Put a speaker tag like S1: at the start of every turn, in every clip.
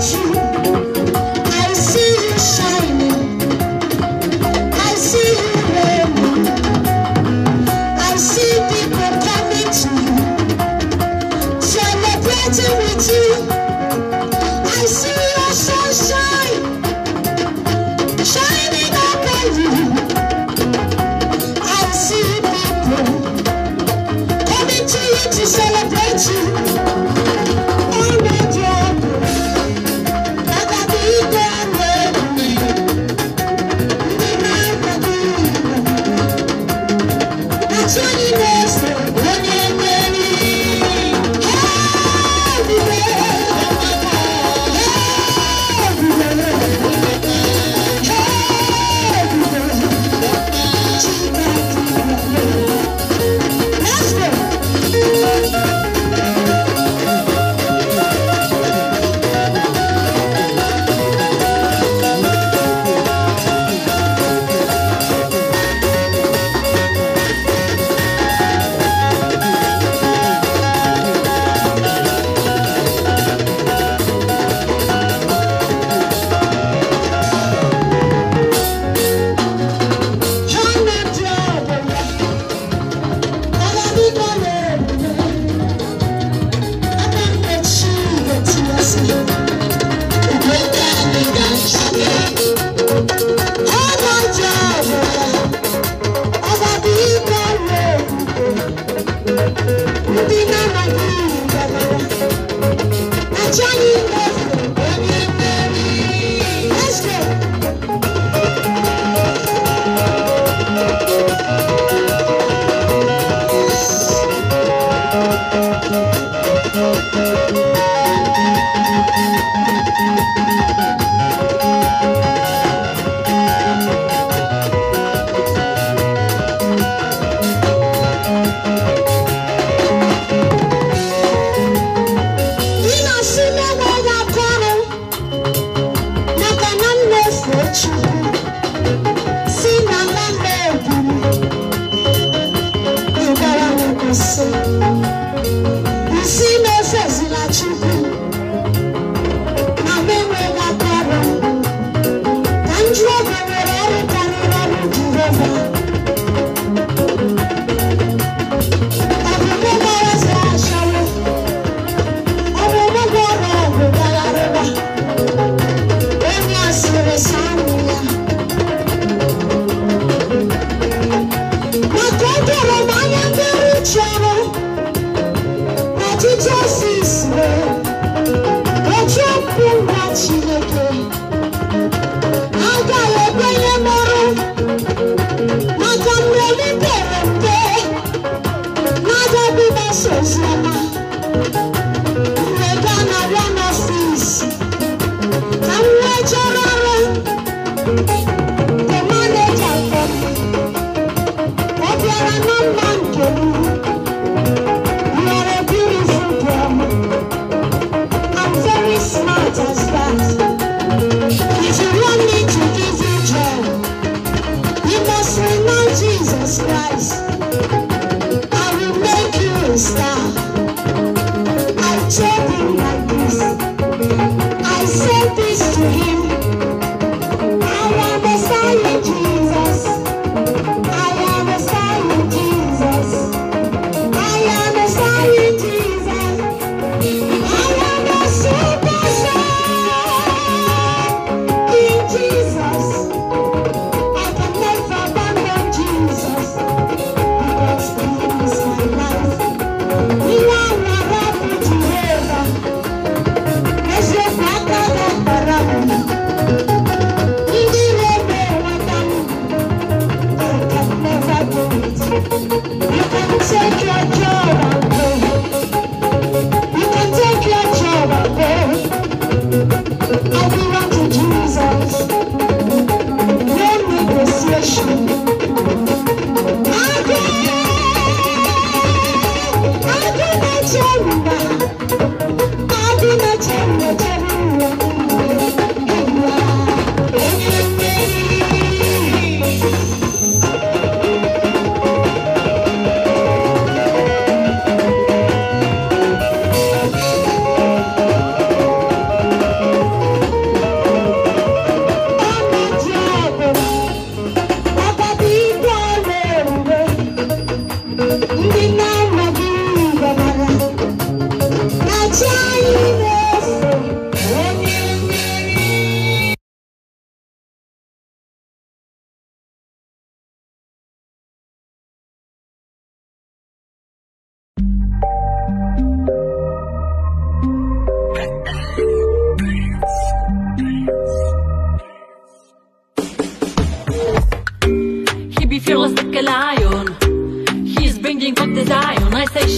S1: 是。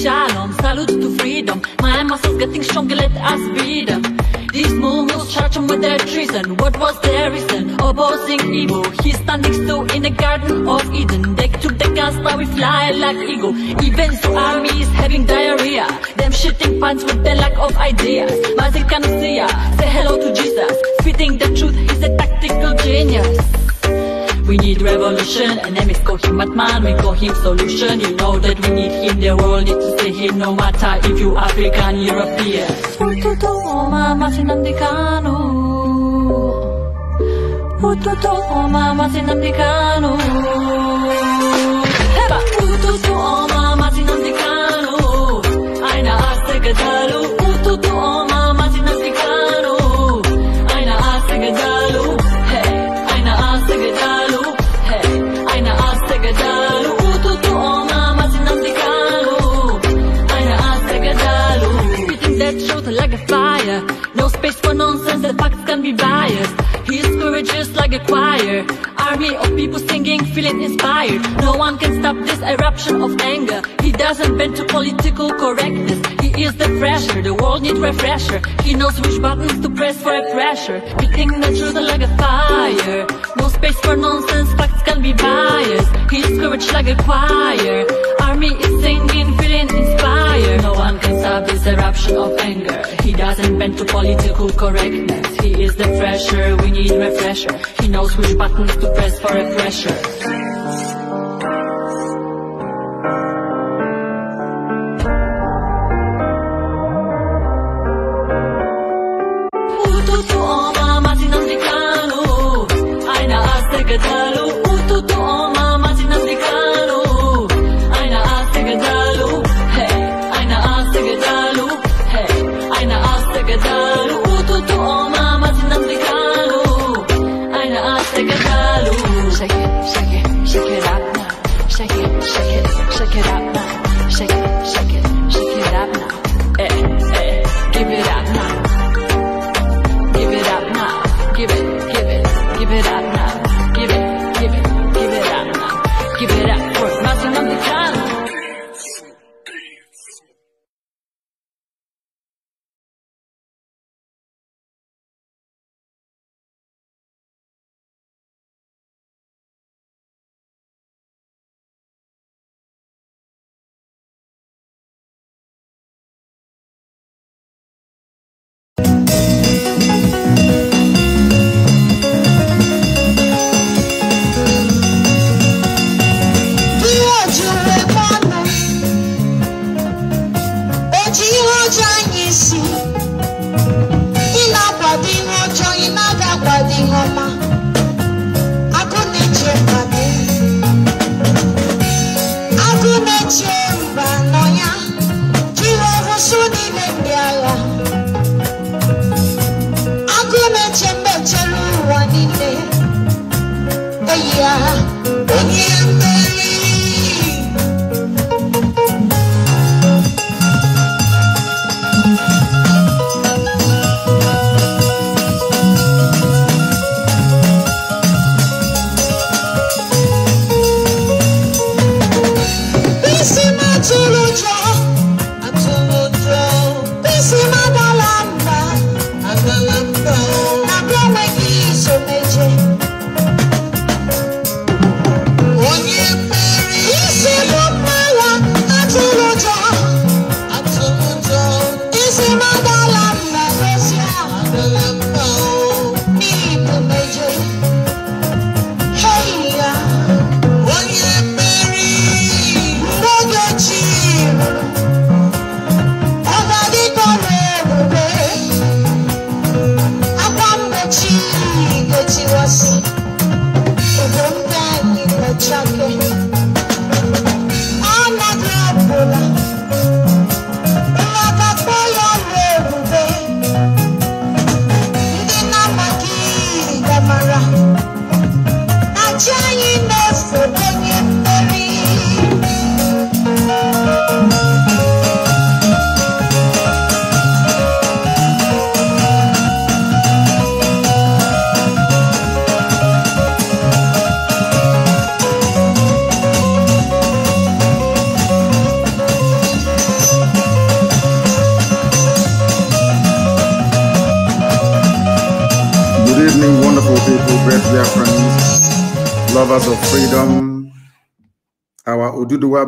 S2: shalom, salute to freedom My muscles getting stronger, let us beat them These mumus charge them with their treason What was their reason? Opposing evil He standing to in the garden of Eden Deck to the us, now we fly like eagle Even so army is having diarrhea Them shitting pants with their lack of ideas see ya. say hello to Jesus Fitting the truth, he's a tactical genius we need revolution, and then we call him Batman, we call him solution. You know that we need him, the world needs to see him, no matter if you African, European. Ututu mama sinamdikanu Ututu mama sinamdikanu can be biased He's courageous like a choir Army of people singing, feeling inspired No one can stop this eruption of anger He doesn't bend to political correctness He is the pressure. the world needs refresher He knows which buttons to press for a pressure Hitting the truth like a fire No space for nonsense, facts can be biased He's courage like a choir Army is singing inspire No one can stop this eruption of anger He doesn't bend to political correctness He is the fresher, we need refresher He knows which buttons to press for a pressure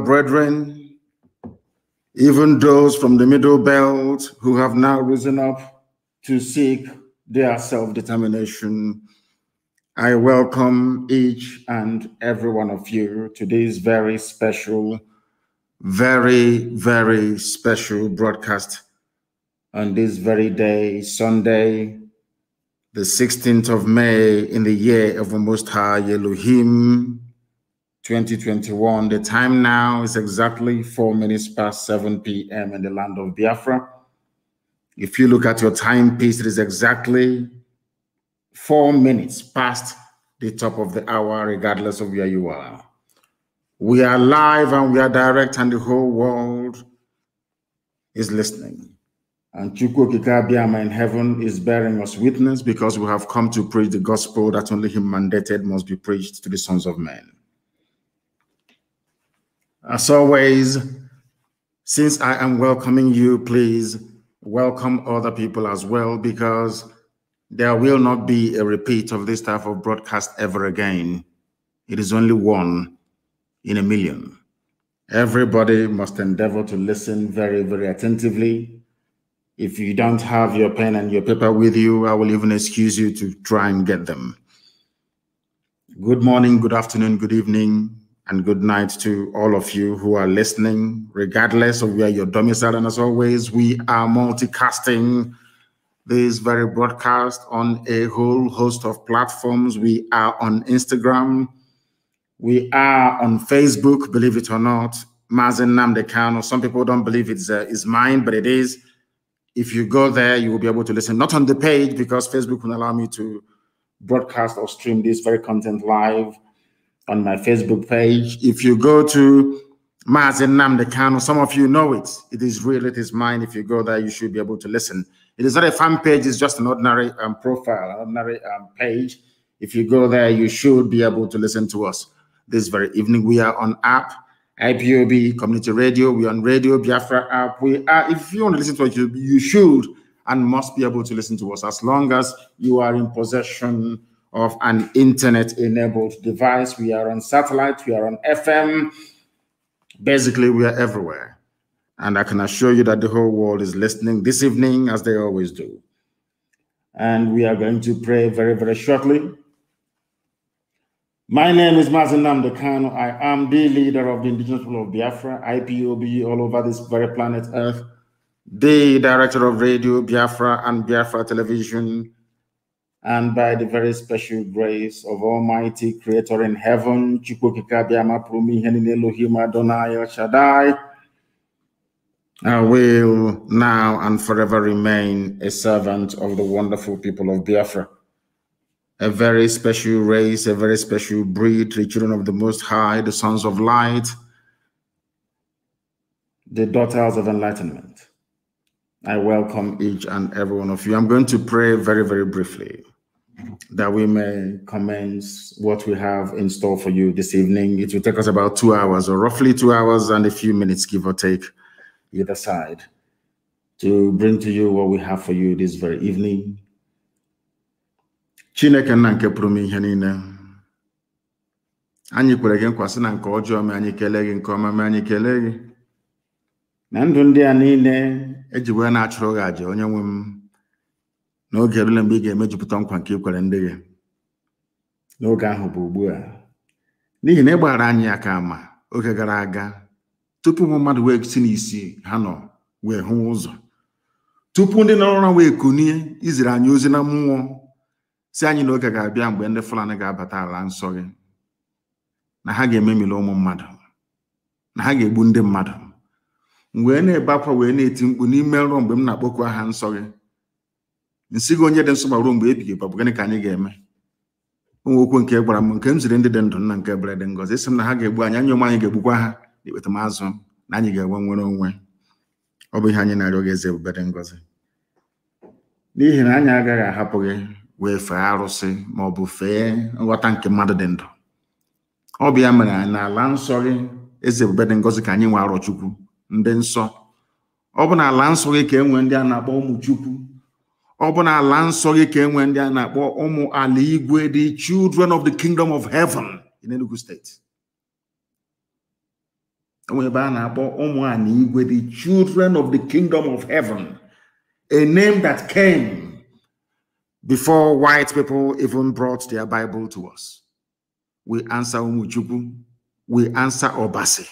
S3: brethren, even those from the middle belt who have now risen up to seek their self determination, I welcome each and every one of you to this very special, very, very special broadcast on this very day, Sunday, the 16th of May, in the year of the Most High Elohim, 2021. The time now is exactly four minutes past 7 p.m. in the land of Biafra. If you look at your timepiece, it is exactly four minutes past the top of the hour, regardless of where you are. We are live and we are direct, and the whole world is listening. And Chukwokikabiama in heaven is bearing us witness because we have come to preach the gospel that only He mandated must be preached to the sons of men. As always, since I am welcoming you, please welcome other people as well because there will not be a repeat of this type of broadcast ever again. It is only one in a million. Everybody must endeavor to listen very, very attentively. If you don't have your pen and your paper with you, I will even excuse you to try and get them. Good morning, good afternoon, good evening, and good night to all of you who are listening, regardless of where you're domiciled. And as always, we are multicasting this very broadcast on a whole host of platforms. We are on Instagram. We are on Facebook, believe it or not. Mazen Namdekano. Some people don't believe it's, uh, it's mine, but it is. If you go there, you will be able to listen. Not on the page because Facebook won't allow me to broadcast or stream this very content live on my Facebook page. If you go to Mazen Namdekano, some of you know it. It is real, it is mine. If you go there, you should be able to listen. It is not a fan page, it's just an ordinary um, profile, an ordinary um, page. If you go there, you should be able to listen to us this very evening. We are on app, IPOB Community Radio. We're on Radio Biafra app. We are, if you want to listen to us, you, you should and must be able to listen to us as long as you are in possession of an internet enabled device. We are on satellite, we are on FM. Basically, we are everywhere. And I can assure you that the whole world is listening this evening, as they always do. And we are going to pray very, very shortly. My name is Mazin Namdekano. I am the leader of the Indigenous People of Biafra, IPOB, all over this very planet Earth, the director of Radio Biafra and Biafra Television, and by the very special grace of Almighty Creator in heaven, Elohim Adonai I will now and forever remain a servant of the wonderful people of Biafra. A very special race, a very special breed, the children of the Most High, the sons of light, the daughters of enlightenment. I welcome each and every one of you. I'm going to pray very, very briefly that we may commence what we have in store for you this evening. It will take us about two hours, or roughly two hours and a few minutes, give or take, either side, to bring to you what we have for you this very evening. Chineke nna prumi pụrụ m ihe niile anyị kwere gị nkwasị na nke ọjọọ ma anyị kelee gị nke ọma ma anyị kelee gị na ndụ ndị a niile na-achụrụ gị onye nwe n'oge erule mgbe ị ga-emejupụta nkwa nke ikwere ndị gị n'oge ahụ bụ ugbu a n'ihi na ị anyị aka ma oge gara aga tupu ụmụ mmadụ wee si n'isi ha nọ wee hụ ụzọ tupu ndị nọrọ ụra wee kunie iziri anyị ozi na mmụọ si anyị na oge ga-abịa mgbe ndị Fulani ga-abata ala nsọ gị na ha ga-ememili ụmụ mmadụ na ha ga-egbu ndị mmadụ m wee na-ebe akwa wee na-eti mkpu n'ime nrọ mgbe m na-akpọku aha nsọ gị nsị gị onye dị nsọ ma ruo mgbe ebighị bụ gịnị ka anyị ga-eme okwu nke gwara m nke m ziri ndị dị ndụ nna nke ebere dị ngọzi sị m na ha ga-egbu anyị anyị onwe anyị ga-egbukwa ha na azụ na anyị ga-enwe nwere onwe ọ bụ ihe anyị na-arịọ gị eze ebube dị ngọzi n'ihi na anyị agaghị ahapụ gị wee fee arụsị ma ọ bụ fee nghọta nke mmadụ dị ndụ ọ bụ ya mere na ala nsọ gị eze ebube dị ngọzi ka anyị nwe arọ chukwu ndị nsọ ọ bụ na ala nsọ gị ka e nwee ndị a na-akpọ ụmụ chukwu ọ na ala nsọ gị ka na ụmụ ala the children of the kingdom of heaven in Enugu State. enwe na-akpọ ụmụ ala the children of the kingdom of heaven a name that came before white people even brought their Bible to us we answer Umuchukwu we answer Obasi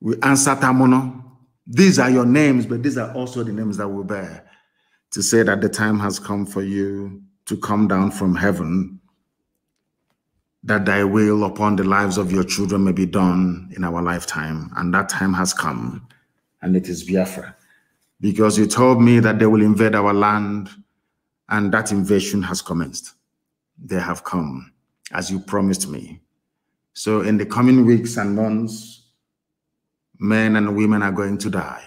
S3: we answer Tamuno these are your names, but these are also the names that we bear to say that the time has come for you to come down from heaven, that thy will upon the lives of your children may be done in our lifetime. And that time has come, and it is Biafra. Because you told me that they will invade our land, and that invasion has commenced. They have come, as you promised me. So in the coming weeks and months, men and women are going to die.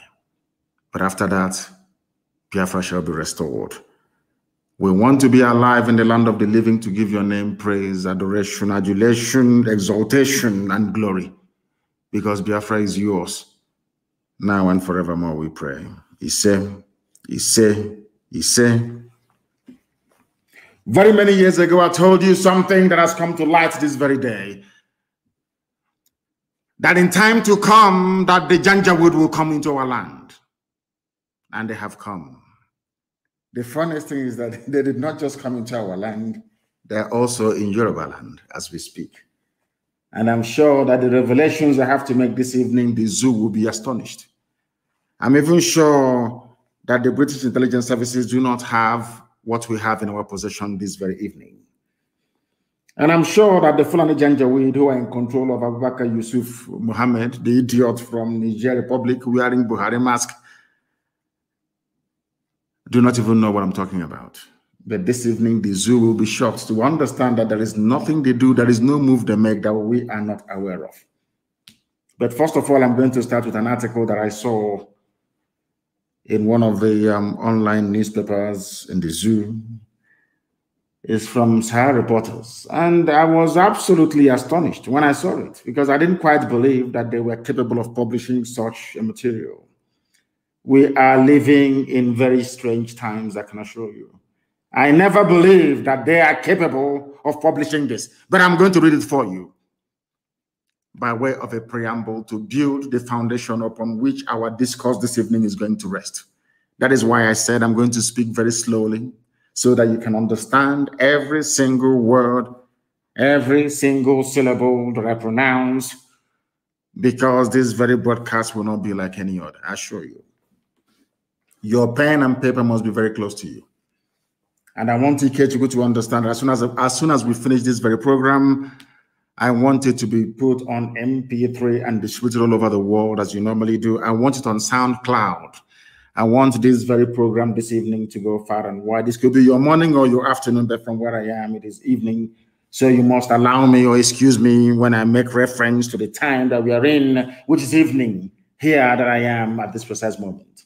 S3: But after that, Biafra shall be restored. We want to be alive in the land of the living to give your name praise, adoration, adulation, exaltation, and glory, because Biafra is yours, now and forevermore, we pray. Ise, Ise, Ise. Very many years ago, I told you something that has come to light this very day that in time to come that the Janjaweed will come into our land. And they have come. The funniest thing is that they did not just come into our land, they're also in Yoruba land as we speak. And I'm sure that the revelations I have to make this evening, the zoo will be astonished. I'm even sure that the British intelligence services do not have what we have in our possession this very evening. And I'm sure that the Fulani Janjaweed who are in control of Abubakar Yusuf Mohammed, the idiot from Niger Republic wearing Buhari mask, do not even know what I'm talking about. But this evening, the zoo will be shocked to understand that there is nothing they do, there is no move they make that we are not aware of. But first of all, I'm going to start with an article that I saw in one of the um, online newspapers in the zoo is from Sahara Reporters. And I was absolutely astonished when I saw it because I didn't quite believe that they were capable of publishing such a material. We are living in very strange times, I can assure you. I never believed that they are capable of publishing this, but I'm going to read it for you by way of a preamble to build the foundation upon which our discourse this evening is going to rest. That is why I said I'm going to speak very slowly so that you can understand every single word, every single syllable that I pronounce, because this very broadcast will not be like any other, I assure you. Your pen and paper must be very close to you. And I want TK to go to understand as soon as as soon as we finish this very program, I want it to be put on MP3 and distributed all over the world as you normally do. I want it on SoundCloud I want this very program this evening to go far and wide. This could be your morning or your afternoon, but from where I am, it is evening. So you must allow me or excuse me when I make reference to the time that we are in, which is evening here that I am at this precise moment.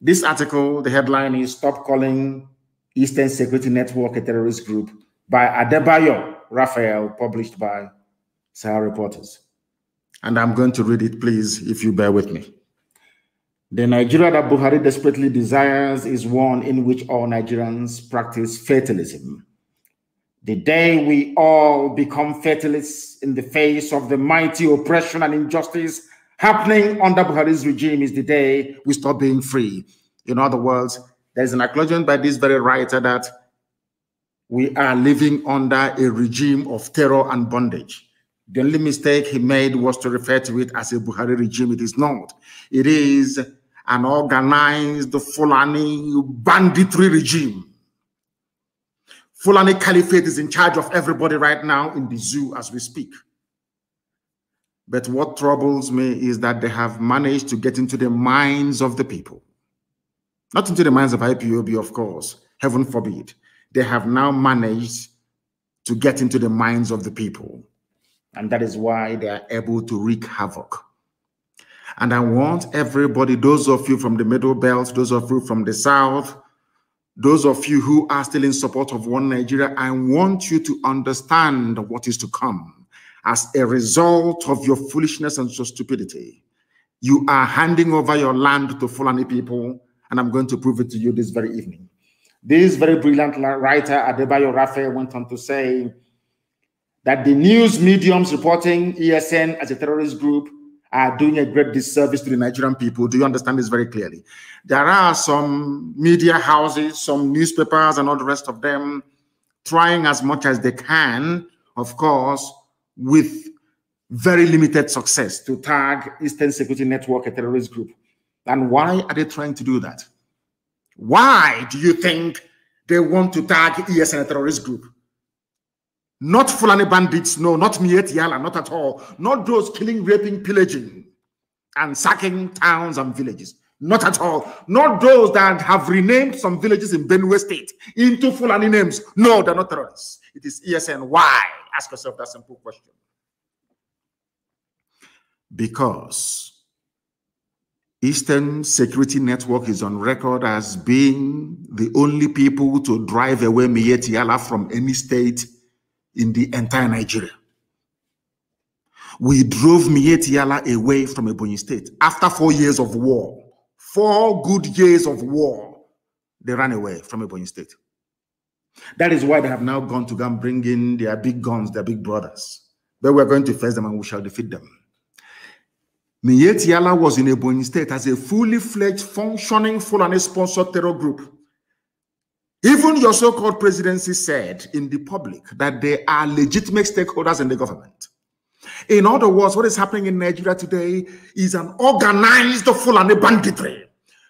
S3: This article, the headline is Stop Calling Eastern Security Network a Terrorist Group by Adebayo Raphael, published by Sarah Reporters. And I'm going to read it, please, if you bear with me. The Nigeria that Buhari desperately desires is one in which all Nigerians practice fatalism. The day we all become fatalists in the face of the mighty oppression and injustice happening under Buhari's regime is the day we stop being free. In other words, there's an acknowledgement by this very writer that we are living under a regime of terror and bondage. The only mistake he made was to refer to it as a Buhari regime. It is not. It is and organized Fulani banditry regime. Fulani Caliphate is in charge of everybody right now in the zoo as we speak. But what troubles me is that they have managed to get into the minds of the people. Not into the minds of IPOB, of course, heaven forbid. They have now managed to get into the minds of the people. And that is why they are able to wreak havoc. And I want everybody, those of you from the middle belt, those of you from the south, those of you who are still in support of One Nigeria, I want you to understand what is to come as a result of your foolishness and your stupidity. You are handing over your land to Fulani people, and I'm going to prove it to you this very evening. This very brilliant writer, Adebayo Rafe, went on to say that the news mediums reporting ESN as a terrorist group are doing a great disservice to the Nigerian people. Do you understand this very clearly? There are some media houses, some newspapers, and all the rest of them trying as much as they can, of course, with very limited success to tag Eastern Security Network a terrorist group. And why are they trying to do that? Why do you think they want to tag ESN a terrorist group? Not Fulani bandits, no, not Miet Yala, not at all. Not those killing, raping, pillaging, and sacking towns and villages. Not at all. Not those that have renamed some villages in Benue State into Fulani names. No, they're not terrorists. It is ESN. Why? Ask yourself that simple question. Because Eastern Security Network is on record as being the only people to drive away Yala from any state in the entire Nigeria. We drove Mieti Yala away from Ebony State after four years of war. Four good years of war, they ran away from Ebony State. That is why they have now gone to go and bring in their big guns, their big brothers. But we're going to face them and we shall defeat them. Mieti Yala was in Ebony State as a fully fledged, functioning full Fulani sponsored terror group. Even your so called presidency said in the public that there are legitimate stakeholders in the government. In other words, what is happening in Nigeria today is an organized full a banditry.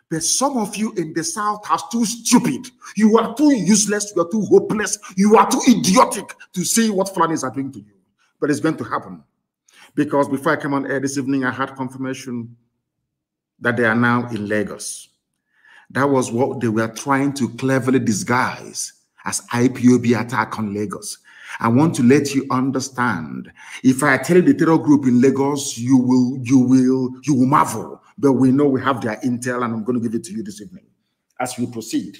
S3: But some of you in the South are too stupid. You are too useless. You are too hopeless. You are too idiotic to see what Fulanis are doing to you. But it's going to happen. Because before I came on air this evening, I had confirmation that they are now in Lagos. That was what they were trying to cleverly disguise as IPOB attack on Lagos. I want to let you understand. If I tell the terror group in Lagos, you will, you will, you will marvel. But we know we have their intel, and I'm going to give it to you this evening as we proceed.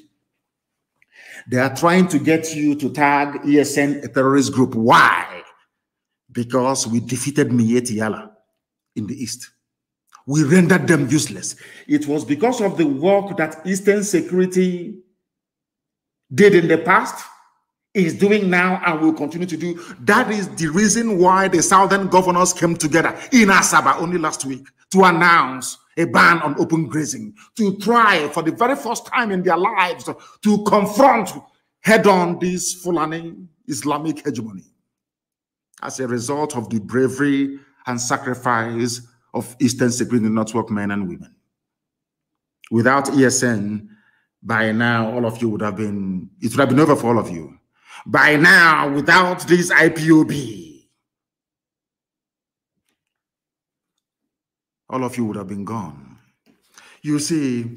S3: They are trying to get you to tag ESN a terrorist group. Why? Because we defeated Mieti Yala in the East we rendered them useless. It was because of the work that Eastern Security did in the past, is doing now, and will continue to do. That is the reason why the Southern governors came together in Asaba only last week to announce a ban on open grazing, to try for the very first time in their lives to confront head on this Fulani Islamic hegemony. As a result of the bravery and sacrifice of Eastern Security Network men and women. Without ESN, by now, all of you would have been, it would have been over for all of you. By now, without this IPOB, all of you would have been gone. You see,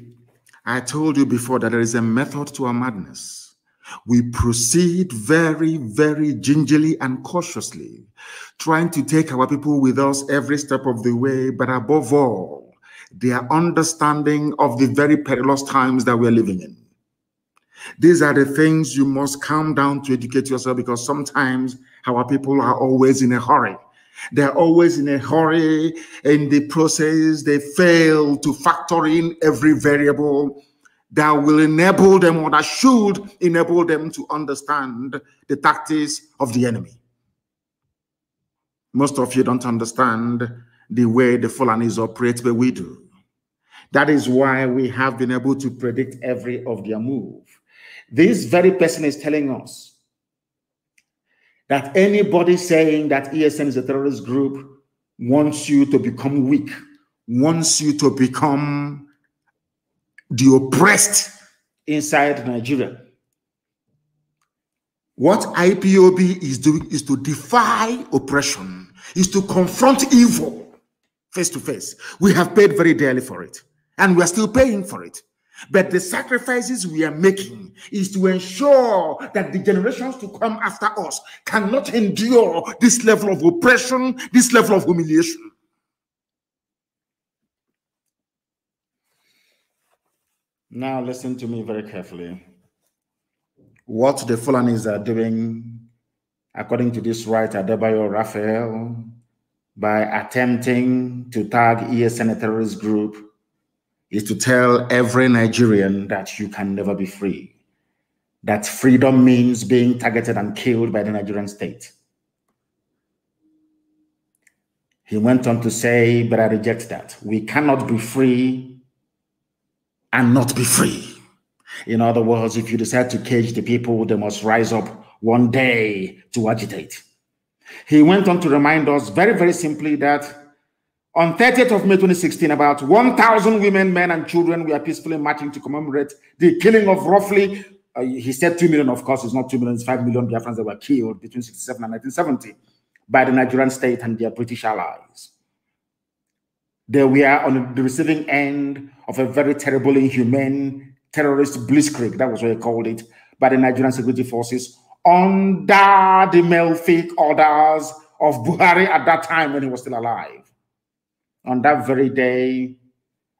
S3: I told you before that there is a method to our madness. We proceed very, very gingerly and cautiously, trying to take our people with us every step of the way, but above all, their understanding of the very perilous times that we're living in. These are the things you must calm down to educate yourself because sometimes our people are always in a hurry. They're always in a hurry. In the process, they fail to factor in every variable that will enable them or that should enable them to understand the tactics of the enemy. Most of you don't understand the way the Fulanis operate, but we do. That is why we have been able to predict every of their move. This very person is telling us that anybody saying that ESN is a terrorist group wants you to become weak, wants you to become the oppressed inside Nigeria. What IPOB is doing is to defy oppression, is to confront evil face to face. We have paid very dearly for it, and we are still paying for it. But the sacrifices we are making is to ensure that the generations to come after us cannot endure this level of oppression, this level of humiliation. Now listen to me very carefully. What the Fulanis are doing, according to this writer, Debayo Raphael, by attempting to tag ESN terrorist group is to tell every Nigerian that you can never be free. That freedom means being targeted and killed by the Nigerian state. He went on to say, but I reject that. We cannot be free and not be free. In other words, if you decide to cage the people, they must rise up one day to agitate. He went on to remind us very, very simply that on 30th of May 2016, about 1,000 women, men, and children were peacefully marching to commemorate the killing of roughly, uh, he said 2 million, of course, it's not 2 million, it's 5 million Biafrans that were killed between 67 and 1970 by the Nigerian state and their British allies that we are on the receiving end of a very terrible, inhumane terrorist blitzkrieg, that was what they called it, by the Nigerian security forces under the malefic orders of Buhari at that time when he was still alive. On that very day,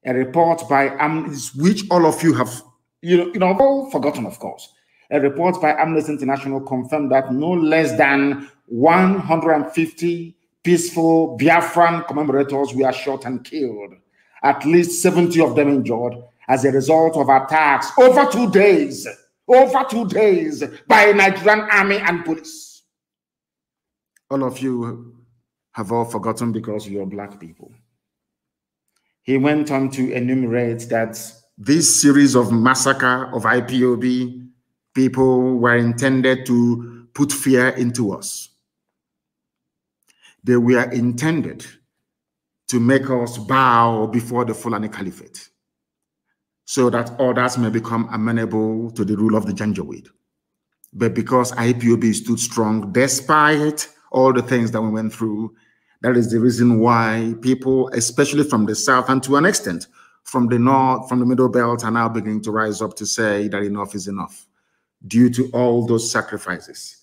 S3: a report by Amnesty, which all of you have, you know, you know, all forgotten, of course. A report by Amnesty International confirmed that no less than 150 peaceful Biafran commemorators were shot and killed. At least 70 of them injured as a result of attacks over two days, over two days by Nigerian army and police. All of you have all forgotten because you're black people. He went on to enumerate that this series of massacre of IPOB people were intended to put fear into us they were intended to make us bow before the Fulani Caliphate so that others may become amenable to the rule of the Janjaweed. But because IPOB stood strong despite all the things that we went through, that is the reason why people, especially from the South and to an extent from the North, from the Middle Belt, are now beginning to rise up to say that enough is enough due to all those sacrifices.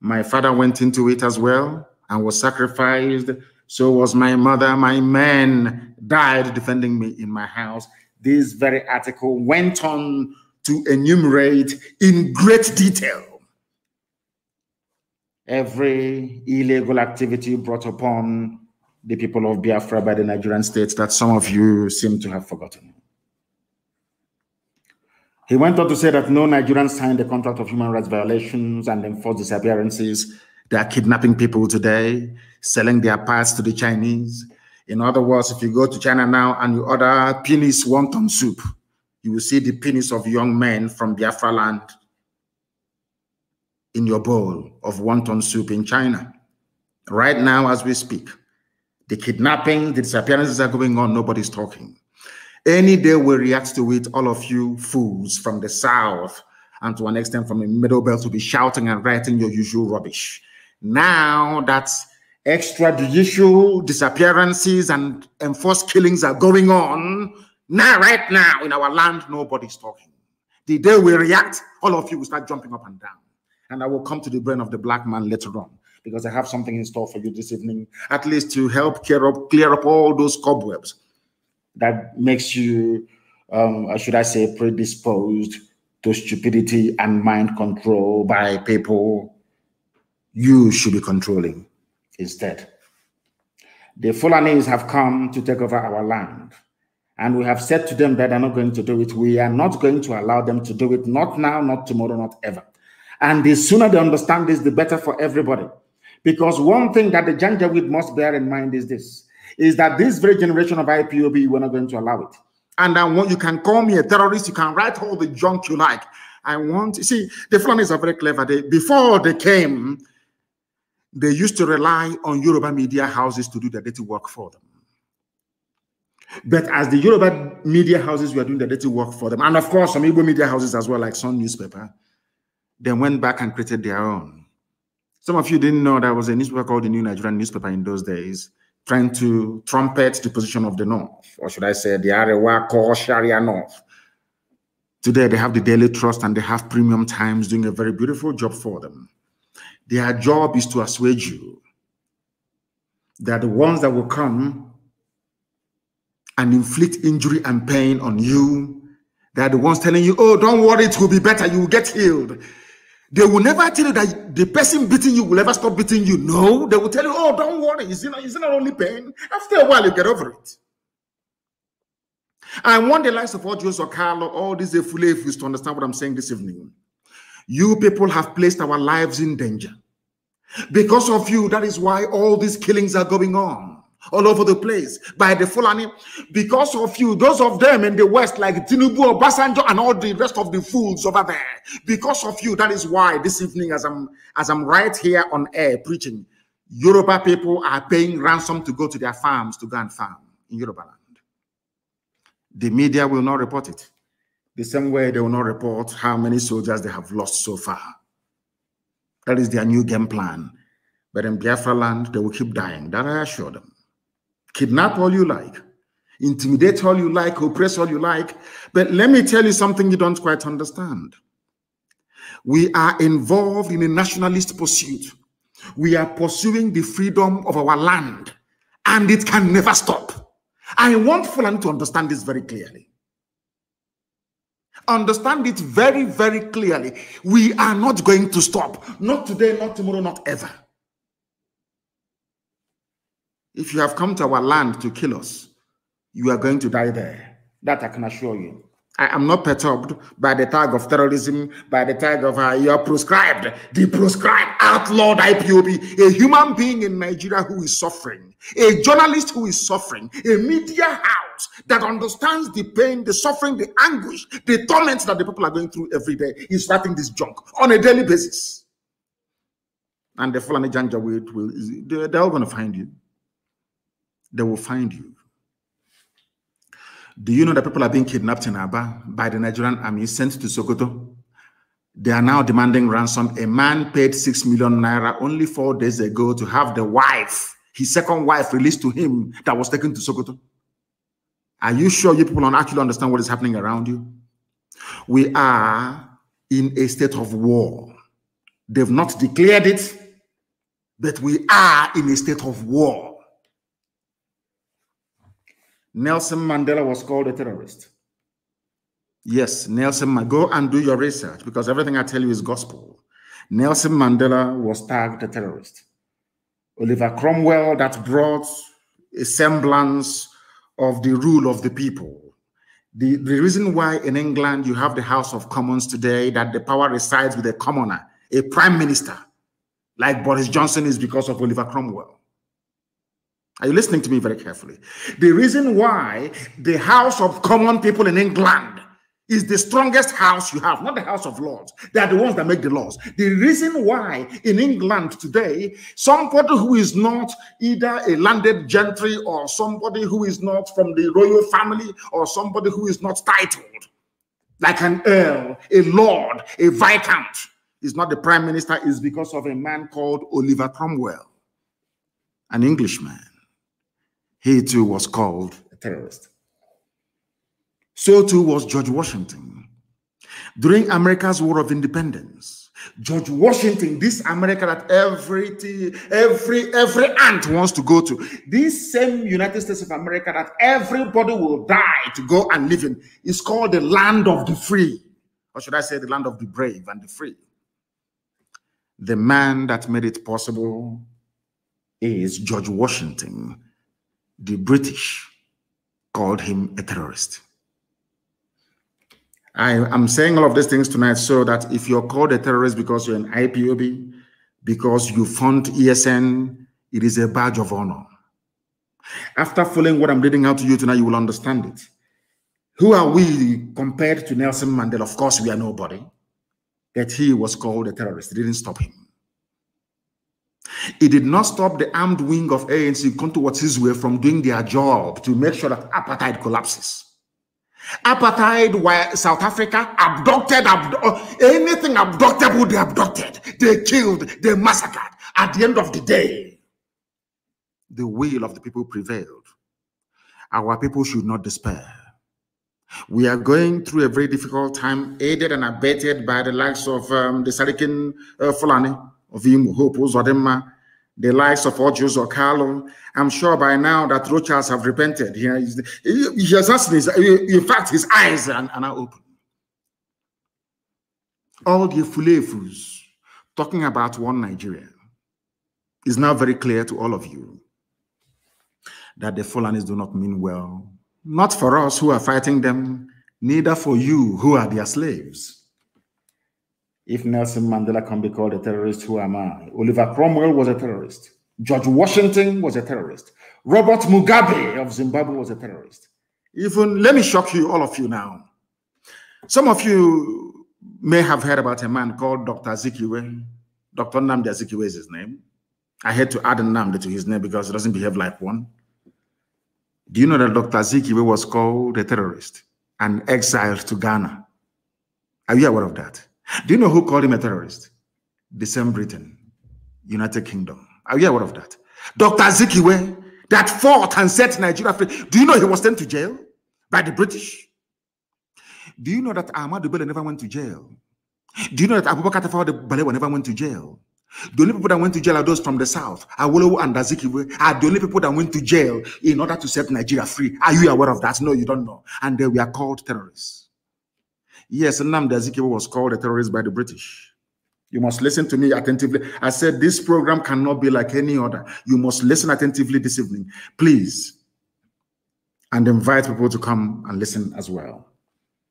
S3: My father went into it as well and was sacrificed. So was my mother. My men died defending me in my house. This very article went on to enumerate in great detail every illegal activity brought upon the people of Biafra by the Nigerian state that some of you seem to have forgotten. He went on to say that no Nigerian signed the contract of human rights violations and enforced disappearances they are kidnapping people today, selling their parts to the Chinese. In other words, if you go to China now and you order penis wonton soup, you will see the penis of young men from Biafra land in your bowl of wonton soup in China. Right now, as we speak, the kidnapping, the disappearances are going on, nobody's talking. Any day we react to it, all of you fools from the south and to an extent from the middle belt will be shouting and writing your usual rubbish. Now that extrajudicial disappearances and enforced killings are going on, now, right now, in our land, nobody's talking. The day we react, all of you will start jumping up and down. And I will come to the brain of the black man later on because I have something in store for you this evening, at least to help clear up, clear up all those cobwebs that makes you, um, uh, should I say, predisposed to stupidity and mind control by people you should be controlling instead. The Fulanis have come to take over our land. And we have said to them that they're not going to do it. We are not going to allow them to do it. Not now, not tomorrow, not ever. And the sooner they understand this, the better for everybody. Because one thing that the Janjaweed must bear in mind is this, is that this very generation of IPOB, we're not going to allow it. And I want, you can call me a terrorist, you can write all the junk you like. I want, see, the Fulanis are very clever. They, before they came, they used to rely on Yoruba media houses to do the dirty work for them. But as the Yoruba media houses were doing the dirty work for them, and of course some Igbo media houses as well, like some newspaper, they went back and created their own. Some of you didn't know there was a newspaper called the New Nigerian Newspaper in those days, trying to trumpet the position of the North, or should I say the Arewa Kor Sharia North. Today they have the Daily Trust and they have Premium Times doing a very beautiful job for them. Their job is to assuage you. They are the ones that will come and inflict injury and pain on you. They are the ones telling you, oh, don't worry, it will be better. You will get healed. They will never tell you that the person beating you will ever stop beating you. No, they will tell you, oh, don't worry, it's not, it's not only pain. After a while, you get over it. I want the likes of all Joseph Carlo, all these Efulefus to understand what I'm saying this evening. You people have placed our lives in danger. Because of you, that is why all these killings are going on all over the place by the Fulani. Because of you, those of them in the West, like Tinubu, Obasanjo, and all the rest of the fools over there. Because of you, that is why this evening, as I'm as I'm right here on air preaching, Yoruba people are paying ransom to go to their farms to go and farm in Yoruba land. The media will not report it. The same way they will not report how many soldiers they have lost so far. That is their new game plan. But in Biafra land, they will keep dying. That I assure them. Kidnap all you like, intimidate all you like, oppress all you like. But let me tell you something you don't quite understand. We are involved in a nationalist pursuit. We are pursuing the freedom of our land, and it can never stop. I want Fulani to understand this very clearly understand it very, very clearly. We are not going to stop. Not today, not tomorrow, not ever. If you have come to our land to kill us, you are going to die there. That I can assure you. I am not perturbed by the tag of terrorism, by the tag of uh, you are proscribed, the proscribed outlawed IPOB, a human being in Nigeria who is suffering, a journalist who is suffering, a media house that understands the pain, the suffering, the anguish, the torments that the people are going through every day is starting this junk on a daily basis. And the Fulani Janjaweed will, they they're all going to find you. They will find you. Do you know that people are being kidnapped in Aba by the Nigerian army sent to Sokoto? They are now demanding ransom. A man paid 6 million naira only four days ago to have the wife, his second wife, released to him that was taken to Sokoto. Are you sure you people don't actually understand what is happening around you? We are in a state of war. They've not declared it, but we are in a state of war. Nelson Mandela was called a terrorist. Yes, Nelson, go and do your research because everything I tell you is gospel. Nelson Mandela was tagged a terrorist. Oliver Cromwell, that brought a semblance of the rule of the people. The, the reason why in England you have the House of Commons today that the power resides with a commoner, a prime minister, like Boris Johnson is because of Oliver Cromwell. Are you listening to me very carefully? The reason why the House of Common People in England is the strongest house you have, not the House of Lords. They are the ones that make the laws. The reason why in England today, somebody who is not either a landed gentry or somebody who is not from the royal family or somebody who is not titled, like an earl, a lord, a viscount, is not the prime minister, is because of a man called Oliver Cromwell, an Englishman. He too was called a terrorist. So too was George Washington. During America's War of Independence, George Washington, this America that every every every ant wants to go to, this same United States of America that everybody will die to go and live in, is called the land of the free, or should I say, the land of the brave and the free. The man that made it possible is George Washington. The British called him a terrorist. I, am saying all of these things tonight so that if you're called a terrorist because you're an IPOB, because you fund ESN, it is a badge of honor. After following what I'm reading out to you tonight, you will understand it. Who are we compared to Nelson Mandela? Of course, we are nobody. That he was called a terrorist. It didn't stop him. It did not stop the armed wing of ANC, come towards what is way from doing their job to make sure that apartheid collapses. Apartheid, where South Africa abducted, abdu- uh, anything abductable, they abducted, they killed, they massacred. At the end of the day, the will of the people prevailed. Our people should not despair. We are going through a very difficult time, aided and abetted by the likes of um, the Sarikin uh, Fulani, of Hope, Zodema, the likes of Ojos or Carlo. I'm sure by now that Rochas have repented. He has, he has asked his, in fact, his eyes are, are now open. All the fulefus talking about one Nigeria is now very clear to all of you that the Fulanis do not mean well, not for us who are fighting them, neither for you who are their slaves. If Nelson Mandela can be called a terrorist, who am I? Oliver Cromwell was a terrorist. George Washington was a terrorist. Robert Mugabe of Zimbabwe was a terrorist. Even let me shock you, all of you now. Some of you may have heard about a man called Dr. Azikiwe. Dr. Namdi Azikiwe is his name. I had to add a Namdi to his name because he doesn't behave like one. Do you know that Dr. Azikiwe was called a terrorist and exiled to Ghana? Are you aware of that? Do you know who called him a terrorist? The same Britain, United Kingdom. Are you aware of that? Dr. Azikiwe, that fought and set Nigeria free. Do you know he was sent to jail by the British? Do you know that Ahmadu Bello never went to jail? Do you know that Abubakar Tafawa Balewa never went to jail? The only people that went to jail are those from the south. Awolowo and Azikiwe are the only people that went to jail in order to set Nigeria free. Are you aware of that? No, you don't know. And they uh, were called terrorists. Yes, Nnamdi Azikiwe was called a terrorist by the British. You must listen to me attentively. I said this program cannot be like any other. You must listen attentively this evening, please. And invite people to come and listen as well.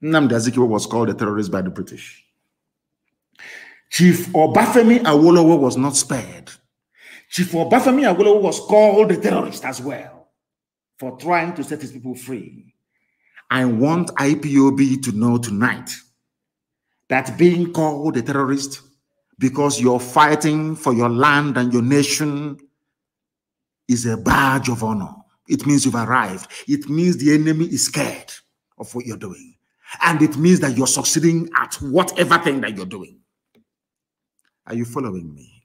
S3: Nnamdi Azikiwe was called a terrorist by the British. Chief Obafemi Awolowo was not spared. Chief Obafemi Awolowo was called a terrorist as well for trying to set his people free. I want IPOB to know tonight that being called a terrorist because you're fighting for your land and your nation is a badge of honor. It means you've arrived. It means the enemy is scared of what you're doing. And it means that you're succeeding at whatever thing that you're doing. Are you following me?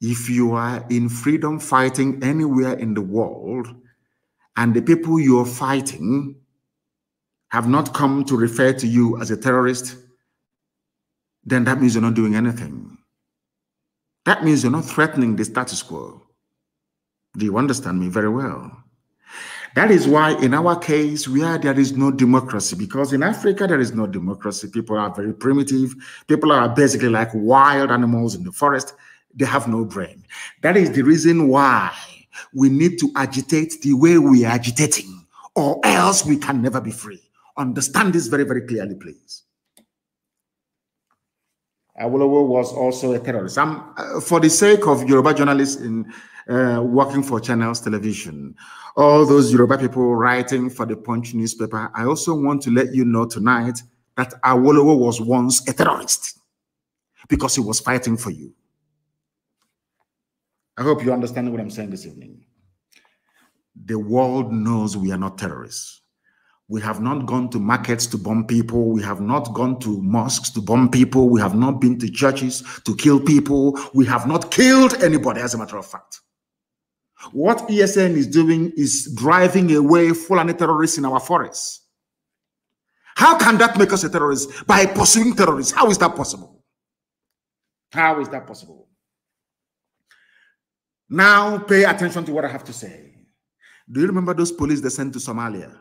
S3: If you are in freedom fighting anywhere in the world, and the people you're fighting have not come to refer to you as a terrorist, then that means you're not doing anything. That means you're not threatening the status quo. Do you understand me very well? That is why, in our case, where there is no democracy, because in Africa there is no democracy, people are very primitive, people are basically like wild animals in the forest, they have no brain. That is the reason why we need to agitate the way we are agitating, or else we can never be free. Understand this very, very clearly, please. Awolowo was also a terrorist. I'm, um, uh, for the sake of Yoruba journalists in uh, working for channels television, all those Yoruba people writing for the Punch newspaper, I also want to let you know tonight that Awolowo was once a terrorist because he was fighting for you. I hope you understand what I'm saying this evening. The world knows we are not terrorists. We have not gone to markets to bomb people. We have not gone to mosques to bomb people. We have not been to churches to kill people. We have not killed anybody, as a matter of fact. What ESN is doing is driving away Fulani terrorists in our forests. How can that make us a terrorist? By pursuing terrorists. How is that possible? How is that possible? Now pay attention to what I have to say. Do you remember those police they sent to Somalia?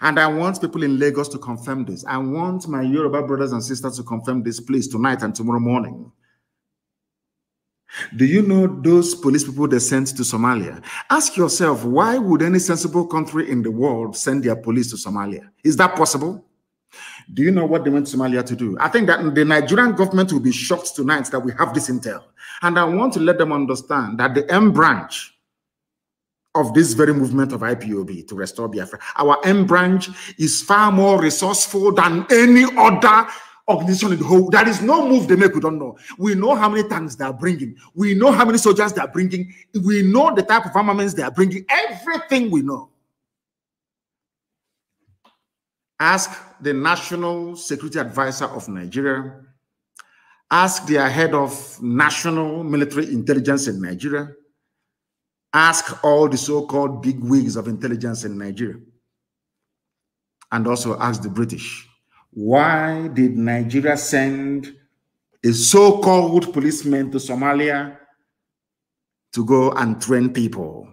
S3: And I want people in Lagos to confirm this. I want my Yoruba brothers and sisters to confirm this, please, tonight and tomorrow morning. Do you know those police people they sent to Somalia? Ask yourself, why would any sensible country in the world send their police to Somalia? Is that possible? Do you know what they went to Somalia to do? I think that the Nigerian government will be shocked tonight that we have this intel. And I want to let them understand that the M branch of this very movement of IPOB to restore Biafra. Our M branch is far more resourceful than any other organization in the whole. There is no move they make, we don't know. We know how many tanks they are bringing. We know how many soldiers they are bringing. We know the type of armaments they are bringing. Everything we know. Ask the National Security Advisor of Nigeria. Ask their head of National Military Intelligence in Nigeria Ask all the so-called big wigs of intelligence in Nigeria. And also ask the British, why did Nigeria send a so-called policeman to Somalia to go and train people?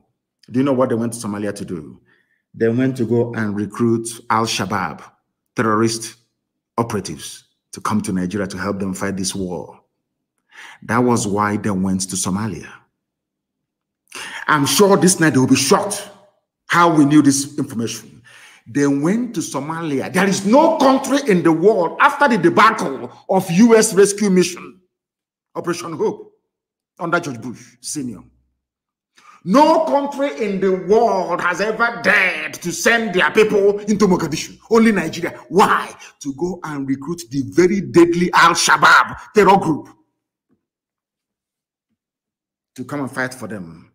S3: Do you know what they went to Somalia to do? They went to go and recruit Al-Shabaab, terrorist operatives, to come to Nigeria to help them fight this war. That was why they went to Somalia. I'm sure this night they will be shocked how we knew this information. They went to Somalia. There is no country in the world after the debacle of U.S. rescue mission, Operation Hope, under George Bush Sr. No country in the world has ever dared to send their people into Mogadishu, only Nigeria. Why? To go and recruit the very deadly Al Shabaab terror group to come and fight for them.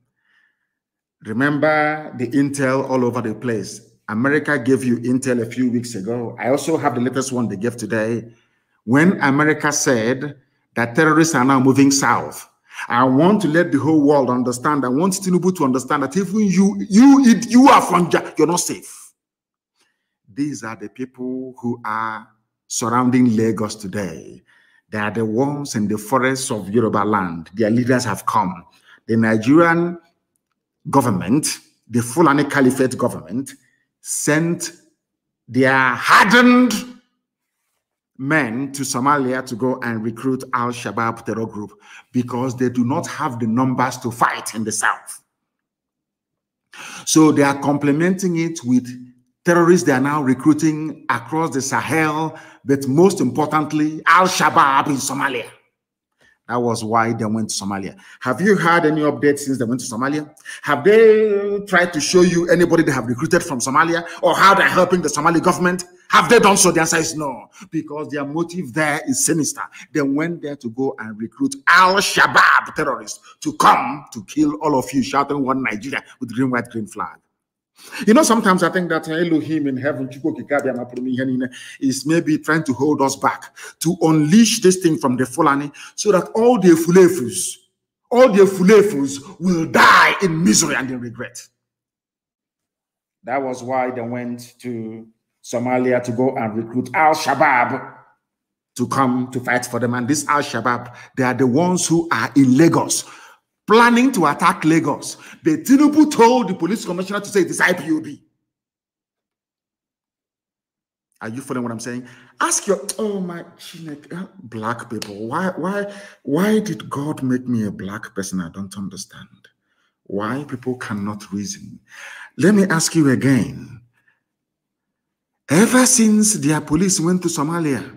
S3: Remember the intel all over the place. America gave you intel a few weeks ago. I also have the latest one they gave today. When America said that terrorists are now moving south, I want to let the whole world understand. I want Tinubu to understand that even you, you, it, you are from, you're not safe. These are the people who are surrounding Lagos today. They are the ones in the forests of Yoruba land. Their leaders have come. The Nigerian government, the Fulani Caliphate government, sent their hardened men to Somalia to go and recruit Al Shabaab terror group because they do not have the numbers to fight in the south. So they are complementing it with terrorists they are now recruiting across the Sahel, but most importantly, Al Shabaab in Somalia. That was why they went to Somalia. Have you had any updates since they went to Somalia? Have they tried to show you anybody they have recruited from Somalia or how they're helping the Somali government? Have they done so? The answer is no, because their motive there is sinister. They went there to go and recruit Al Shabaab terrorists to come to kill all of you, shouting one Nigeria with green, white, green flag. You know, sometimes I think that eh, Elohim in heaven is maybe trying to hold us back to unleash this thing from the Fulani so that all the Fulefus, all the Fulefus will die in misery and in regret. That was why they went to Somalia to go and recruit Al Shabaab to come to fight for them. And this Al Shabaab, they are the ones who are in Lagos planning to attack Lagos. But Tinubu told the police commissioner to say it is IPOB. Are you following what I'm saying? Ask your oh my eh, black people. Why why why did God make me a black person? I don't understand. Why people cannot reason. Let me ask you again. Ever since their police went to Somalia,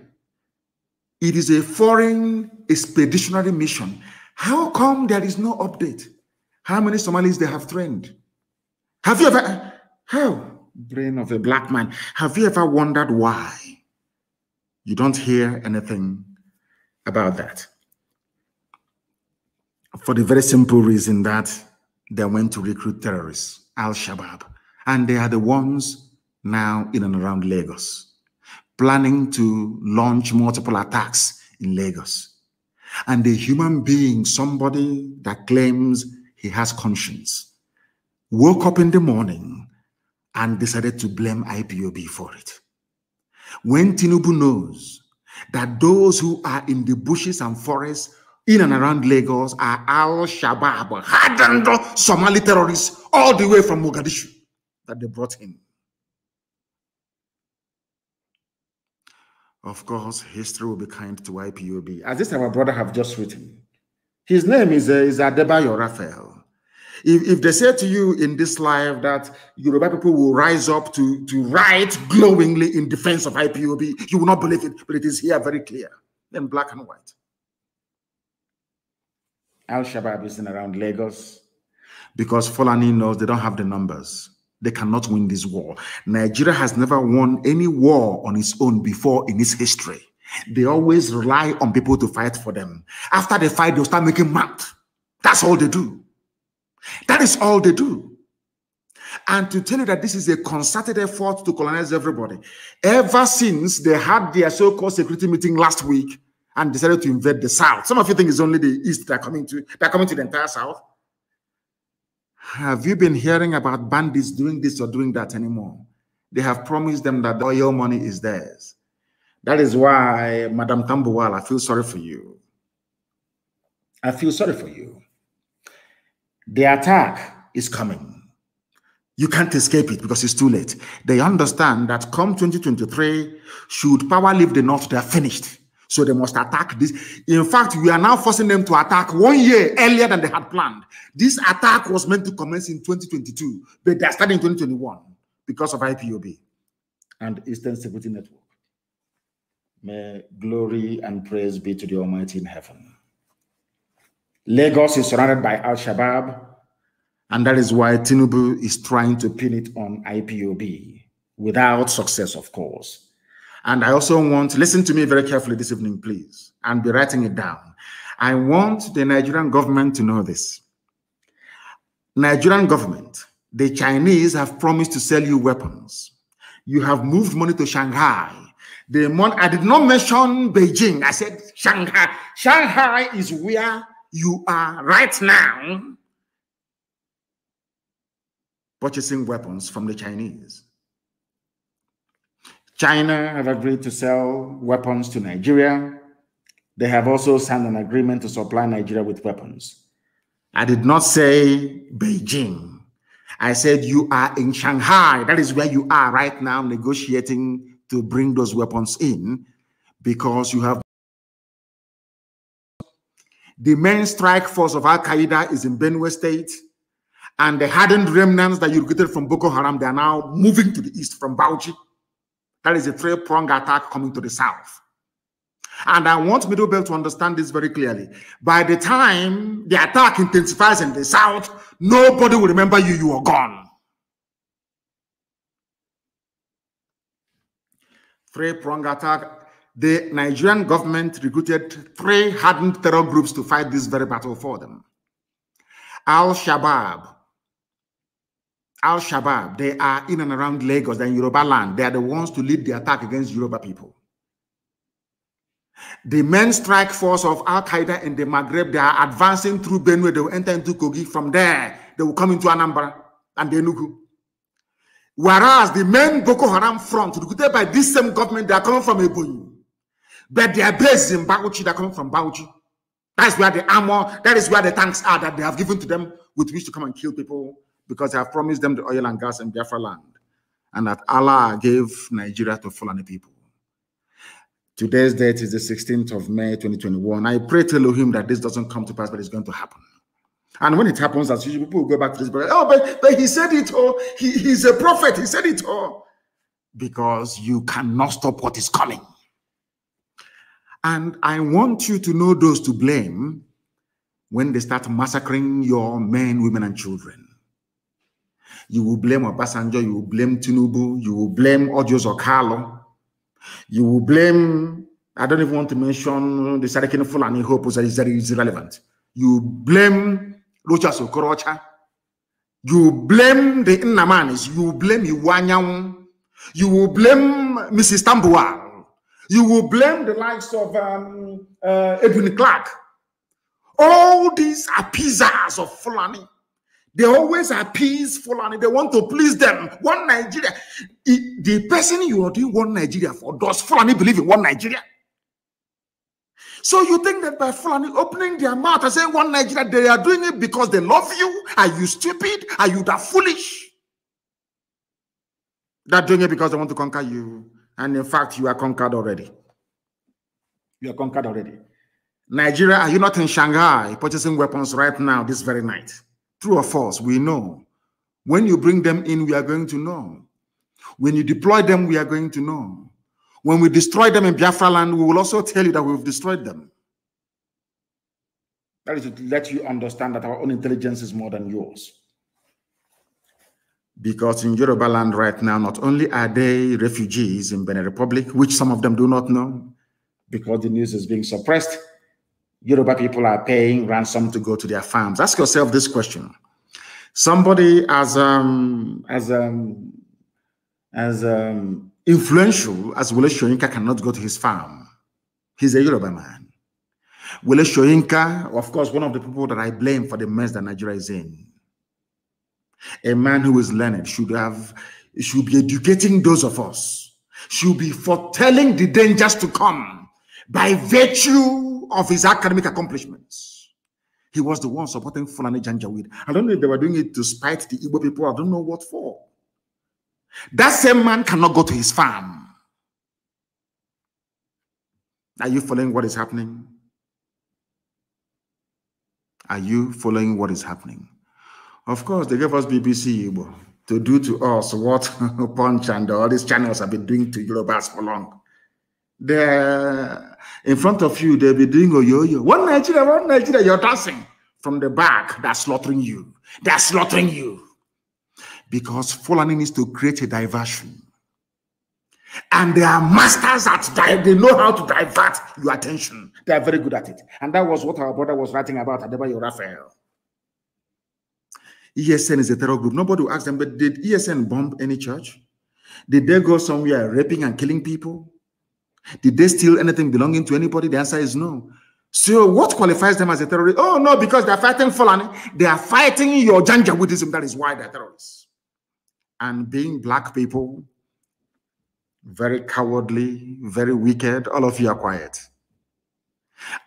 S3: it is a foreign expeditionary mission how come there is no update? How many Somalis they have trained? Have you ever, how, brain of a black man, have you ever wondered why you don't hear anything about that? For the very simple reason that they went to recruit terrorists, Al Shabaab, and they are the ones now in and around Lagos, planning to launch multiple attacks in Lagos and a human being, somebody that claims he has conscience, woke up in the morning and decided to blame IPOB for it. When Tinubu knows that those who are in the bushes and forests in and around Lagos are Al Shabaab, hardened Somali terrorists all the way from Mogadishu that they brought him. Of course, history will be kind to IPUB, As this our brother have just written, his name is, uh, is Adebayo Raphael. If, if they say to you in this life that Yoruba people will rise up to, to write glowingly in defense of IPOB, you will not believe it, but it is here very clear in black and white. Al Shabaab isn't around Lagos because Fulani knows they don't have the numbers. They cannot win this war. Nigeria has never won any war on its own before in its history. They always rely on people to fight for them. After they fight, they'll start making mad. That's all they do. That is all they do. And to tell you that this is a concerted effort to colonize everybody. Ever since they had their so called security meeting last week and decided to invade the South, some of you think it's only the East that are coming to, that are coming to the entire South. Have you been hearing about bandits doing this or doing that anymore? They have promised them that all your money is theirs. That is why, Madam Tambuwal, I feel sorry for you. I feel sorry for you. The attack is coming. You can't escape it because it's too late. They understand that come 2023, should power leave the North, they are finished. So they must attack this. In fact, we are now forcing them to attack one year earlier than they had planned. This attack was meant to commence in 2022, but they are starting in 2021 because of IPOB and Eastern Security Network. May glory and praise be to the Almighty in heaven. Lagos is surrounded by Al Shabaab, and that is why Tinubu is trying to pin it on IPOB without success, of course. And I also want, listen to me very carefully this evening, please, and be writing it down. I want the Nigerian government to know this. Nigerian government, the Chinese have promised to sell you weapons. You have moved money to Shanghai. The money, I did not mention Beijing. I said Shanghai. Shanghai is where you are right now purchasing weapons from the Chinese. China have agreed to sell weapons to Nigeria. They have also signed an agreement to supply Nigeria with weapons. I did not say Beijing. I said you are in Shanghai. That is where you are right now negotiating to bring those weapons in because you have the main strike force of Al Qaeda is in Benue State, and the hardened remnants that you recruited from Boko Haram they are now moving to the east from Bauchi. That is a three-pronged attack coming to the south. And I want Middle Belt to understand this very clearly. By the time the attack intensifies in the south, nobody will remember you, you are gone. Three-pronged attack. The Nigerian government recruited three hardened terror groups to fight this very battle for them. Al-Shabaab, Al Shabaab, they are in and around Lagos and Yoruba land. They are the ones to lead the attack against Yoruba people. The main strike force of Al Qaeda in the Maghreb, they are advancing through Benue. They will enter into Kogi. From there, they will come into Anambra and Enugu. Whereas the main Boko Haram front, recruited by this same government, they are coming from Ebonyi. But they are based in Bauchi, they are coming from Bauchi. That's where the armor, that is where the tanks are that they have given to them with which to come and kill people because I promised them the oil and gas in Biafra land, and that Allah gave Nigeria to Fulani people. Today's date is the 16th of May 2021. I pray to Elohim that this doesn't come to pass, but it's going to happen. And when it happens, as usual, people will go back to this, but oh, but, but he said it all. Oh. He, he's a prophet. He said it all. Oh. Because you cannot stop what is coming. And I want you to know those to blame when they start massacring your men, women, and children. You will blame Obasanjo, you will blame Tinubu, you will blame Odios Okalo, you will blame, I don't even want to mention the Sarakin Fulani Hope, that is irrelevant. You blame or Okorocha, you blame the Innamanis, you blame Iwanyang, you will blame Mrs. Tambua, you will blame the likes of um, uh, Edwin Clark. All these are pizzas of Fulani. They always are peaceful and they want to please them. One Nigeria. The person you are doing one Nigeria for does Fulani believe in one Nigeria? So you think that by Fulani opening their mouth and saying one Nigeria, they are doing it because they love you? Are you stupid? Are you that foolish? They're doing it because they want to conquer you. And in fact, you are conquered already. You are conquered already. Nigeria, are you not in Shanghai purchasing weapons right now, this very night? True or false, we know. When you bring them in, we are going to know. When you deploy them, we are going to know. When we destroy them in Biafra land, we will also tell you that we've destroyed them. That is to let you understand that our own intelligence is more than yours. Because in Yoruba land right now, not only are they refugees in Benin Republic, which some of them do not know, because the news is being suppressed, Yoruba people are paying ransom to go to their farms. Ask yourself this question. Somebody as um, as um, as um, influential as Wole Soyinka cannot go to his farm. He's a Yoruba man. Wole Soyinka, of course, one of the people that I blame for the mess that Nigeria is in. A man who is learned should have should be educating those of us, should be foretelling the dangers to come by virtue of his academic accomplishments. He was the one supporting Fulani Janjaweed. I don't know if they were doing it to spite the Igbo people. I don't know what for. That same man cannot go to his farm. Are you following what is happening? Are you following what is happening? Of course, they gave us BBC Igbo to do to us what Punch and all these channels have been doing to Yorubas for long. They're in front of you, they'll be doing a yo-yo. One Nigeria, one Nigeria, you're dancing from the back. They're slaughtering you. They're slaughtering you. Because Fulani needs to create a diversion. And they are masters at that. They know how to divert your attention. They are very good at it. And that was what our brother was writing about, Adebayo Raphael. ESN is a terror group. Nobody will ask them, but did ESN bomb any church? Did they go somewhere raping and killing people? Did they steal anything belonging to anybody? The answer is no. So what qualifies them as a terrorist? Oh no, because they're fighting Fulani. They are fighting your Janjaweedism. That is why they're terrorists. And being black people, very cowardly, very wicked, all of you are quiet.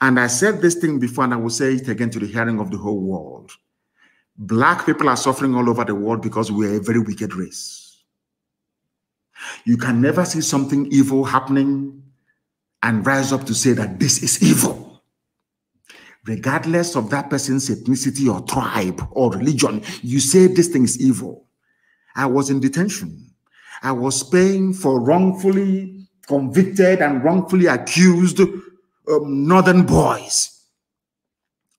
S3: And I said this thing before and I will say it again to the hearing of the whole world. Black people are suffering all over the world because we are a very wicked race. You can never see something evil happening and rise up to say that this is evil. Regardless of that person's ethnicity or tribe or religion, you say this thing is evil. I was in detention. I was paying for wrongfully convicted and wrongfully accused um, northern boys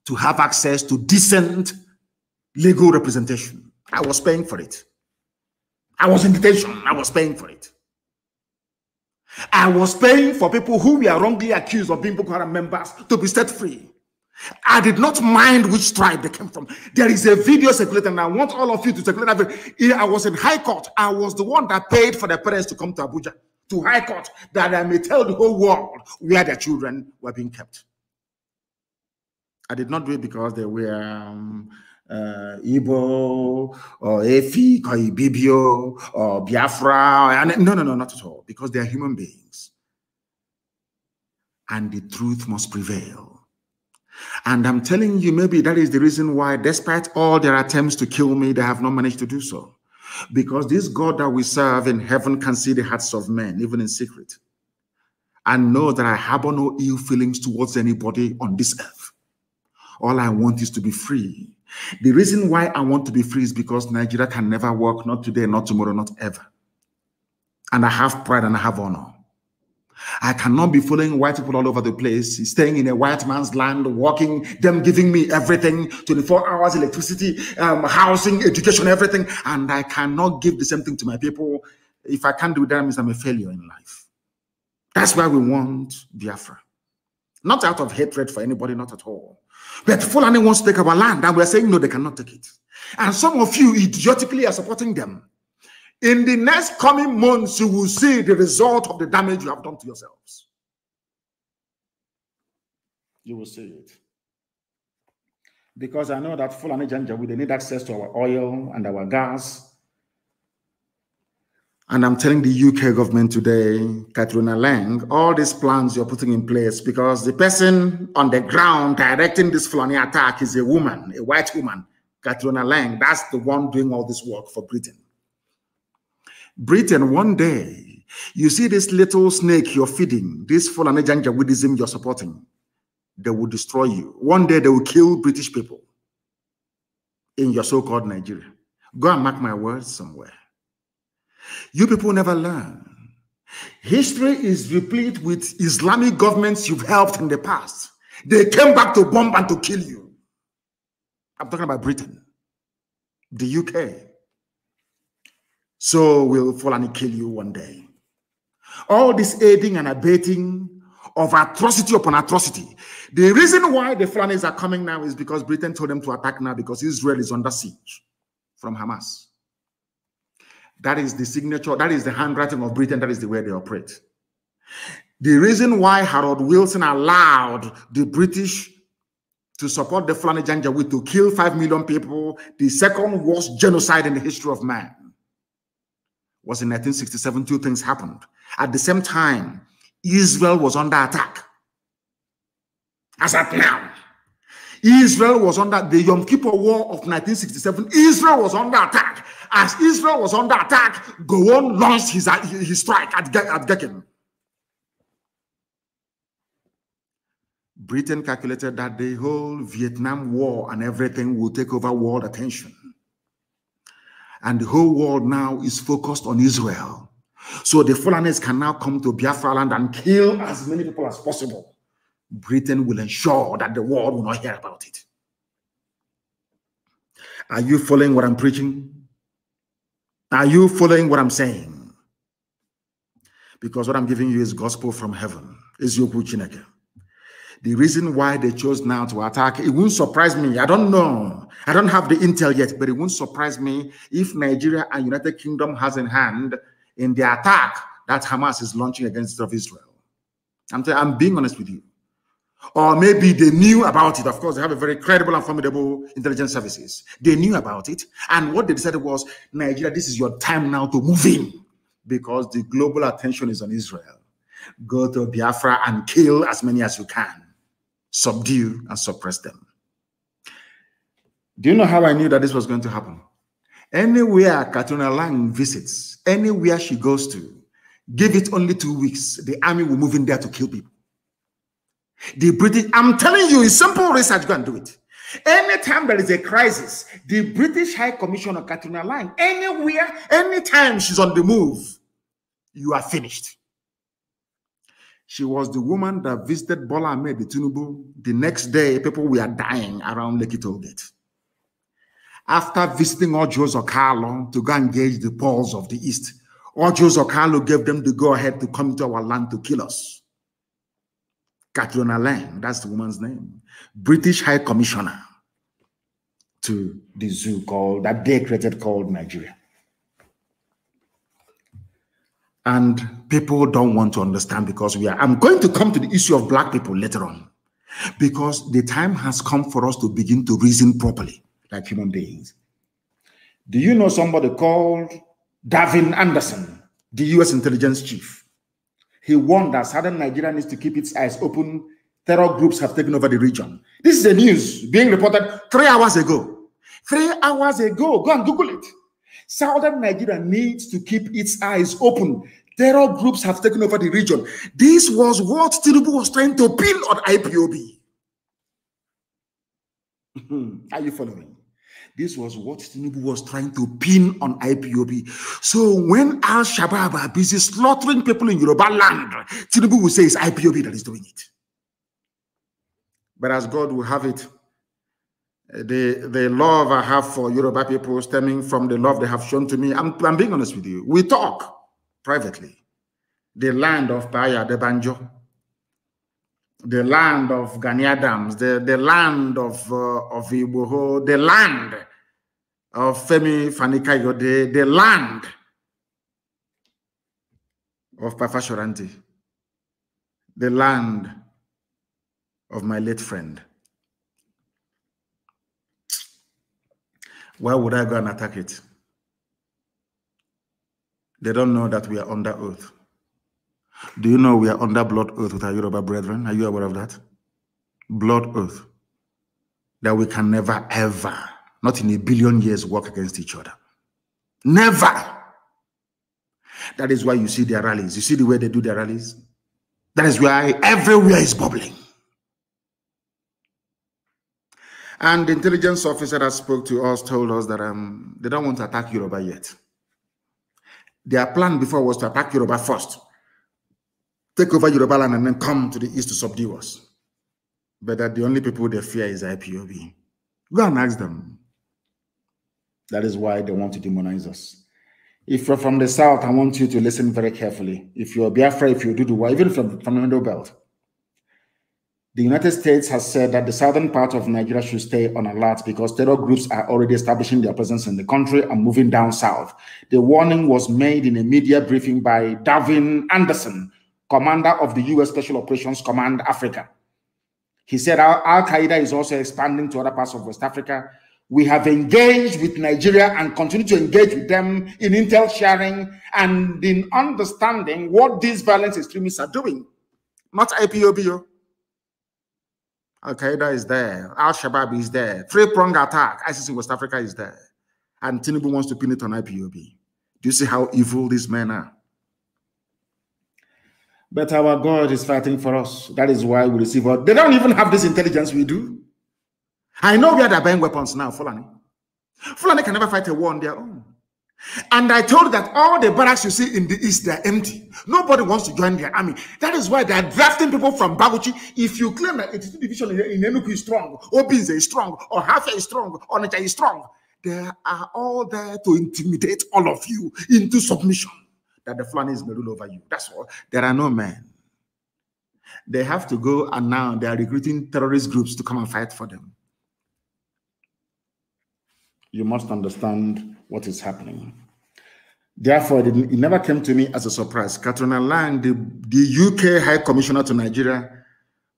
S3: to have access to decent legal representation. I was paying for it. I was in detention. I was paying for it. I was paying for people who were wrongly accused of being Boko Haram members to be set free. I did not mind which tribe they came from. There is a video circulating, and I want all of you to circulate that video. I was in High Court. I was the one that paid for the parents to come to Abuja, to High Court, that I may tell the whole world where their children were being kept. I did not do it because they were um, uh, Igbo or Efik or Ibibio or Biafra. Or, no, no, no, not at all, because they are human beings. And the truth must prevail. And I'm telling you, maybe that is the reason why, despite all their attempts to kill me, they have not managed to do so. Because this God that we serve in heaven can see the hearts of men, even in secret, and know that I harbor no ill feelings towards anybody on this earth. All I want is to be free the reason why I want to be free is because Nigeria can never work, not today, not tomorrow, not ever. And I have pride and I have honor. I cannot be following white people all over the place, staying in a white man's land, working, them giving me everything 24 hours, electricity, um, housing, education, everything. And I cannot give the same thing to my people. If I can't do that, means I'm a failure in life. That's why we want Biafra. Not out of hatred for anybody, not at all. But Fulani wants to take our land, and we're saying, no, they cannot take it. And some of you idiotically are supporting them. In the next coming months, you will see the result of the damage you have done to yourselves. You will see it. Because I know that Fulani Janjaweed, they need access to our oil and our gas and I'm telling the UK government today, Katrina Lang, all these plans you're putting in place because the person on the ground directing this felony attack is a woman, a white woman, Katrina Lang. That's the one doing all this work for Britain. Britain, one day, you see this little snake you're feeding, this Fulani Janjaweedism you're supporting, they will destroy you. One day, they will kill British people in your so-called Nigeria. Go and mark my words somewhere. You people never learn. History is replete with Islamic governments you've helped in the past. They came back to bomb and to kill you. I'm talking about Britain, the UK. So we'll fall and kill you one day. All this aiding and abating of atrocity upon atrocity. The reason why the Fulanis are coming now is because Britain told them to attack now because Israel is under siege from Hamas. That is the signature, that is the handwriting of Britain, that is the way they operate. The reason why Harold Wilson allowed the British to support the Flanagan Jawid to kill 5 million people, the second worst genocide in the history of man, was in 1967. Two things happened. At the same time, Israel was under attack. As at now, Israel was under the Yom Kippur War of 1967. Israel was under attack. As Israel was under attack, Gowon launched his, his strike at, at Gekken. Britain calculated that the whole Vietnam War and everything will take over world attention. And the whole world now is focused on Israel. So the foreigners can now come to Biafra land and kill as many people as possible. Britain will ensure that the world will not hear about it. Are you following what I'm preaching? Are you following what I'm saying? Because what I'm giving you is gospel from heaven. Is Yoku Chineke. The reason why they chose now to attack, it won't surprise me. I don't know. I don't have the intel yet, but it won't surprise me if Nigeria and United Kingdom has in hand in the attack that Hamas is launching against of Israel. I'm, I'm being honest with you. Or maybe they knew about it. Of course, they have a very credible and formidable intelligence services. They knew about it. And what they decided was, Nigeria, this is your time now to move in because the global attention is on Israel. Go to Biafra and kill as many as you can. Subdue and suppress them. Do you know how I knew that this was going to happen? Anywhere Katrina Lang visits, anywhere she goes to, give it only two weeks, the army will move in there to kill people. The British, I'm telling you, it's simple research, go and do it. Anytime there is a crisis, the British High Commissioner Katrina Lang, anywhere, anytime she's on the move, you are finished. She was the woman that visited Bola Ahmed Tinubu. The next day, people were dying around Lake Tolgate. After visiting Ojo Zokalo to go engage the poles of the East, Ojo Zokalo gave them the go-ahead to come to our land to kill us. Catriona Lang, that's the woman's name, British High Commissioner to the zoo called that they created called Nigeria. And people don't want to understand because we are. I'm going to come to the issue of black people later on because the time has come for us to begin to reason properly like human beings. Do you know somebody called Davin Anderson, the US intelligence chief? he warned that southern Nigeria needs to keep its eyes open. Terror groups have taken over the region. This is the news being reported three hours ago. Three hours ago. Go and Google it. Southern Nigeria needs to keep its eyes open. Terror groups have taken over the region. This was what Tinubu was trying to build on IPOB. Are you following? This was what Tinubu was trying to pin on IPOB. So when Al Shabaab are busy slaughtering people in Yoruba land, Tinubu will say it's IPOB that is doing it. But as God will have it, uh, the, the love I have for Yoruba people stemming from the love they have shown to me, I'm, I'm being honest with you. We talk privately. The land of Baya, the Banjo, the land of Ganiadams, the, the land of uh, of Igboho, the land of Femi Fanikayo, the land of Papa Shoranti, the land of my late friend. Why would I go and attack it? They don't know that we are under oath. Do you know we are under blood oath with our Yoruba brethren? Are you aware of that? Blood oath. That we can never, ever, not in a billion years, work against each other. Never. That is why you see their rallies. You see the way they do their rallies? That is why everywhere is bubbling. And the intelligence officer that spoke to us told us that um, they don't want to attack Yoruba yet. Their plan before was to attack Yoruba first take over Yoruba land and then come to the east to subdue us. But that the only people they fear is IPOB. Go and ask them. That is why they want to demonize us. If you're from the south, I want you to listen very carefully. If you're Biafra, if you're war, even from, from the Middle Belt, the United States has said that the southern part of Nigeria should stay on alert because terror groups are already establishing their presence in the country and moving down south. The warning was made in a media briefing by Davin Anderson, commander of the U.S. Special Operations Command Africa. He said Al Qaeda is also expanding to other parts of West Africa. We have engaged with Nigeria and continue to engage with them in intel sharing and in understanding what these violent extremists are doing, not IPOBO. Oh. Al Qaeda is there, Al Shabaab is there, three prong attack, ISIS in West Africa is there, and Tinubu wants to pin it on IPOB. Do you see how evil these men are? But our God is fighting for us. That is why we receive what they don't even have this intelligence we do. I know we are buying weapons now, Fulani. Fulani can never fight a war on their own. And I told that all the barracks you see in the east, they're empty. Nobody wants to join their army. That is why they're drafting people from Baguchi. If you claim that 82 division in Enugu is strong, Obinze is strong, or Hafia is strong, or Naja is strong, they are all there to intimidate all of you into submission that the Fulani is rule over you. That's all. There are no men. They have to go, and now they are recruiting terrorist groups to come and fight for them. You must understand what is happening. Therefore, it, it never came to me as a surprise. Katrina Lang, the, the UK High Commissioner to Nigeria,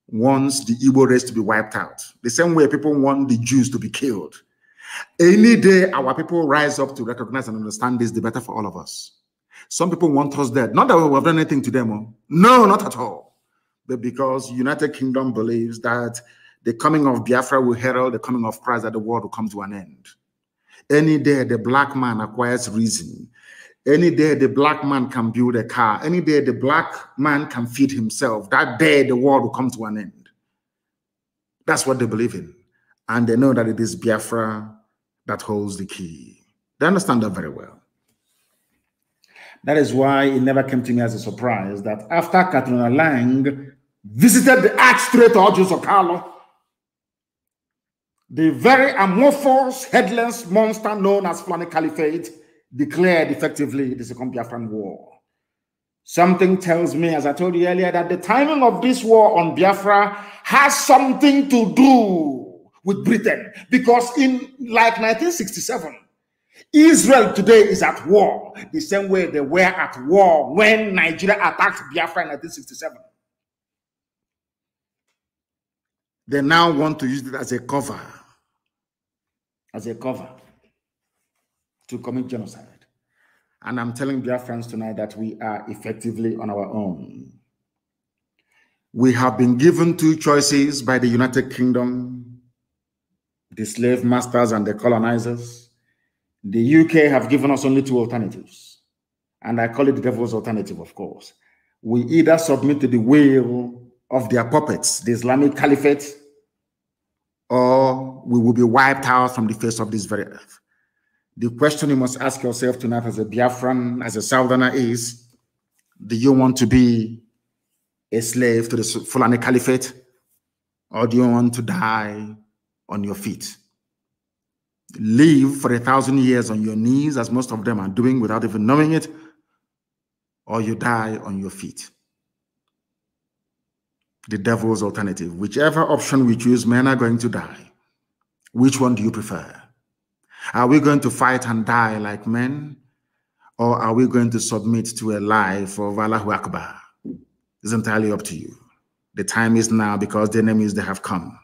S3: wants the Igbo race to be wiped out. The same way people want the Jews to be killed. Any day our people rise up to recognize and understand this, the better for all of us. Some people want us dead. Not that we have done anything to them. Oh. No, not at all. But because United Kingdom believes that the coming of Biafra will herald the coming of Christ, that the world will come to an end. Any day the black man acquires reason. Any day the black man can build a car. Any day the black man can feed himself. That day the world will come to an end. That's what they believe in. And they know that it is Biafra that holds the key. They understand that very well. That is why it never came to me as a surprise that after Katrina Lang visited the arch-traitor Joseph Carlo, the very amorphous, headless monster known as Fulani Caliphate declared effectively the Second Biafran War. Something tells me, as I told you earlier, that the timing of this war on Biafra has something to do with Britain. Because in like 1967, Israel today is at war the same way they were at war when Nigeria attacked Biafra in 1967. They now want to use it as a cover, as a cover to commit genocide. And I'm telling Biafrans tonight that we are effectively on our own. We have been given two choices by the United Kingdom, the slave masters and the colonizers the UK have given us only two alternatives, and I call it the devil's alternative, of course. We either submit to the will of their puppets, the Islamic Caliphate, or we will be wiped out from the face of this very earth. The question you must ask yourself tonight as a Biafran, as a Southerner, is do you want to be a slave to the Fulani Caliphate, or do you want to die on your feet? live for a thousand years on your knees, as most of them are doing without even knowing it, or you die on your feet. The devil's alternative. Whichever option we choose, men are going to die. Which one do you prefer? Are we going to fight and die like men? Or are we going to submit to a life of Allahu Akbar? It's entirely up to you. The time is now because the enemies they have come.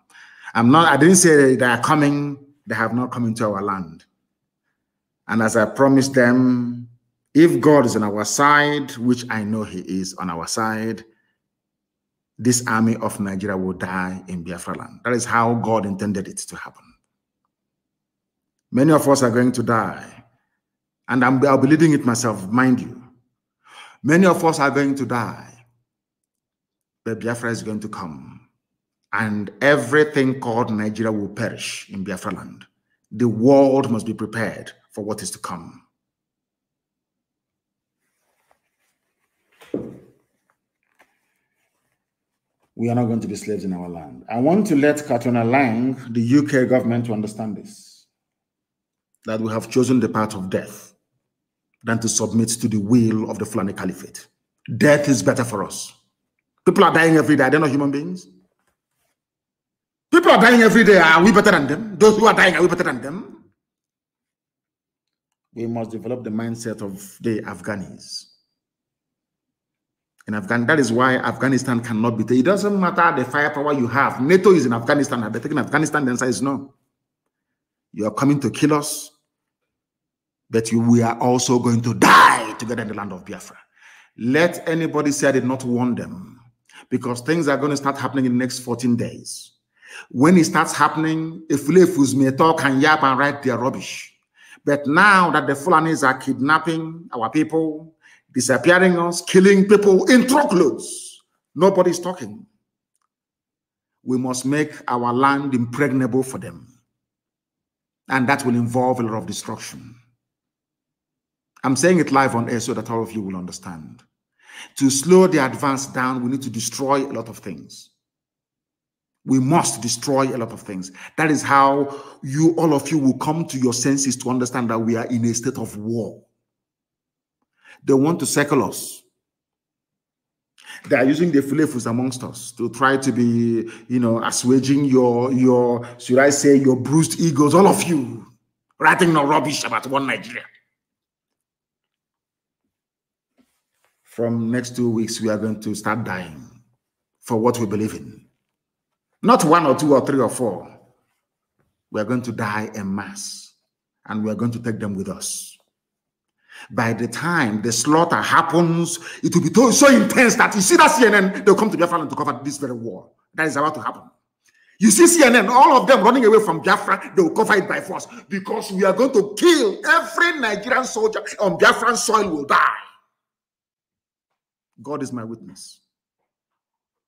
S3: I'm not, I didn't say they are coming they have not come into our land. And as I promised them, if God is on our side, which I know he is on our side, this army of Nigeria will die in Biafra land. That is how God intended it to happen. Many of us are going to die. And i will be leading it myself, mind you. Many of us are going to die. But Biafra is going to come and everything called Nigeria will perish in Biafra land. The world must be prepared for what is to come. We are not going to be slaves in our land. I want to let Katrina Lang, the UK government, to understand this. That we have chosen the path of death than to submit to the will of the Fulani Caliphate. Death is better for us. People are dying every day. They're not human beings. People are dying every day. Are we better than them? Those who are dying, are we better than them? We must develop the mindset of the Afghans. In Afghan, that is why Afghanistan cannot be. It doesn't matter the firepower you have. NATO is in Afghanistan. They're taking Afghanistan. The answer is no. You are coming to kill us, but you, we are also going to die together in the land of Biafra. Let anybody say I did not warn them, because things are going to start happening in the next 14 days. When it starts happening, if Fulefus may talk and yap and write their rubbish. But now that the Fulanis are kidnapping our people, disappearing us, killing people in truckloads, nobody's talking. We must make our land impregnable for them. And that will involve a lot of destruction. I'm saying it live on air so that all of you will understand. To slow the advance down, we need to destroy a lot of things. We must destroy a lot of things. That is how you, all of you, will come to your senses to understand that we are in a state of war. They want to circle us. They are using the flavors amongst us to try to be, you know, assuaging your, your, should I say, your bruised egos, all of you, writing no rubbish about one Nigeria. From next two weeks, we are going to start dying for what we believe in. Not one or two or three or four. We are going to die en mass and we are going to take them with us. By the time the slaughter happens, it will be so intense that you see that CNN, they'll come to Biafra to cover this very war. That is about to happen. You see CNN, all of them running away from Biafra, they will cover it by force because we are going to kill every Nigerian soldier on Biafran soil will die. God is my witness.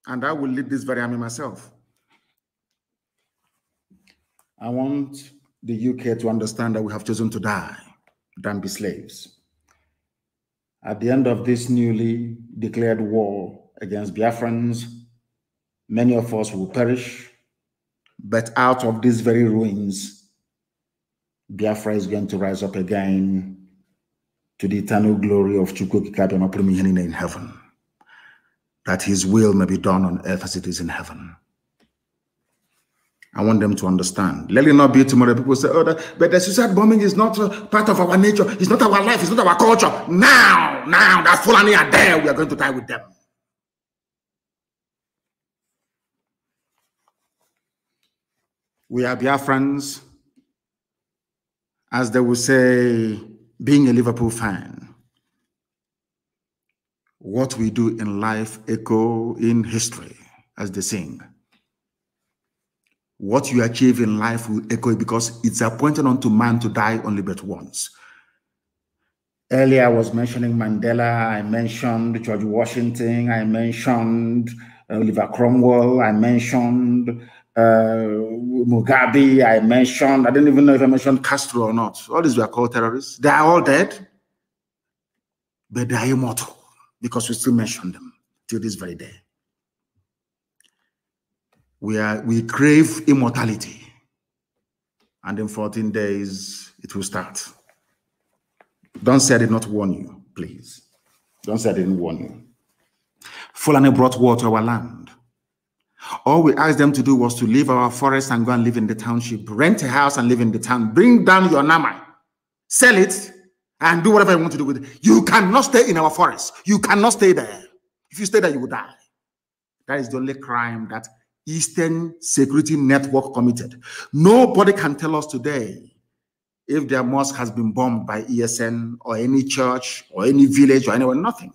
S3: And I will lead this very army myself. I want the UK to understand that we have chosen to die than be slaves. At the end of this newly declared war against Biafrans, many of us will perish, but out of these very ruins, Biafra is going to rise up again to the eternal glory of Chukwukikabiamapurumihinina in heaven, that his will may be done on earth as it is in heaven. I want them to understand. Let it not be tomorrow. People say, oh, that, but the suicide bombing is not uh, part of our nature. It's not our life. It's not our culture. Now, now that Fulani are there, we
S4: are going to die with them.
S3: We are Biafrans, as they will say, being a Liverpool fan. What we do in life echo in history, as they sing what you achieve in life will echo it because it's appointed unto man to die only but once. Earlier, I was mentioning Mandela, I mentioned George Washington, I mentioned uh, Oliver Cromwell, I mentioned uh, Mugabe, I mentioned, I don't even know if I mentioned Castro or not. All these were called terrorists. They are all dead, but they are immortal because we still mention them till this very day we are we crave immortality and in 14 days it will start don't say i did not warn you please don't say i didn't warn you fulani brought war to our land all we asked them to do was to leave our forest and go and live in the township rent a house and live in the town bring down your nama sell it and do whatever you want to do with it you cannot stay in our forest you cannot stay there if you stay there you will die that is the only crime that Eastern Security Network committed. Nobody can tell us today if their mosque has been bombed by ESN or any church or any village or anywhere, nothing.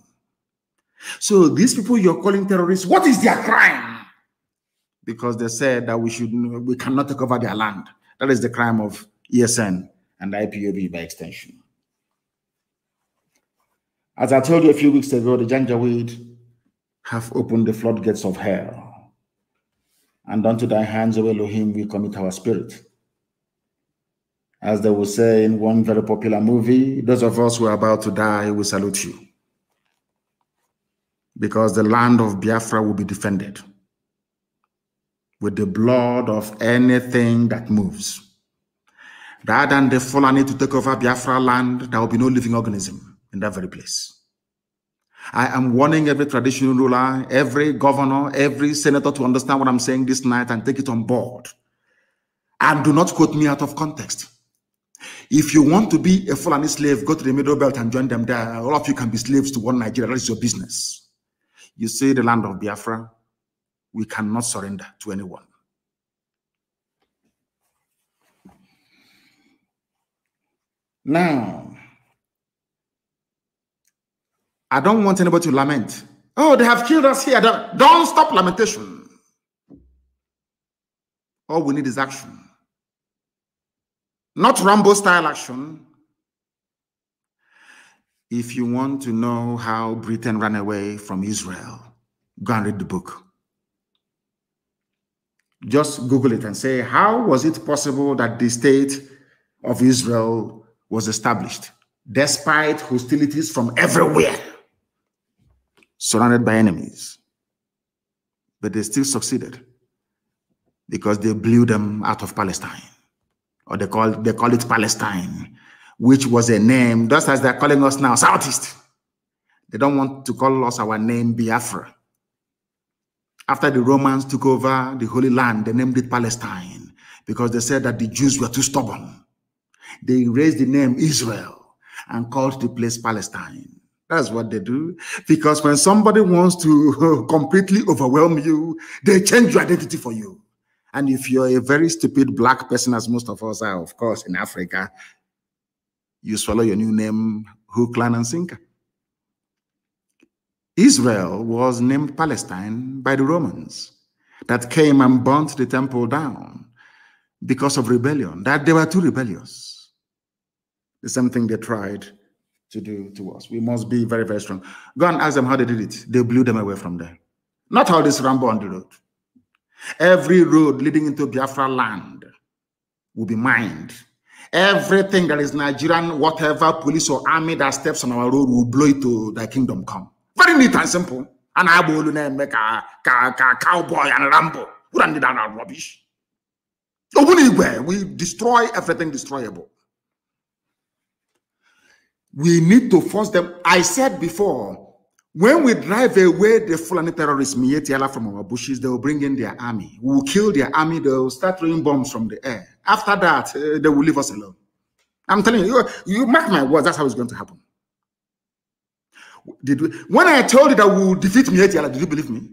S3: So these people you're calling terrorists, what is their crime? Because they said that we should we cannot take over their land. That is the crime of ESN and IPOB by extension. As I told you a few weeks ago, the Janjaweed have opened the floodgates of hell and unto thy hands, O Elohim, we commit our spirit. As they will say in one very popular movie, those of us who are about to die, we salute you. Because the land of Biafra will be defended with the blood of anything that moves. Rather than the Fulani to take over Biafra land, there will be no living organism in that very place. I am warning every traditional ruler, every governor, every senator to understand what I'm saying this night and take it on board. And do not quote me out of context. If you want to be a Fulani slave, go to the Middle Belt and join them there. All of you can be slaves to one Nigeria. That is your business. You see, the land of Biafra, we cannot surrender to anyone. Now, I don't want anybody to lament. Oh, they have killed us here. Don't stop lamentation. All we need is action. Not Rambo style action. If you want to know how Britain ran away from Israel, go and read the book. Just Google it and say, how was it possible that the state of Israel was established despite hostilities from everywhere? surrounded by enemies. But they still succeeded because they blew them out of Palestine. Or they call, they call it Palestine, which was a name, just as they're calling us now, Southeast. They don't want to call us our name Biafra. After the Romans took over the Holy Land, they named it Palestine because they said that the Jews were too stubborn. They erased the name Israel and called the place Palestine. That's what they do. Because when somebody wants to completely overwhelm you, they change your identity for you. And if you're a very stupid black person, as most of us are, of course, in Africa, you swallow your new name, hook, line, and sinker. Israel was named Palestine by the Romans that came and burnt the temple down because of rebellion, that they were too rebellious. The same thing they tried to do to us. We must be very, very strong. Go and ask them how they did it. They blew them away from there. Not all this rambo on the road. Every road leading into Biafra land will be mined. Everything that is Nigerian, whatever police or army that steps on our road will blow it to the kingdom come. Very neat and simple. And I will make a, a, a cowboy and rambo. Who done that rubbish? We destroy everything destroyable. We need to force them. I said before, when we drive away the Fulani terrorists, Mietiala, from our bushes, they will bring in their army. We will kill their army. They will start throwing bombs from the air. After that, uh, they will leave us alone. I'm telling you, you mark my words, that's how it's going to happen. Did we, when I told you that we will defeat Mietiala, did you believe me?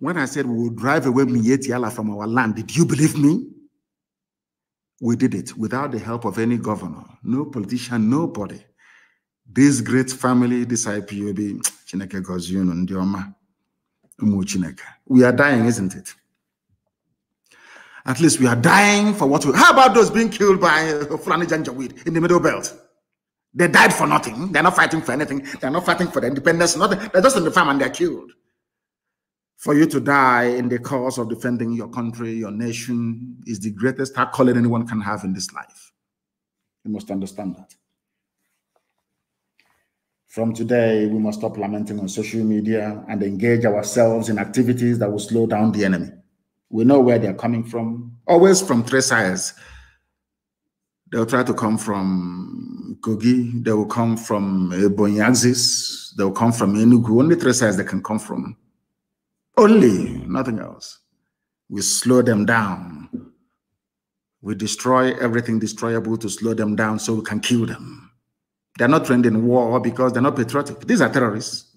S3: When I said we will drive away Mietiala from our land, did you believe me? we did it without the help of any governor, no politician, nobody. This great family, this IPOB, Chineke Chineke. We are dying, isn't it? At least we are dying for what we. How about those being killed by uh, Fulani Janjaweed in the Middle Belt? They died for nothing. They're not fighting for anything. They're not fighting for their independence. Nothing. They're just in the farm and they're killed for you to die in the cause of defending your country, your nation, is the greatest accolade anyone can have in this life. You must understand that. From today, we must stop lamenting on social media and engage ourselves in activities that will slow down the enemy. We know where they're coming from, always from three sides. They'll try to come from Kogi, they will come from Ebonyi they'll come from Enugu, only three sides they can come from only, nothing else. We slow them down. We destroy everything destroyable to slow them down so we can kill them. They're not trained in war because they're not patriotic. These are terrorists.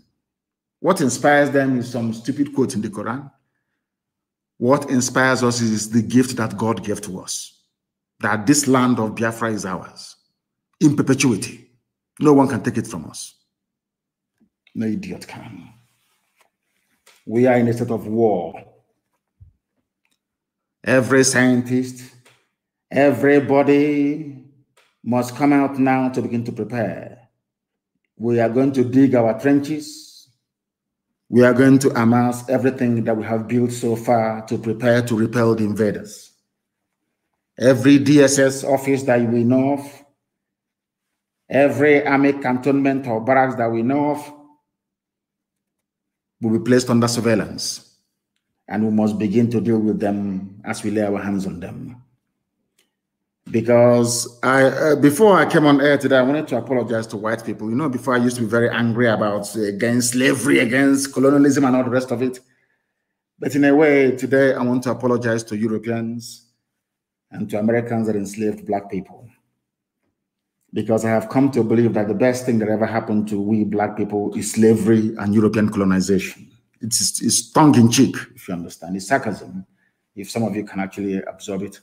S3: What inspires them is some stupid quote in the Quran. What inspires us is the gift that God gave to us. That this land of Biafra is ours in perpetuity. No one can take it from us. No idiot can we are in a state of war. Every scientist, everybody must come out now to begin to prepare. We are going to dig our trenches. We are going to amass everything that we have built so far to prepare to repel the invaders. Every DSS office that we know of, every army cantonment or barracks that we know of, will be placed under surveillance, and we must begin to deal with them as we lay our hands on them. Because I, uh, before I came on air today, I wanted to apologize to white people. You know, before I used to be very angry about uh, against slavery, against colonialism, and all the rest of it. But in a way, today I want to apologize to Europeans and to Americans that enslaved black people because I have come to believe that the best thing that ever happened to we black people is slavery and European colonization. It's, it's tongue in cheek, if you understand. It's sarcasm, if some of you can actually absorb it.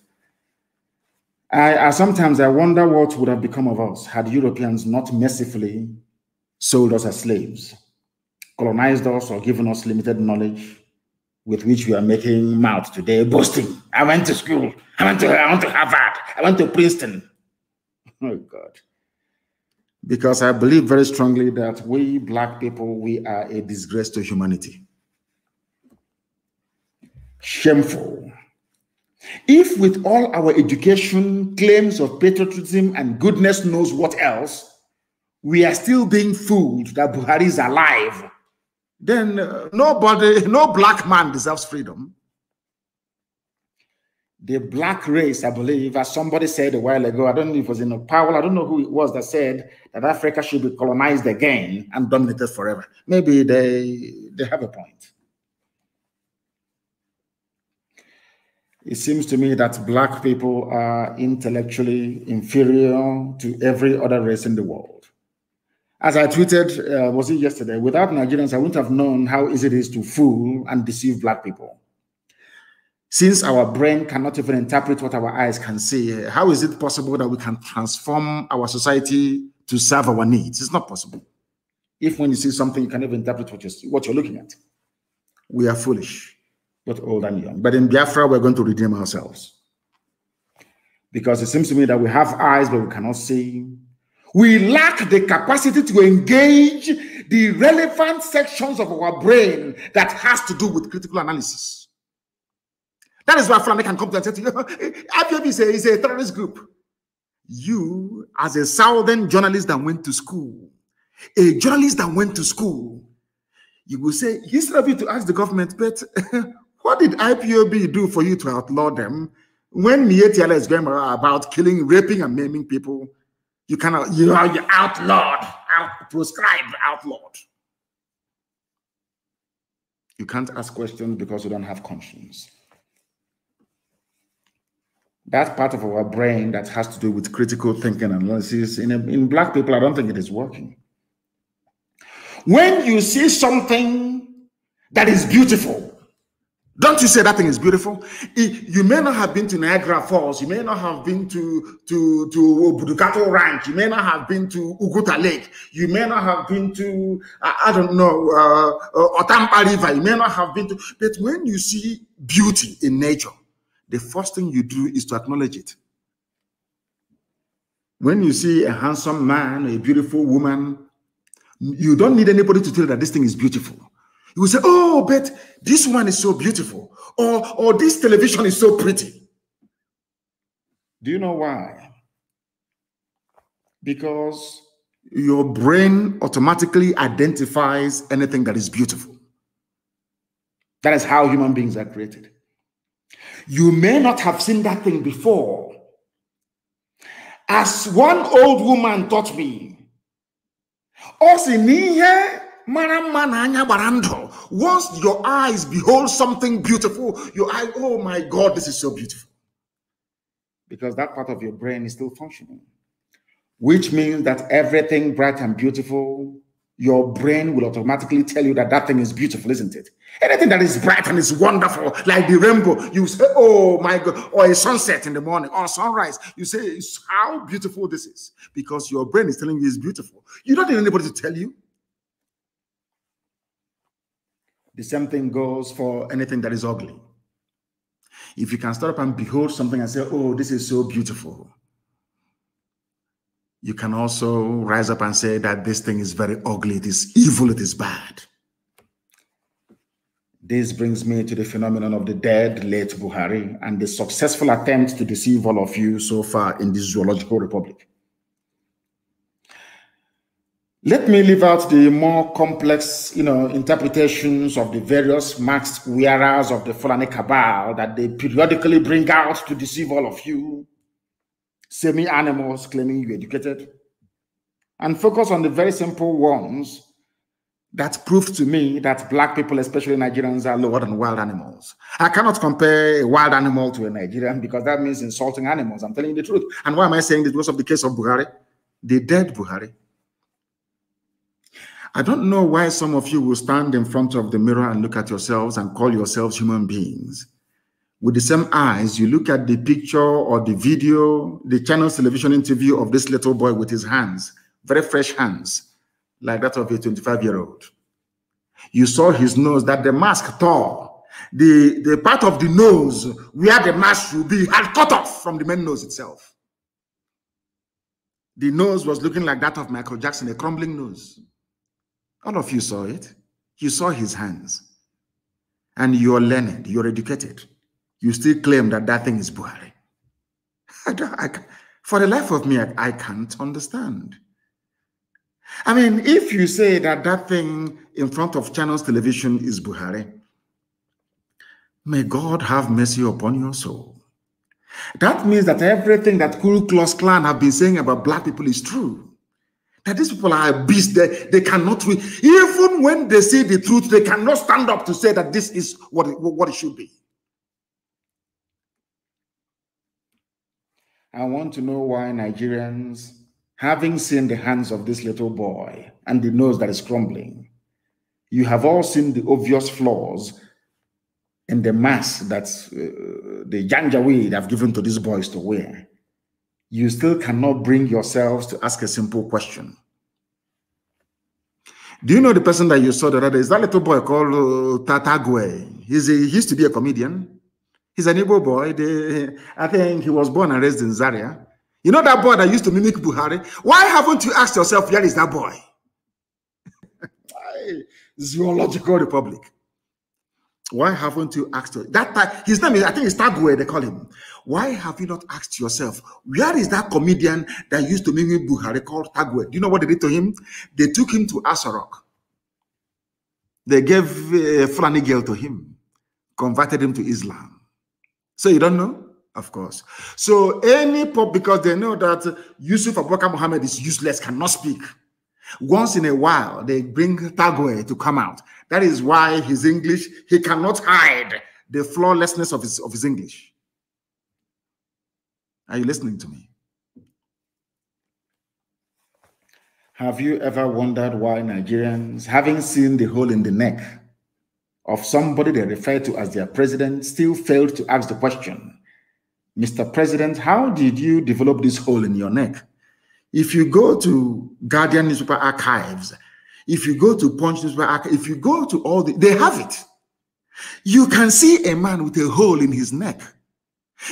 S3: I, I sometimes I wonder what would have become of us had Europeans not mercifully sold us as slaves, colonized us, or given us limited knowledge with which we are making mouth today, boasting. I went to school. I went to I went to Harvard. I went to Princeton. Oh, God. Because I believe very strongly that we black people, we are a disgrace to humanity. Shameful. If with all our education, claims of patriotism, and goodness knows what else, we are still being fooled that Buhari is alive, then uh, nobody, no black man deserves freedom the black race, I believe, as somebody said a while ago, I don't know if it was in a Powell, I don't know who it was that said that Africa should be colonized again and dominated forever. Maybe they they have a point. It seems to me that black people are intellectually inferior to every other race in the world. As I tweeted, uh, was it yesterday? Without Nigerians, I wouldn't have known how easy it is to fool and deceive black people since our brain cannot even interpret what our eyes can see, how is it possible that we can transform our society to serve our needs? It's not possible. If when you see something, you can never interpret what you're, what you're looking at. We are foolish, not old and young. But in Biafra, we're going to redeem ourselves. Because it seems to me that we have eyes, but we cannot see. We lack the capacity to engage the relevant sections of our brain that has to do with critical analysis that is why Fulani can come to and say to you, IPOB is a, is a terrorist group. You, as a southern journalist that went to school, a journalist that went to school, you will say, instead of you to ask the government, but what did IPOB do for you to outlaw them? When Mietiala is going about killing, raping, and maiming people, you cannot, you are you outlawed, out, proscribed, outlawed. You can't ask questions because you don't have conscience that part of our brain that has to do with critical thinking analysis in, a, in black people i don't think it is working when you see something that is beautiful don't you say that thing is beautiful it, you may not have been to niagara falls you may not have been to to to budukato ranch you may not have been to uguta lake you may not have been to i, I don't know uh, uh, otampa river you may not have been to but when you see beauty in nature the first thing you do is to acknowledge it. When you see a handsome man, a beautiful woman, you don't need anybody to tell you that this thing is beautiful. You will say, Oh, but this one is so beautiful, or, or this television is so pretty. Do you know why? Because your brain automatically identifies anything that is beautiful. That is how human beings are created. You may not have seen that thing before. As one old woman taught me, once your eyes behold something beautiful, your eye, oh my God, this is so beautiful. Because that part of your brain is still functioning, which means that everything bright and beautiful your brain will automatically tell you that that thing is beautiful, isn't it? Anything that is bright and is wonderful, like the rainbow, you say, oh my God, or a sunset in the morning or sunrise, you say, how beautiful this is because your brain is telling you it's beautiful. You don't need anybody to tell you. The same thing goes for anything that is ugly. If you can start up and behold something and say, oh, this is so beautiful, you can also rise up and say that this thing is very ugly, it is evil, it is bad. This brings me to the phenomenon of the dead late Buhari and the successful attempt to deceive all of you so far in this zoological republic. Let me leave out the more complex, you know, interpretations of the various masked wearers of the Fulani cabal that they periodically bring out to deceive all of you semi animals claiming you educated, and focus on the very simple ones that prove to me that black people, especially Nigerians, are lower than wild animals. I cannot compare a wild animal to a Nigerian because that means insulting animals. I'm telling you the truth. And why am I saying this? Because of the case of Buhari, the dead Buhari. I don't know why some of you will stand in front of the mirror and look at yourselves and call yourselves human beings with the same eyes, you look at the picture or the video, the channel television interview of this little boy with his hands, very fresh hands, like that of a 25 year old. You saw his nose, that the mask tore. The, the part of the nose where the mask should be had cut off from the main nose itself. The nose was looking like that of Michael Jackson, a crumbling nose. All of you saw it. You saw his hands. And you're learned, you're educated you still claim that that thing is Buhari. I I, for the life of me, I, I can't understand. I mean, if you say that that thing in front of channels television is Buhari, may God have mercy upon your soul. That means that everything that Ku Klux Klan have been saying about black people is true. That these people are a beast. They, they cannot, even when they see the truth, they cannot stand up to say that this is what, what it should be. I want to know why Nigerians, having seen the hands of this little boy and the nose that is crumbling, you have all seen the obvious flaws in the mask that uh, the janjaweed have given to these boys to wear. You still cannot bring yourselves to ask a simple question. Do you know the person that you saw the other day? Is that little boy called uh, Tatagwe? He's a, he used to be a comedian. He's an Igbo boy. I think he was born and raised in Zaria. You know that boy that used to mimic Buhari? Why haven't you asked yourself, where is that boy? Zoological Republic. Why haven't you asked that His name is, I think it's Tagwe, they call him. Why have you not asked yourself, where is that comedian that used to mimic Buhari called Tagwe? Do you know what they did to him? They took him to Asarok. They gave uh, eh, Flanny Girl to him, converted him to Islam. So you don't know? Of course. So any pop because they know that Yusuf Abubakar Muhammad is useless, cannot speak. Once in a while, they bring Tagoe to come out. That is why his English, he cannot hide the flawlessness of his, of his English. Are you listening to me? Have you ever wondered why Nigerians, having seen the hole in the neck, of somebody they refer to as their president still failed to ask the question Mr. President, how did you develop this hole in your neck? If you go to Guardian newspaper archives, if you go to Punch newspaper archives, if you go to all the, they have it. You can see a man with a hole in his neck.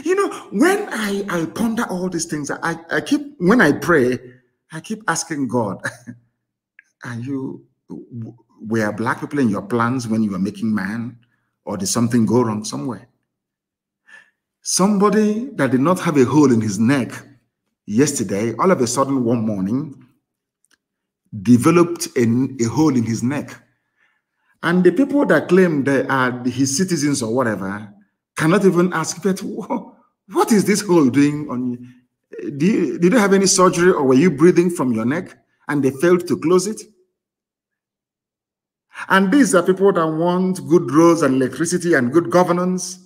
S3: You know, when I, I ponder all these things, I, I keep, when I pray, I keep asking God, are you, were black people in your plans when you were making man, or did something go wrong somewhere? Somebody that did not have a hole in his neck yesterday, all of a sudden one morning, developed a, a hole in his neck. And the people that claim they are his citizens or whatever cannot even ask, but what is this hole doing on you? you, did you have any surgery or were you breathing from your neck and they failed to close it? And these are people that want good roads and electricity and good governance.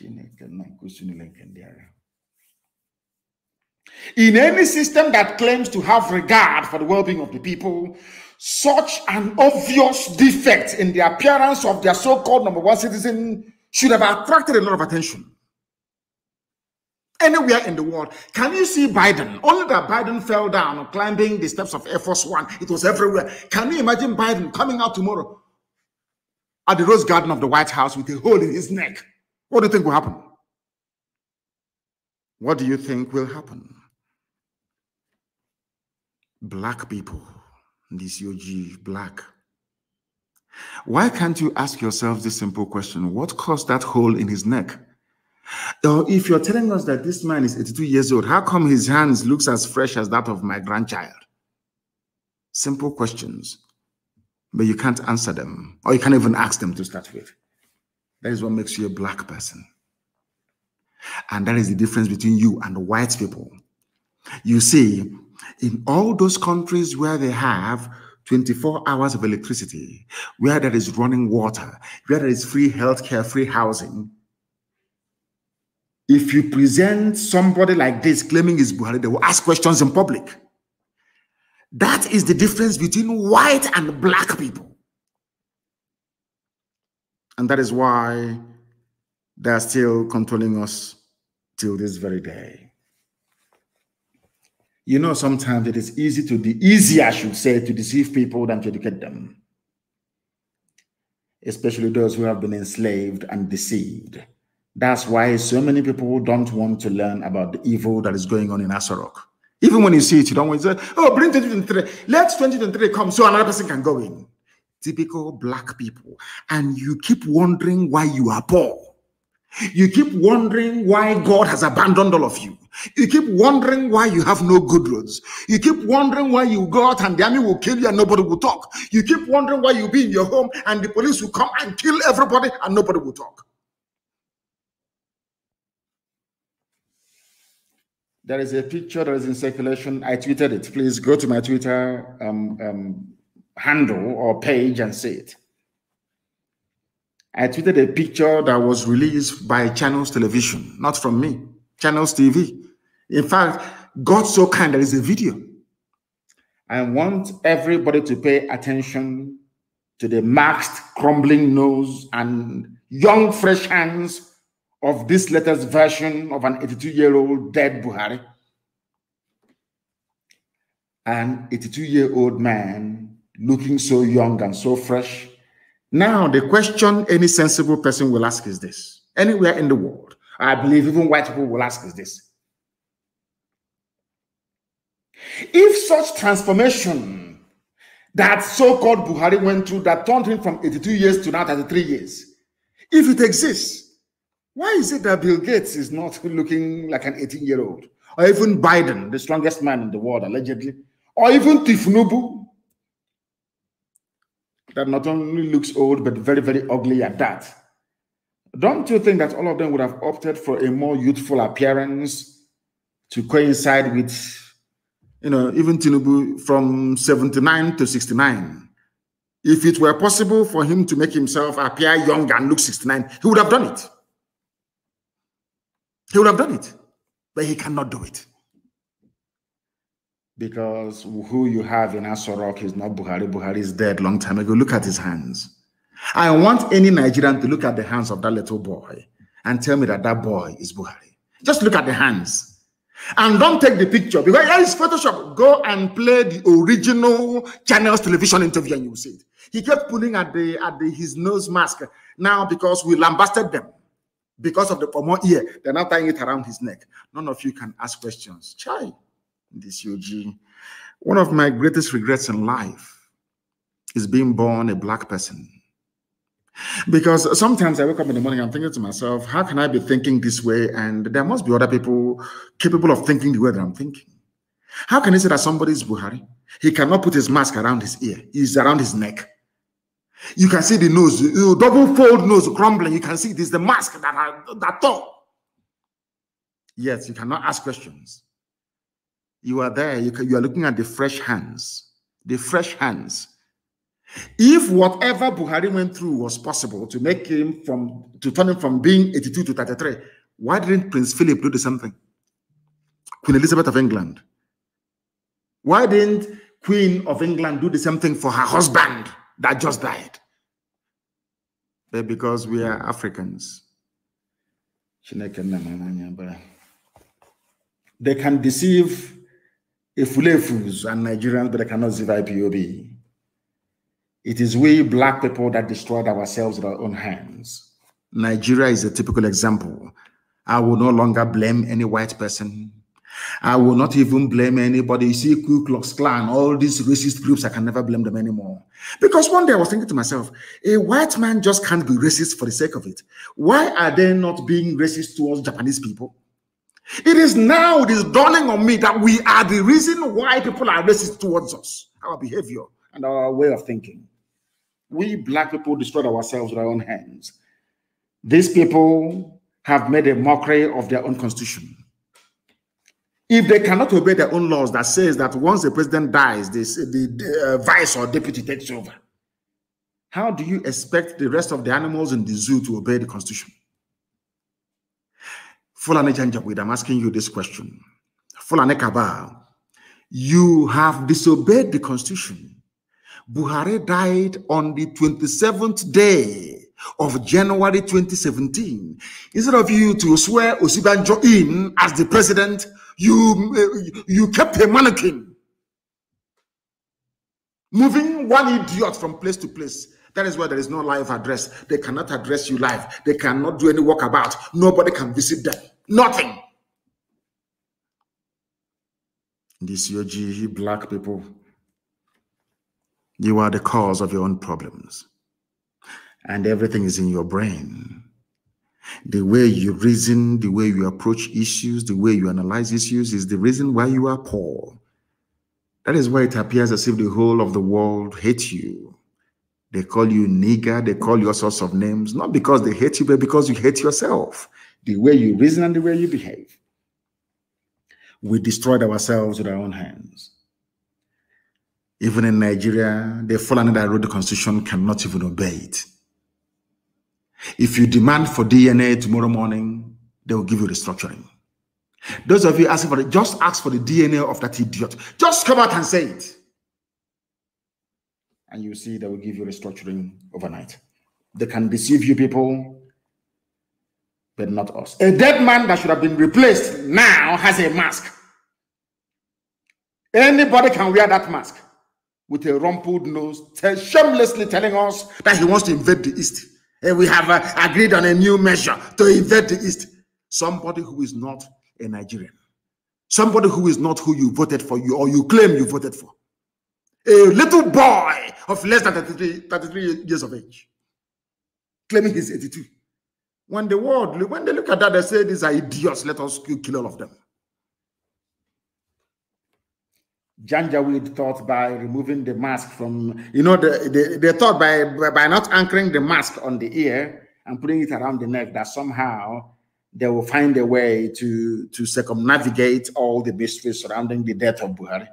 S3: In any system that claims to have regard for the well being of the people, such an obvious defect in the appearance of their so called number one citizen should have attracted a lot of attention anywhere in the world. Can you see Biden? Only that Biden fell down climbing the steps of Air Force One. It was everywhere. Can you imagine Biden coming out tomorrow at the Rose Garden of the White House with a hole in his neck? What do you think will happen? What do you think will happen? Black people, this OG, black. Why can't you ask yourself this simple question? What caused that hole in his neck? Or if you're telling us that this man is 82 years old, how come his hands looks as fresh as that of my grandchild? Simple questions, but you can't answer them, or you can't even ask them to start with. That is what makes you a black person. And that is the difference between you and white people. You see, in all those countries where they have 24 hours of electricity, where there is running water, where there is free healthcare, free housing, if you present somebody like this claiming his Buhari, they will ask questions in public. That is the difference between white
S4: and black people.
S3: And that is why they are still controlling us till this very day. You know, sometimes it is easy to be easier, I should say, to deceive people than to educate them, especially those who have been enslaved and deceived that's why so many people don't want to learn about the evil that is going on in Asarok. Even when you see it, you don't want to say, oh, bring 2023. Let 2023 come so another person can go in. Typical black people. And you keep wondering why you are poor. You keep wondering why God has abandoned all of you. You keep wondering why you have no good roads. You keep wondering why you go out and the army will kill you and nobody will talk. You keep wondering why you be in your home and the police will come and kill everybody and nobody will talk. There is a picture that is in circulation. I tweeted it. Please go to my Twitter um, um, handle or page and see it. I tweeted a picture that was released by Channels Television, not from me, Channels TV. In fact, God so kind, there is a video. I want everybody to pay attention to the maxed, crumbling nose and young, fresh hands of this latest version of an 82 year old dead Buhari. An 82 year old man looking so young and so fresh. Now, the question any sensible person will ask is this anywhere in the world, I believe even white people will ask is this if such transformation that so-called Buhari went through that turned him from 82 years to now 33 years, if it exists, why is it that Bill Gates is not looking like an 18 year old? Or even Biden, the strongest man in the world, allegedly? Or even Tifnubu, that not only looks old, but very, very ugly at that? Don't you think that all of them would have opted for a more youthful appearance to coincide with, you know, even Tinubu from 79 to 69? If it were possible for him to make himself appear young and look 69, he would have done it. He would have done it, but he cannot do it. Because who you have in Asorok is not Buhari. Buhari is dead long time ago. Look at his hands. I want any Nigerian to look at the hands of that little boy and tell me that that boy is Buhari. Just look at the hands. And don't take the picture because yeah, it's Photoshop. Go and play the original channel's television interview and you will see it. He kept pulling at the at the, his nose mask now because we lambasted them because of the former ear. They're now tying it around his neck. None of you can ask questions. Chai, this UG. One of my greatest regrets in life is being born a black person. Because sometimes I wake up in the morning, I'm thinking to myself, how can I be thinking this way? And there must be other people capable of thinking the way that I'm thinking. How can you say that somebody is Buhari? He cannot put his mask around his ear, he's around his neck. You can see the nose, you double fold nose crumbling. You can see it is the mask that I that tore. Yes, you cannot ask questions. You are there. You, can, you are looking at the fresh hands. The fresh hands. If whatever Buhari went through was possible to make him from to turn him from being 82 to 33, why didn't Prince Philip do the same thing? Queen Elizabeth of England. Why didn't Queen of England do the same thing for her husband? that just died. But because we are Africans, they can deceive Ifulefus and Nigerians, but they cannot deceive IPOB. It is we black people that destroyed ourselves with our own hands. Nigeria is a typical example. I will no longer blame any white person I will not even blame anybody. You see, Ku Klux Klan, all these racist groups, I can never blame them anymore. Because one day I was thinking to myself, a white man just can't be racist for the sake of it. Why are they not being racist towards Japanese people? It is now, it is dawning on me that we are the reason why people are racist towards us, our behavior and our way of thinking. We black people destroyed ourselves with our own hands. These people have made a mockery of their own constitution if they cannot obey their own laws that says that once the president dies, this, the, the uh, vice or deputy takes over, how do you expect the rest of the animals in the zoo to obey the constitution? Fulani Janjabwid, I'm asking you this question. Fulani Kabal, you have disobeyed the constitution. Buhari died on the 27th day of January 2017. Instead of you to swear Osibanjo in as the president you you kept a mannequin moving one idiot from place to place that is why there is no live address they cannot address you live they cannot do any work about. nobody can visit them nothing these UG black people you are the cause of your own problems and everything is in your brain the way you reason, the way you approach issues, the way you analyze issues is the reason why you are poor. That is why it appears as if the whole of the world hates you. They call you nigger, they call you all sorts of names, not because they hate you, but because you hate yourself, the way you reason and the way you behave. We destroyed ourselves with our own hands. Even in Nigeria, they fall under that road the constitution cannot even obey it. If you demand for DNA tomorrow morning, they will give you restructuring. Those of you asking for it, just ask for the DNA of that idiot. Just come out and say it. And you see they will give you restructuring overnight. They can deceive you people, but not us. A dead man that should have been replaced now has a mask. Anybody can wear that mask with a rumpled nose, shamelessly telling us that he wants to invade the East. And eh, we have uh, agreed on a new measure to invade the East. Somebody who is not a Nigerian, somebody who is not who you voted for you or you claim you voted for, a little boy of less than 33, 33 years of age, claiming he's 82. When the world, when they look at that, they say these are idiots, let us kill all of them. Janjaweed thought by removing the mask from, you know, the, the, they thought by, by not anchoring the mask on the ear and putting it around the neck that somehow they will find a way to, to circumnavigate all the mysteries surrounding the death of Buhari.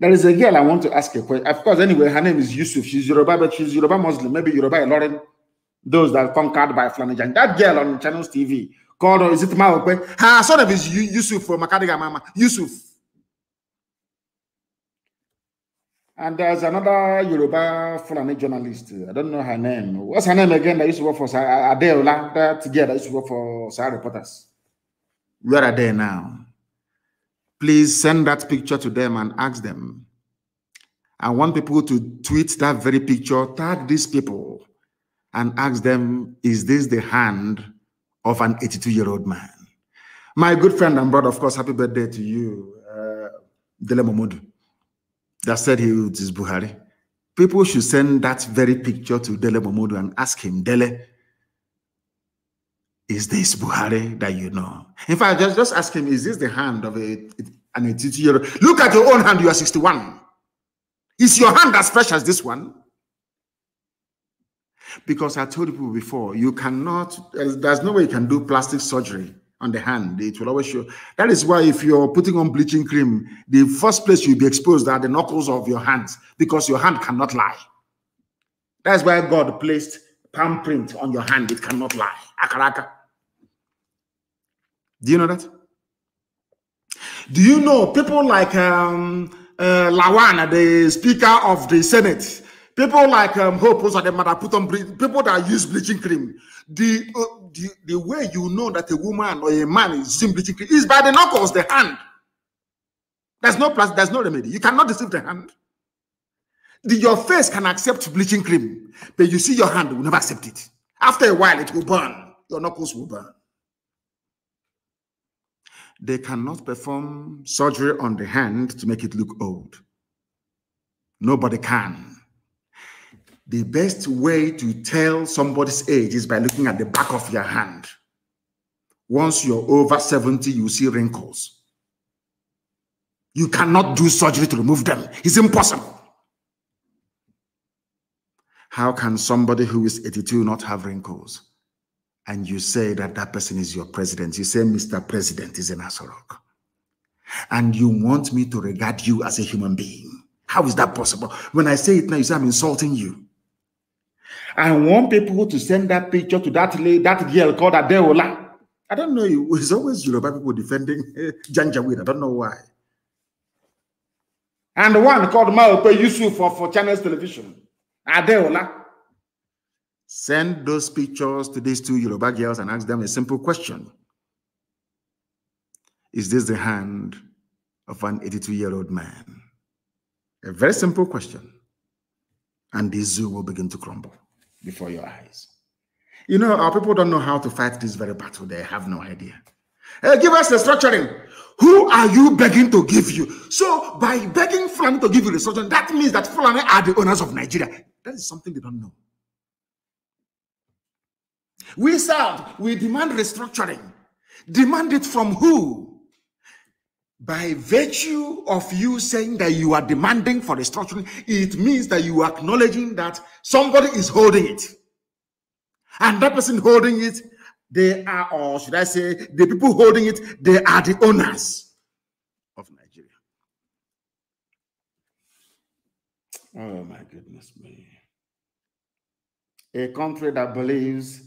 S3: There is a girl I want to ask a question. Of course, anyway, her name is Yusuf. She's Yoruba, but she's Yoruba Muslim, maybe Yoruba Lauren, those that conquered by Flanagan. That girl on Channels TV called, is it Maokwe? Her son of is Yusuf from Makadiga Mama. Yusuf. And there's another Yoruba Fulani journalist. I don't know her name. What's her name again? That used to work for Adeola. That together that used to work for Sahara Reporters. Where are they now? Please send that picture to them and ask them. I want people to tweet that very picture, tag these people, and ask them, is this the hand of an 82-year-old man? My good friend and brother, of course, happy birthday to you, uh, Dele Momodu that said he is Buhari, people should send that very picture to Dele Momodu and ask him, Dele, is this Buhari that you know? In fact, just, just ask him, is this the hand of a, an 82 year old? Look at your own hand, you are 61. Is your hand as fresh as this one? Because I told people before, you cannot, there's no way you can do plastic surgery on the hand. It will always show. That is why if you're putting on bleaching cream, the first place you'll be exposed are the knuckles of your hands because your hand cannot lie. That's why God placed palm print on your hand. It cannot lie. Akaraka. Do you know that? Do you know people like um, uh, Lawana, the Speaker of the Senate, People like um, Hope Osademada put on people that use bleaching cream. The, uh, the the way you know that a woman or a man is using bleaching cream is by the knuckles, the hand. There's no plus, there's no remedy. You cannot deceive the hand. The, your face can accept bleaching cream, but you see your hand will never accept it. After a while, it will burn. Your knuckles will burn. They cannot perform surgery on the hand to make it look old. Nobody can. The best way to tell somebody's age is by looking at the back of your hand. Once you're over 70, you see wrinkles. You cannot do surgery to remove them. It's impossible. How can somebody who is 82 not have wrinkles? And you say that that person is your president. You say Mr. President is an Asorok. And you want me to regard you as a human being. How is that possible? When I say it now, you say I'm insulting you. I want people to send that picture to that lady, that girl called Adeola. I don't know. It's always Yoruba people defending Janjaweed. I don't know why. And the one called Maope Yusuf for, for Channels Television, Adeola. Send those pictures to these two Yoruba girls and ask them a simple question. Is this the hand of an 82-year-old man? A very simple question. And this zoo will begin to crumble before your eyes. You know, our people don't know how to fight this very battle. They have no idea. Hey, give us the structuring. Who are you begging to give you? So, by begging Fulani to give you the structuring, that means that Fulani are the owners of Nigeria. That is something they don't know. We serve. we demand restructuring. Demand it from who? by virtue of you saying that you are demanding for restructuring, it means that you are acknowledging that somebody is holding it. And that person holding it, they are, or should I say, the people holding it, they are the owners of Nigeria. Oh my goodness me. A country that believes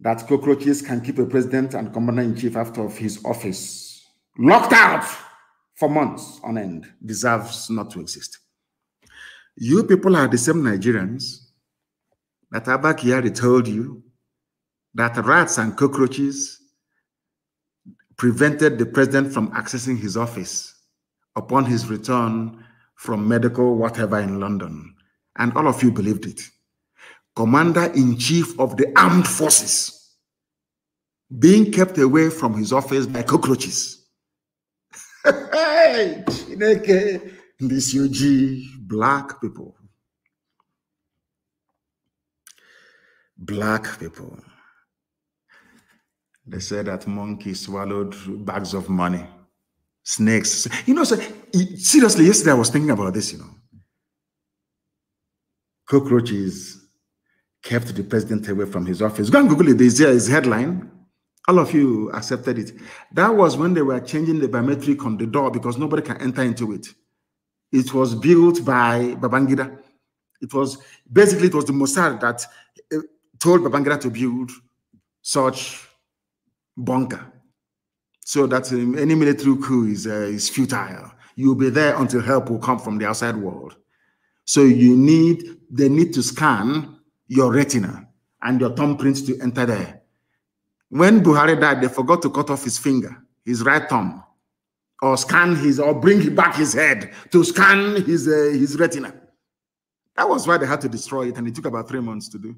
S3: that cockroaches can keep a president and commander in chief after of his office locked out for months on end deserves not to exist. You people are the same Nigerians that They told you that rats and cockroaches prevented the president from accessing his office upon his return from medical whatever in London. And all of you believed it. Commander-in-chief of the armed forces being kept away from his office by cockroaches Chineke this UG black people black people they said that monkeys swallowed bags of money snakes you know so, seriously yesterday i was thinking about this you know cockroaches kept the president away from his office go and google it there's his headline all of you accepted it. That was when they were changing the biometric on the door because nobody can enter into it. It was built by Babangida. It was basically it was the Mossad that eh, told Babangida to build such bunker. So that um, any military coup is uh, is futile. You'll be there until help will come from the outside world. So you need they need to scan your retina and your thumbprints to enter there when Buhari died, they forgot to cut off his finger, his right thumb, or scan his, or bring back his head to scan his, uh, his retina. That was why they had to destroy it, and it took about three months to do.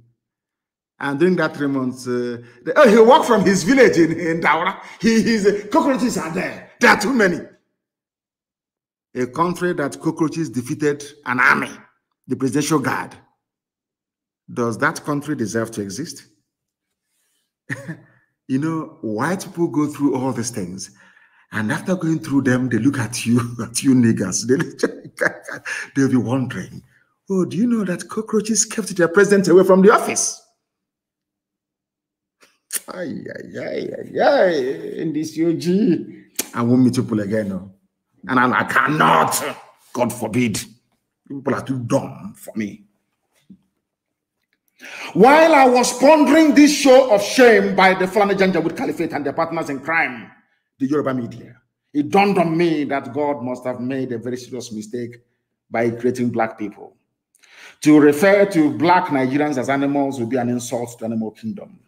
S3: And during that three months, uh, they, oh, he walked from his village in, in Daura. He, his uh, cockroaches are there. There are too many. A country that cockroaches defeated an army, the presidential guard. Does that country deserve to exist? You know, white people go through all these things. And after going through them, they look at you, at you niggers. They'll be wondering, oh, do you know that cockroaches kept their president away from the office? Ay, ay, ay, ay, ay, in this UG. I won't meet people again. No. Oh. And I, I cannot, God forbid. People are too dumb for me. While I was pondering this show of shame by the Fulani with Caliphate and their partners in crime, the Yoruba media, it dawned on me that God must have made a very serious mistake by creating black people. To refer to black Nigerians as animals would be an insult to animal kingdom.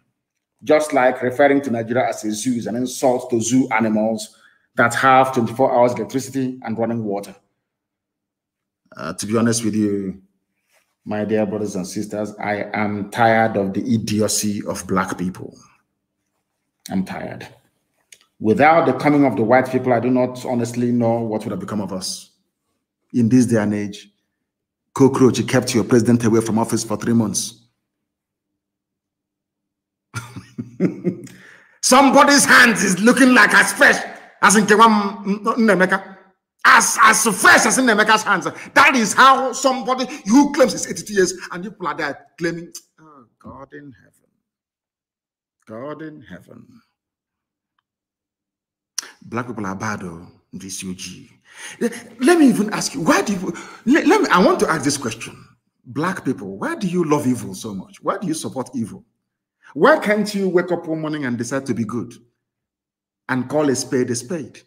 S3: Just like referring to Nigeria as a zoo is an insult to zoo animals that have 24 hours electricity and running water. Uh, to be honest with you, my dear brothers and sisters, I am tired of the idiocy of black people. I'm tired. Without the coming of the white people, I do not honestly know what would have become of us. In this day and age, cockroach kept your president away from office for three months. Somebody's hands is looking like as fresh as in Kewam Nemeka as as fresh as in the maker's hands. That is how somebody who claims he's 82 years and you people are there claiming, oh, God in heaven, God in heaven. Black people are bad, oh, this UG. Let me even ask you, why do you, let, let me, I want to ask this question. Black people, why do you love evil so much? Why do you support evil? Why can't you wake up one morning and decide to be good and call a spade a spade?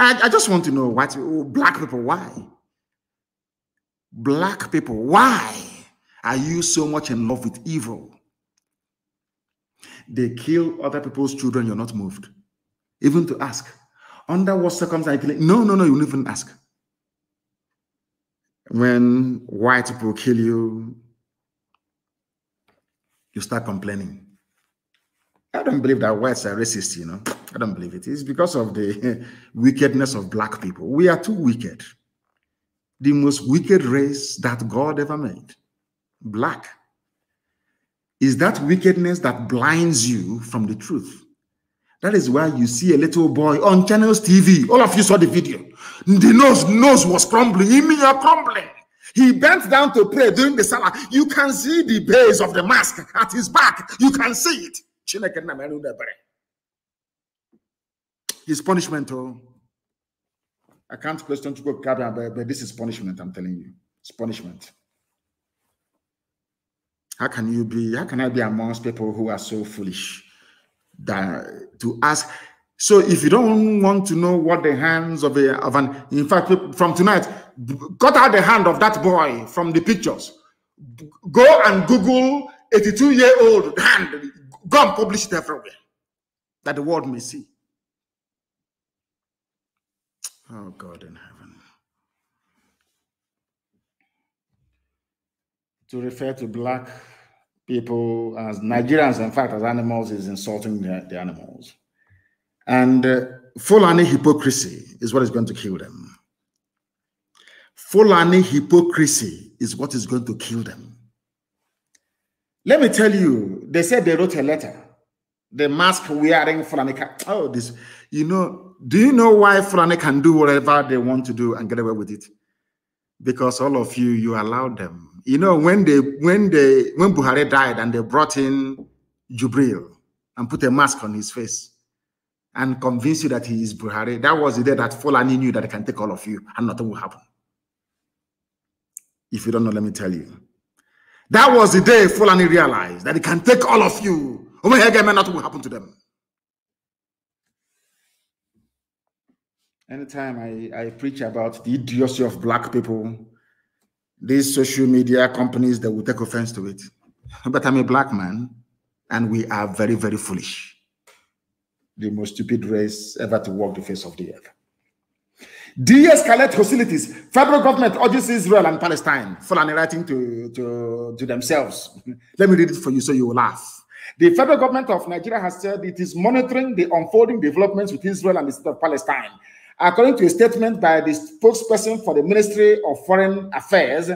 S3: I, I just want to know what black people, why? Black people, why are you so much in love with evil? They kill other people's children, you're not moved. Even to ask, under what circumstances? No, no, no, you don't even ask. When white people kill you, you start complaining. I don't believe that whites are racist, you know. I don't believe it. It's because of the wickedness of black people. We are too wicked. The most wicked race that God ever made. Black. Is that wickedness that blinds you from the truth? That is why you see a little boy on channels TV. All of you saw the video. The nose, nose was crumbling. He are crumbling. He bent down to pray during the salah. You can see the base of the mask at his back. You can see it. His punishment, oh. I can't question to go cabin, but, but this is punishment, I'm telling you. It's punishment. How can you be, how can I be amongst people who are so foolish that to ask? So if you don't want to know what the hands of a of an in fact from tonight, cut out the hand of that boy from the pictures. Go and Google 82 year old hand. Go and publish it everywhere that the world may see. Oh, God in heaven. To refer to black people as Nigerians, in fact, as animals, is insulting the, the animals. And uh, Fulani hypocrisy is what is going to kill them. Fulani hypocrisy is what is going to kill them. Let me tell you, they said they wrote a letter. The mask wearing Fulani. Oh, this, you know, do you know why Fulani can do whatever they want to do and get away with it? Because all of you, you allowed them. You know, when they when they when Buhari died and they brought in Jubril and put a mask on his face and convinced you that he is Buhari, that was the day that Fulani knew that he can take all of you and nothing will happen. If you don't know, let me tell you. That was the day Fulani realized that he can take all of you. Over here, nothing will happen to them. anytime I, I preach about the idiocy of black people, these social media companies that will take offense to it. But I'm a black man, and we are very, very foolish. The most stupid race ever to walk the face of the earth. De-escalate hostilities. Federal government urges Israel and Palestine. Fulani writing to, to, to themselves. Let me read it for you so you will laugh. The federal government of Nigeria has said it is monitoring the unfolding developments with Israel and the state of Palestine According to a statement by the spokesperson for the Ministry of Foreign Affairs,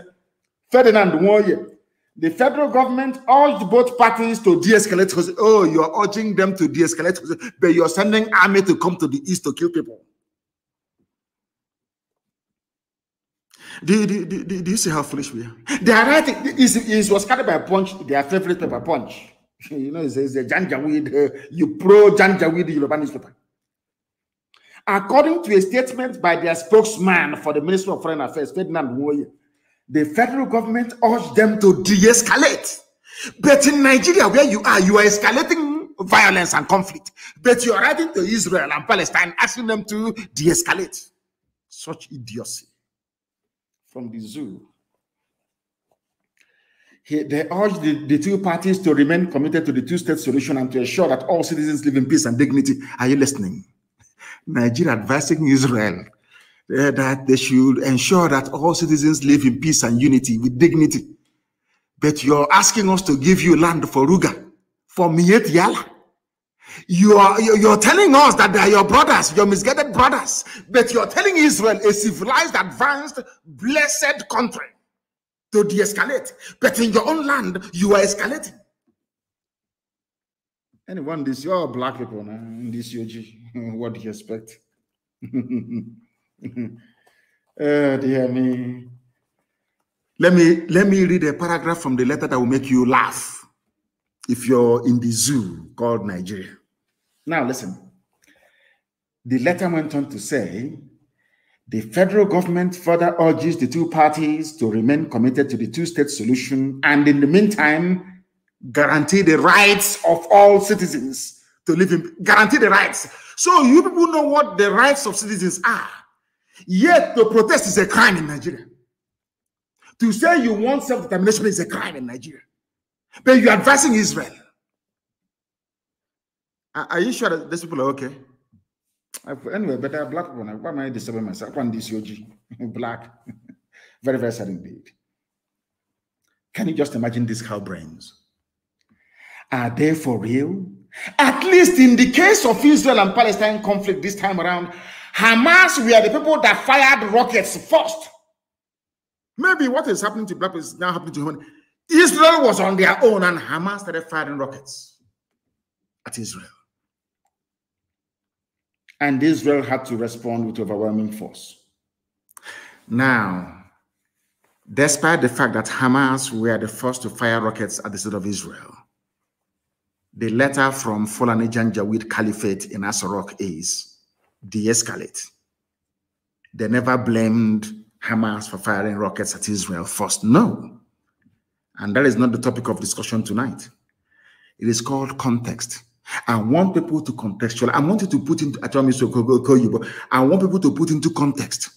S3: Ferdinand Nwoye, the federal government urged both parties to de-escalate. Oh, you're urging them to de-escalate, but you're sending army to come to the east to kill people. Do, do, do, do you see how foolish we are? The writing is, is was carried by Punch, their favorite paper, Punch. you know, it's, it's a Janjaweed, uh, you pro-Janjaweed Yoruba newspaper. According to a statement by their spokesman for the Ministry of Foreign Affairs, Ferdinand Nwoye, the federal government urged them to de-escalate. But in Nigeria, where you are, you are escalating violence and conflict. But you are writing to Israel and Palestine, asking them to de-escalate. Such idiocy from the zoo. He, they urged the, the two parties to remain committed to the two-state solution and to ensure that all citizens live in peace and dignity. Are you listening? Nigeria advising Israel uh, that they should ensure that all citizens live in peace and unity with dignity. But you're asking us to give you land for Ruga, for Miet Yala. You are you're telling us that they are your brothers, your misguided brothers, but you're telling Israel, a civilized, advanced, blessed country, to de-escalate. But in your own land, you are escalating. Anyone, this your black people in this UG. what do you expect? Eh, dear me. Let me let me read a paragraph from the letter that will make you laugh if you're in the zoo called Nigeria. Now listen. The letter went on to say the federal government further urges the two parties to remain committed to the two state solution and, in the meantime, guarantee the rights of all citizens to live in, guarantee the rights so you people know what the rights of citizens are. Yet to protest is a crime in Nigeria. To say you want self-determination is a crime in Nigeria. But you're advising Israel. Are, are you sure that these people are okay? Anyway, but I'm black one. Why am I disturbing myself? on this OG, black. very, very sad indeed. Can you just imagine these cow brains? Are they for real? At least in the case of Israel and Palestine conflict this time around, Hamas were the people that fired rockets first. Maybe what is happening to black people is now happening to human. Israel was on their own and Hamas started firing rockets at Israel. And Israel had to respond with overwhelming force. Now, despite the fact that Hamas were the first to fire rockets at the state of Israel, the letter from Fulani Janjaweed Caliphate in Asarok is de-escalate. They never blamed Hamas for firing rockets at Israel first. No. And that is not the topic of discussion tonight. It is called context. I want people to contextual. I want you to put into, I you, but I want people to put into context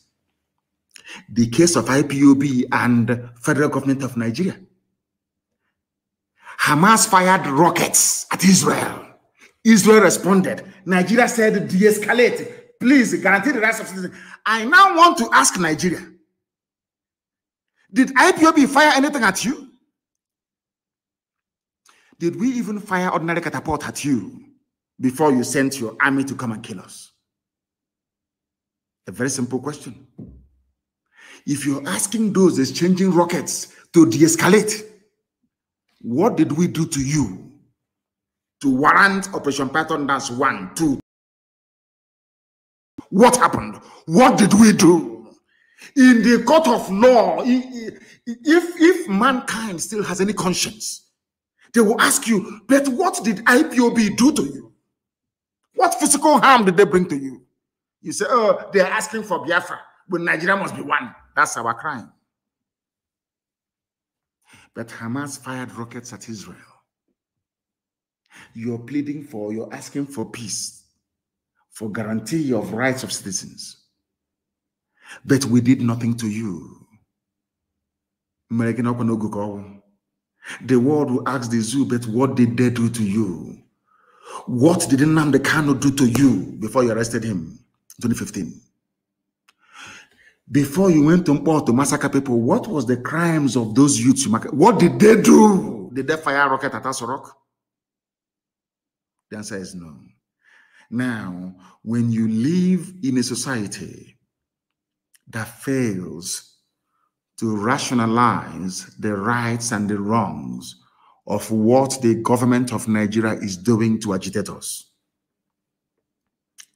S3: the case of IPOB and federal government of Nigeria. Hamas fired rockets at Israel. Israel responded. Nigeria said, de escalate. Please guarantee the rights of citizens. I now want to ask Nigeria Did IPOB fire anything at you? Did we even fire ordinary catapult at you before you sent your army to come and kill us? A very simple question. If you're asking those exchanging rockets to de escalate, what did we do to you to warrant Operation Python Dash 1, 2? What happened? What did we do? In the court of law, if, if mankind still has any conscience, they will ask you, but what did IPOB do to you? What physical harm did they bring to you? You say, oh, they're asking for Biafra, but Nigeria must be one. That's our crime that Hamas fired rockets at Israel. You're pleading for, you're asking for peace, for guarantee of rights of citizens. But we did nothing to you. The world will ask the zoo, but what did they do to you? What did Nnamdi Kano do to you before you arrested him 2015? before you went to Mpo to massacre people, what was the crimes of those youths? What did they do? Did they fire rocket at Asorok? The answer is no. Now, when you live in a society that fails to rationalize the rights and the wrongs of what the government of Nigeria is doing to agitators,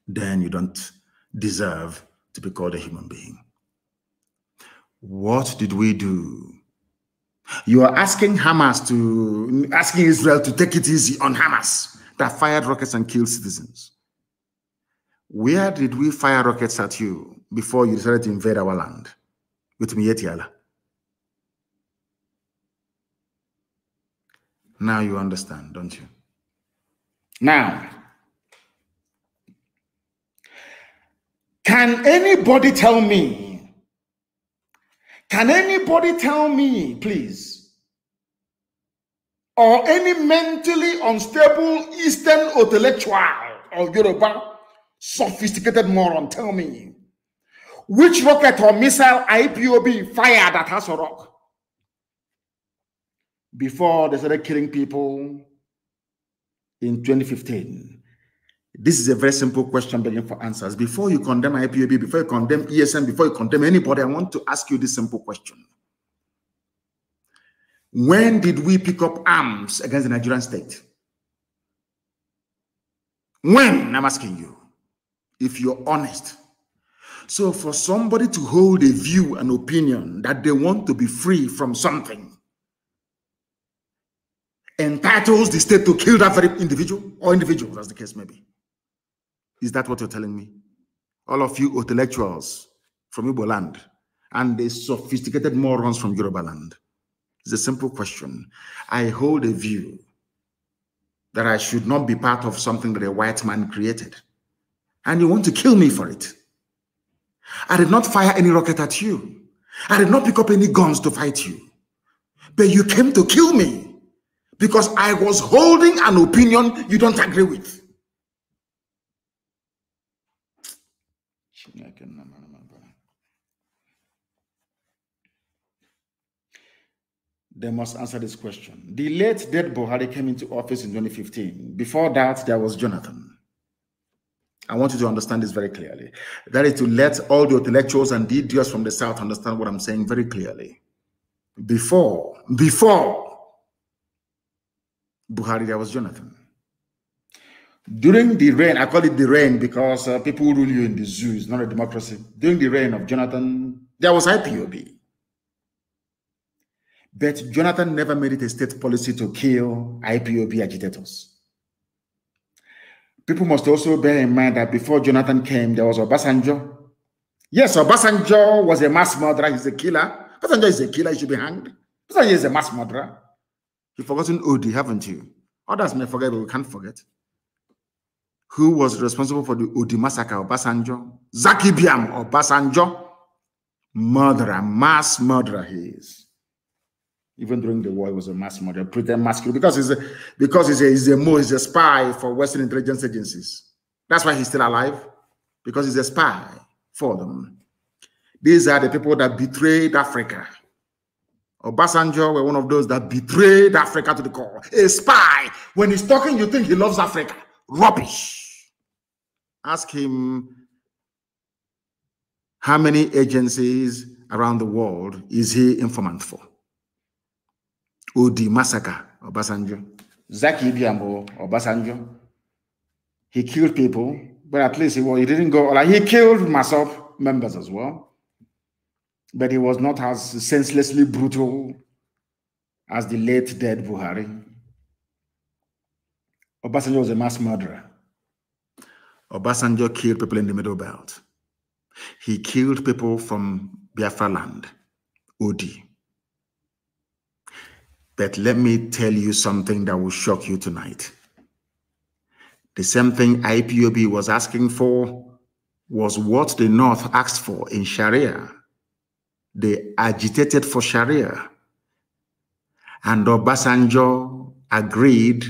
S3: then you don't deserve to be called a human being. What did we do? You are asking Hamas to, asking Israel to take it easy on Hamas that fired rockets and killed citizens. Where did we fire rockets at you before you decided to invade our land with me Mietiala? Now you understand, don't you? Now, can anybody tell me can anybody tell me, please, or any mentally unstable Eastern intellectual or Yoruba sophisticated moron tell me which rocket or missile IPOB fired at a Rock before they started killing people in 2015? This is a very simple question begging for answers. Before you condemn IPOB, before you condemn ESM, before you condemn anybody, I want to ask you this simple question. When did we pick up arms against the Nigerian state? When? I'm asking you. If you're honest. So for somebody to hold a view, an opinion that they want to be free from something entitles the state to kill that very individual or individuals, as the case may be. Is that what you're telling me? All of you intellectuals from Igbo land and the sophisticated morons from Yoruba land. It's a simple question. I hold a view that I should not be part of something that a white man created. And you want to kill me for it. I did not fire any rocket at you. I did not pick up any guns to fight you. But you came to kill me because I was holding an opinion you don't agree with. They must answer this question. The late dead Buhari came into office in 2015. Before that, there was Jonathan. I want you to understand this very clearly. That is to let all the intellectuals and the idiots from the South understand what I'm saying very clearly. Before, before Buhari, there was Jonathan. During the reign, I call it the reign because uh, people rule you in the zoo. It's not a democracy. During the reign of Jonathan, there was IPOB. But Jonathan never made it a state policy to kill IPOB agitators. People must also bear in mind that before Jonathan came, there was Obasanjo. Yes, Obasanjo was a mass murderer. He's a killer. Obasanjo is a killer. He should be hanged. Obasanjo is a mass murderer. You've forgotten Odi, haven't you? Others may forget, but we can't forget who was responsible for the Odi massacre, Basanjo? Zaki Biam, Basanjo? murderer, mass murderer he is. Even during the war, he was a mass murderer, pretend masculine, because he's a, because he's a, he's a, he's a spy for Western intelligence agencies. That's why he's still alive, because he's a spy for them. These are the people that betrayed Africa. Obasanjo were one of those that betrayed Africa to the core. A spy. When he's talking, you think he loves Africa. Rubbish ask him how many agencies around the world is he informant for? Odi Massacre, Obasanjo. Zaki Biambo, Obasanjo. He killed people, but at least he, well, he didn't go, like, he killed Masop members as well. But he was not as senselessly brutal as the late dead Buhari. Obasanjo was a mass murderer. Obasanjo killed people in the Middle Belt. He killed people from Biafra land, Odi. But let me tell you something that will shock you tonight. The same thing IPOB was asking for was what the North asked for in Sharia. They agitated for Sharia. And Obasanjo agreed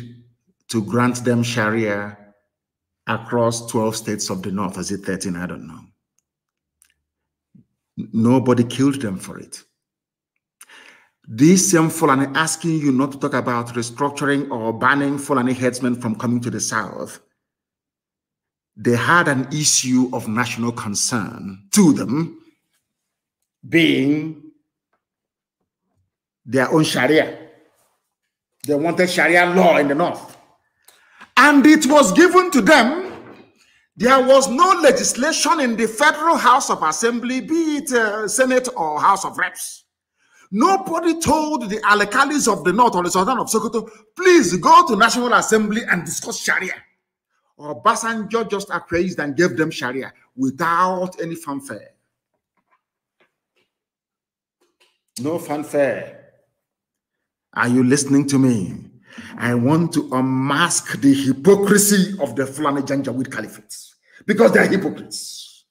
S3: to grant them Sharia across 12 states of the North. Is it 13? I don't know. Nobody killed them for it. These same Fulani asking you not to talk about restructuring or banning Fulani headsmen from coming to the South. They had an issue of national concern to them being their own Sharia. They wanted Sharia law in the North. And it was given to them there was no legislation in the Federal House of Assembly, be it uh, Senate or House of Reps. Nobody told the Alekalis of the North or the Southern of Sokoto, please go to National Assembly and discuss Sharia. Or Basanjo just appraised and gave them Sharia without any fanfare. No fanfare. Are you listening to me? I want to unmask the hypocrisy of the Fulani Janjaweed Caliphates because they're hypocrites.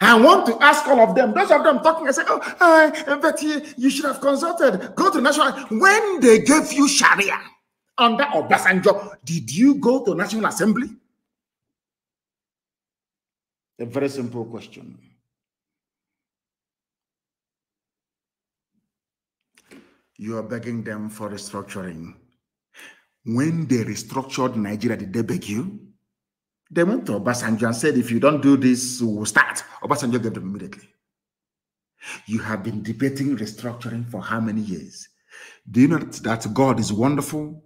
S3: I want to ask all of them, those of them talking, I say, oh, uh, but you, you should have consulted. Go to National. When they gave you Sharia under Obasanjo, did you go to
S5: National Assembly?
S3: A very simple question. You are begging them for restructuring when they restructured Nigeria, did they beg you? They went to Obasanjo and said, if you don't do this, we'll start. Obasanjo gave them immediately. You have been debating restructuring for how many years? Do you know that God is wonderful?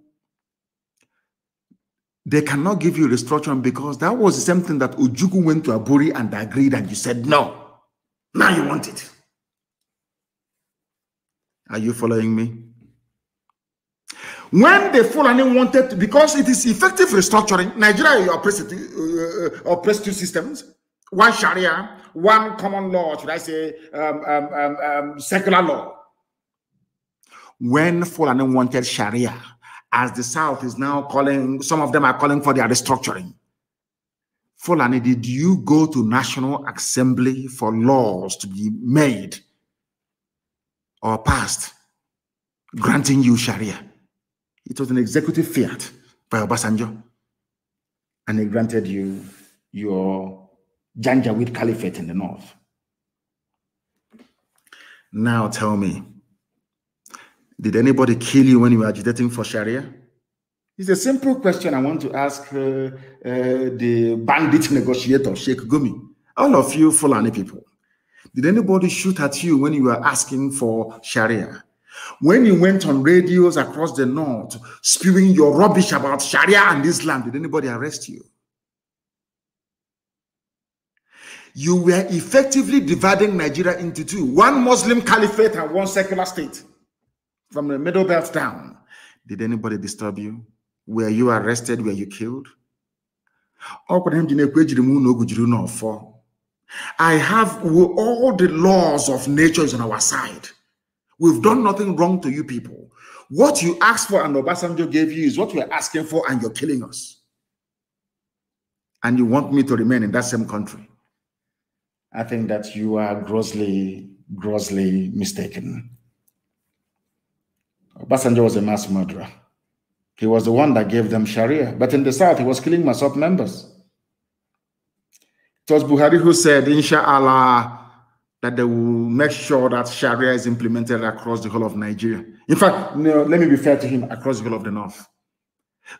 S3: They cannot give you restructuring because that was the same thing that Ujugu went to Aburi and agreed, and you said no. Now you want it. Are you following me? When the Fulani wanted, because it is effective restructuring, Nigeria you uh, uh two systems, one Sharia, one common law, should I say, um, um, um, um, secular law. When Fulani wanted Sharia, as the South is now calling, some of them are calling for their restructuring. Fulani, did you go to National Assembly for laws to be made or passed granting you Sharia? It was an executive fiat by Obasanjo. And he granted you your Janjaweed Caliphate in the north. Now tell me, did anybody kill you when you were agitating for Sharia? It's a simple question I want to ask uh, uh, the bandit negotiator, Sheikh Gumi. All of you Fulani people, did anybody shoot at you when you were asking for Sharia? When you went on radios across the north spewing your rubbish about Sharia and Islam, did anybody arrest you? You were effectively dividing Nigeria into two one Muslim caliphate and one secular state from the middle belt down. Did anybody disturb you? Were you arrested? Were you killed? I have all the laws of nature is on our side. We've done nothing wrong to you people. What you asked for and Obasanjo gave you is what we're asking for, and you're killing us. And you want me to remain in that same country. I think that you are grossly, grossly mistaken. Obasanjo was a mass murderer. He was the one that gave them Sharia. But in the South, he was killing Masop members. It was Buhari who said, Inshallah, that they will make sure that Sharia is implemented across the whole of Nigeria. In fact, no, let me refer to him across the whole of the North.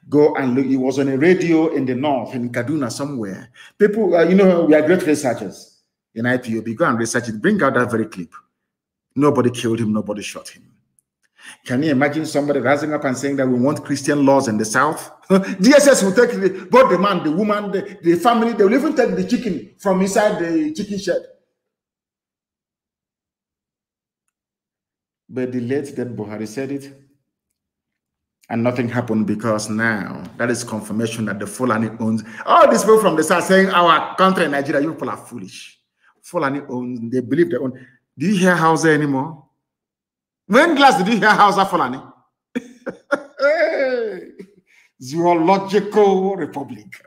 S3: Go and look. He was on a radio in the North, in Kaduna, somewhere. People, uh, you know, we are great researchers in IPOB. Go and research it. Bring out that very clip. Nobody killed him. Nobody shot him. Can you imagine somebody rising up and saying that we want Christian laws in the South? DSS will take the, both the man, the woman, the, the family. They will even take the chicken from inside the chicken shed. But the late then Buhari said it, and nothing happened because now that is confirmation that the Fulani owns all these people from the south saying our country, Nigeria, you people are foolish. Fulani owns, they believe they own. Do you hear Hausa anymore? When last did you hear Hausa Fulani? Zoological Republic.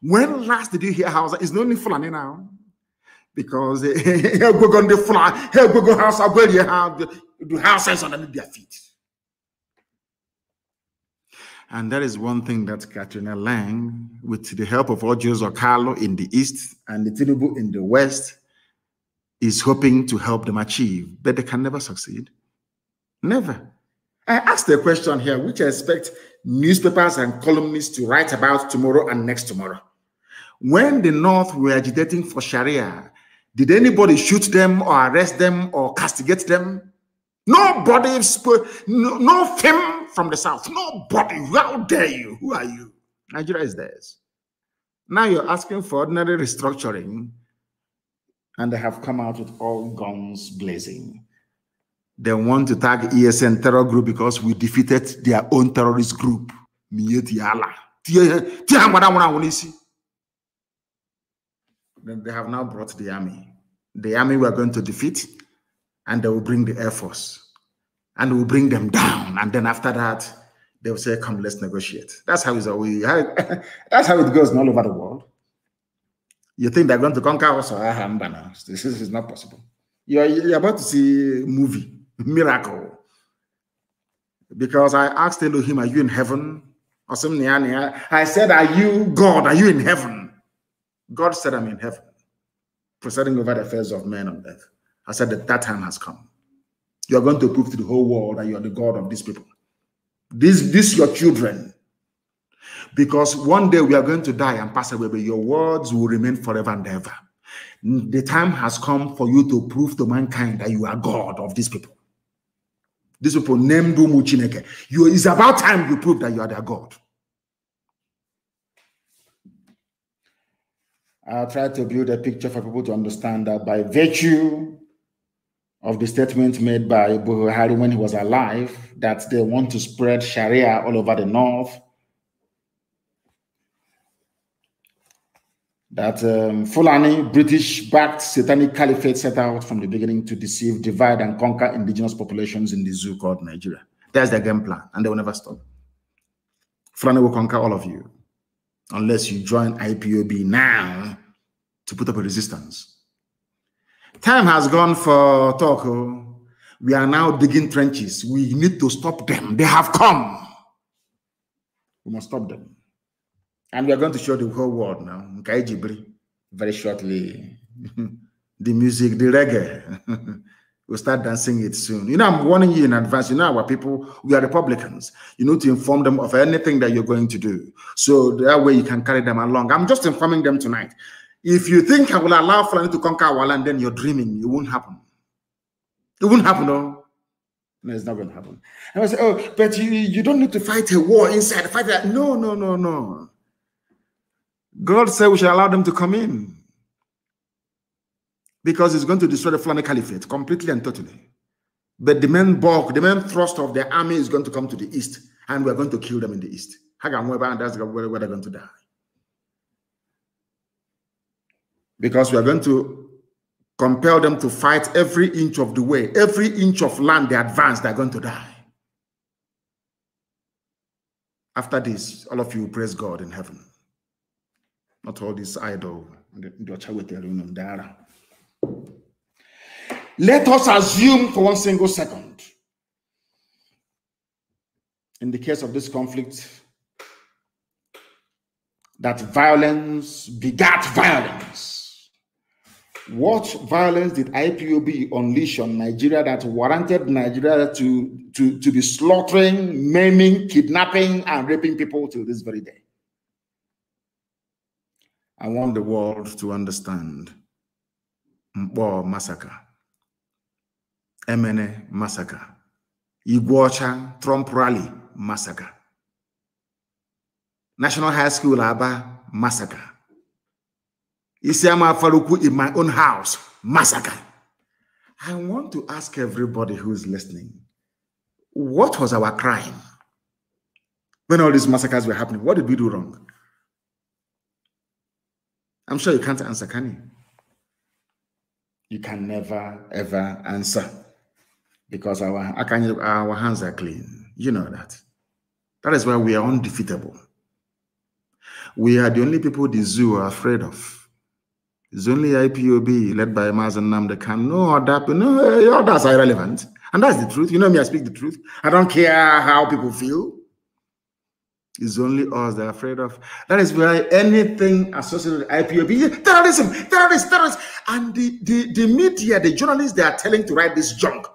S3: When last did you hear Hausa? It's not only Fulani now. Because fly. Do houses underneath their feet. And that is one thing that Katrina Lang, with the help of Ojo Carlo in the East and the Tinubu in the West, is hoping to help them achieve, but they can never succeed. Never. I asked a question here, which I expect newspapers and columnists to write about tomorrow and next tomorrow. When the North were agitating for Sharia, did anybody shoot them or arrest them or castigate them? Nobody, no, no film from the south. Nobody. How dare you? Who are you? Nigeria is theirs. Now you're asking for ordinary restructuring, and they have come out with all guns blazing. They want to tag ESN terror group because we defeated their own terrorist group. Then they have now brought the army. The army we are going to defeat and they will bring the Air Force and we'll bring them down. And then after that, they will say, come, let's negotiate. That's how, it's, how, that's how it goes all over the world. You think they're going to conquer us? Or, ah, i This is not possible. You're, you're about to see movie, miracle. Because I asked Elohim, are you in heaven? I said, are you God? Are you in heaven? God said, I'm in heaven, presiding over the affairs of men on earth. I said that that time has come. You are going to prove to the whole world that you are the God of these people. These, these your children. Because one day we are going to die and pass away, but your words will remain forever and ever. The time has come for you to prove to mankind that you are God of these people. These people named Umuchineke. it's about time you prove that you are their God. I'll try to build a picture for people to understand that by virtue of the statement made by Buhari when he was alive that they want to spread Sharia all over the north. That um, Fulani, British backed satanic caliphate set out from the beginning to deceive, divide, and conquer indigenous populations in the zoo called Nigeria. That's their game plan, and they will never stop. Fulani will conquer all of you unless you join IPOB now to put up a resistance. Time has gone for talk. Oh. We are now digging trenches. We need to stop them. They have come. We must stop them. And we are going to show the whole world now. Nkaijibri, very shortly. the music, the reggae. we'll start dancing it soon. You know, I'm warning you in advance. You know, our people, we are Republicans. You need to inform them of anything that you're going to do. So that way you can carry them along. I'm just informing them tonight if you think I will allow Fulani to conquer our land, then you're dreaming. It won't happen. It won't happen, no. No, it's not going to happen. And I say, oh, but you, you don't need to fight a war inside. Fight that. No, no, no, no. God said we should allow them to come in because it's going to destroy the Fulani Caliphate completely and totally. But the main bulk, the main thrust of the army is going to come to the east, and we're going to kill them in the east. Hagan, where they're going to die. because we are going to compel them to fight every inch of the way, every inch of land they advance, they're going to die. After this, all of you praise God in heaven. Not all this idol. Let us assume for one single second. In the case of this conflict, that violence begat violence. What violence did IPOB unleash on Nigeria that warranted Nigeria to, to, to be slaughtering, maiming, kidnapping, and raping people till this very day? I want the world to understand Mkpor massacre, Emene massacre, Iguacha Trump rally massacre, National High School Aba massacre. Isiama Faruku in my own house. Massacre. I want to ask everybody who is listening what was our crime? When all these massacres were happening, what did we do wrong? I'm sure you can't answer, can you? You can never, ever answer because our, our hands are clean. You know that. That is why we are undefeatable. We are the only people the zoo are afraid of only IPOB, led by Mazen Namde, can no other, no, others are irrelevant. And that's the truth. You know me, I speak the truth. I don't care how people feel. It's only us they're afraid of. That is why anything associated with IPOB, terrorism, terrorists, terrorists. And the, the, the media, the journalists they are telling to write this junk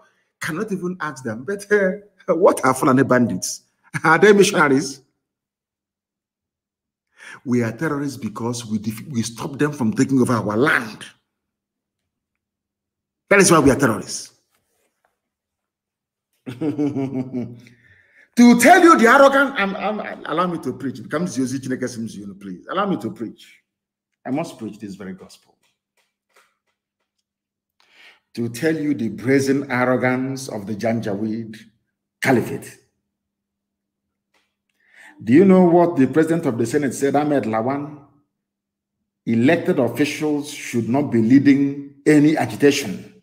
S3: cannot even ask them, but uh, what are Fulani bandits? Are they missionaries? We are terrorists because we, def- we stop them from taking over our land. That is why we are terrorists. to tell you the arrogant, I'm, I'm, allow me to preach. Please allow me to preach. I must preach this very gospel. To tell you the brazen arrogance of the Janjaweed caliphate do you know what the president of the Senate said, Ahmed Lawan? Elected officials should not be leading any agitation.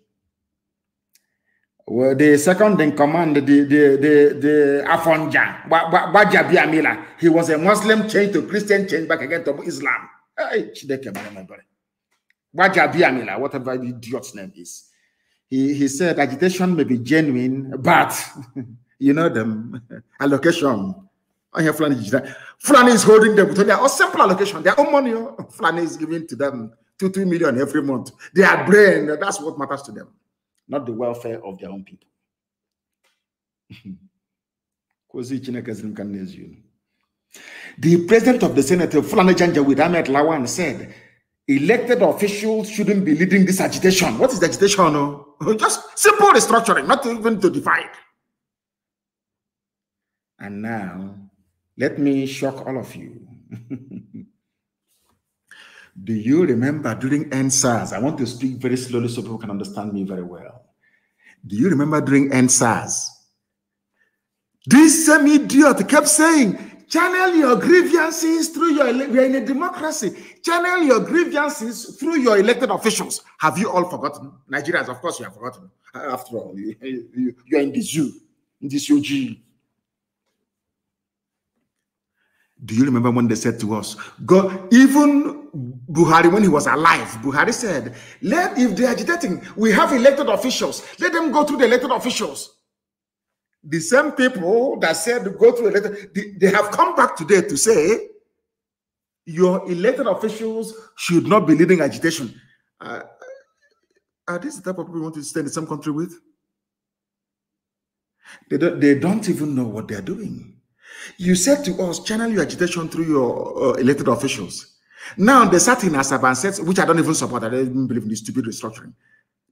S3: Well, the second in command, the the the, the Afonja, Baja Biamila, he was a Muslim, changed to Christian, changed back again to Islam. Baja Biamila, whatever the idiot's name is. He, he said agitation may be genuine, but you know them, allocation I hear Fulani Jigida. is holding them They are all simple allocation. Their own money, oh, Fulani is giving to them two, three million every month. Their brain, that's what matters to them, not the welfare of their own people. the president of the Senate, Fulani Janja with Ahmed Lawan, said, elected officials shouldn't be leading this agitation. What is the agitation? Oh? Just simple restructuring, not even to divide. And now, let me shock all of you. Do you remember during NSAS? I want to speak very slowly so people can understand me very well. Do you remember during NSAS? This same idiot kept saying, channel your grievances through your, we are in a democracy, channel your grievances through your elected officials. Have you all forgotten? Nigerians, of course you have forgotten. After all, you, you, you are in the zoo, in this UG. Do you remember when they said to us, God, even Buhari, when he was alive, Buhari said, let, if they're agitating, we have elected officials, let them go through the elected officials. The same people that said go through elected, they, they have come back today to say, your elected officials should not be leading agitation. Uh, are these the type of people we want to stay in the same country with? They don't, they don't even know what they're doing. You said to us, channel your agitation through your uh, elected officials. Now, they sat in Asaba said, which I don't even support, I don't even believe in this stupid restructuring.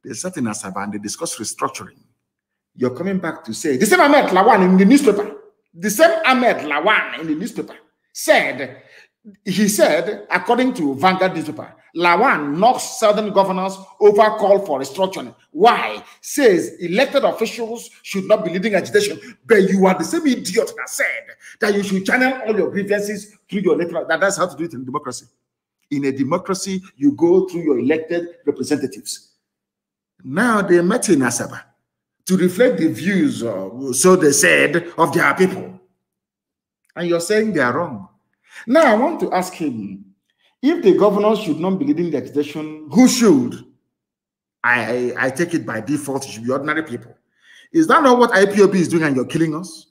S3: They sat in they discussed restructuring. You're coming back to say, the same Ahmed Lawan in the newspaper, the same Ahmed Lawan in the newspaper said, he said, according to Vanguard newspaper, Lawan knocks southern governors over call for restructuring. Why? Says elected officials should not be leading agitation. But you are the same idiot that said that you should channel all your grievances through your electoral. That, that's how to do it in democracy. In a democracy, you go through your elected representatives. Now they met in Asaba to reflect the views, so they said, of their people. And you're saying they are wrong. Now I want to ask him if the governor should not be leading the extension, who should? I, I, I take it by default, it should be ordinary people. Is that not what IPOB is doing and you're killing us?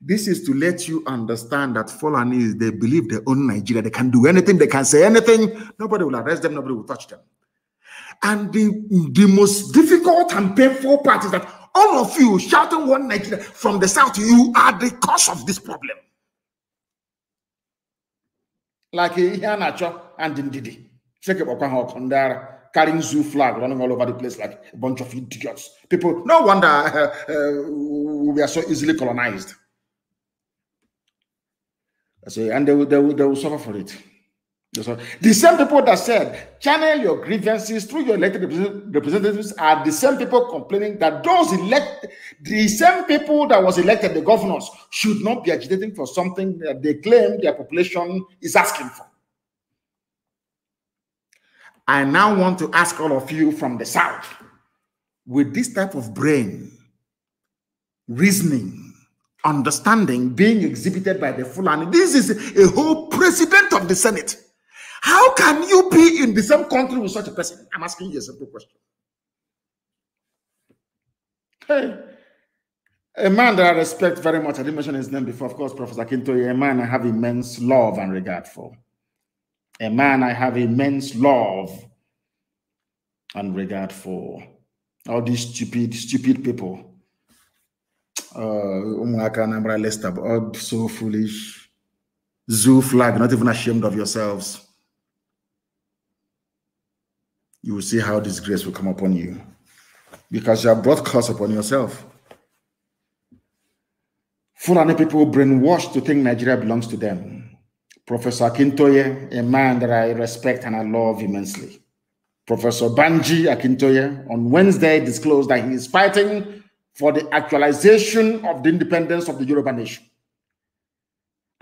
S3: This is to let you understand that Fulani they believe they own Nigeria. They can do anything. They can say anything. Nobody will arrest them. Nobody will touch them. And the, the most difficult and painful part is that all of you shouting one Nigeria from the south, you are the cause of this problem like eh, ihe a na-achọ and ndidi chekekpọkwa ha ọkụ ndị ara carrying zoo flag running all over the place like a bunch of idiots people no wonder uh, uh, we are so easily colonized so, and they will, they, will, they will suffer for it the same people that said, channel your grievances through your elected representatives are the same people complaining that those elected, the same people that was elected, the governors, should not be agitating for something that they claim their population is asking for. I now want to ask all of you from the South, with this type of brain, reasoning, understanding being exhibited by the Fulani, this is a whole president of the Senate how can you be in the same country with such a person? I'm asking you a simple question. Hey, a man that I respect very much, I didn't mention his name before, of course, Professor Akintoye, a man I have immense love and regard for. A man I have immense love and regard for. All these stupid, stupid people. Uh, Umwaka Nambra Lester, all so foolish. Zoo flag, not even ashamed of yourselves you will see how this grace will come upon you because you have brought curse upon yourself. Fulani people brainwashed to think Nigeria belongs to them. Professor Akintoye, a man that I respect and I love immensely. Professor Banji Akintoye on Wednesday disclosed that he is fighting for the actualization of the independence of the Yoruba nation.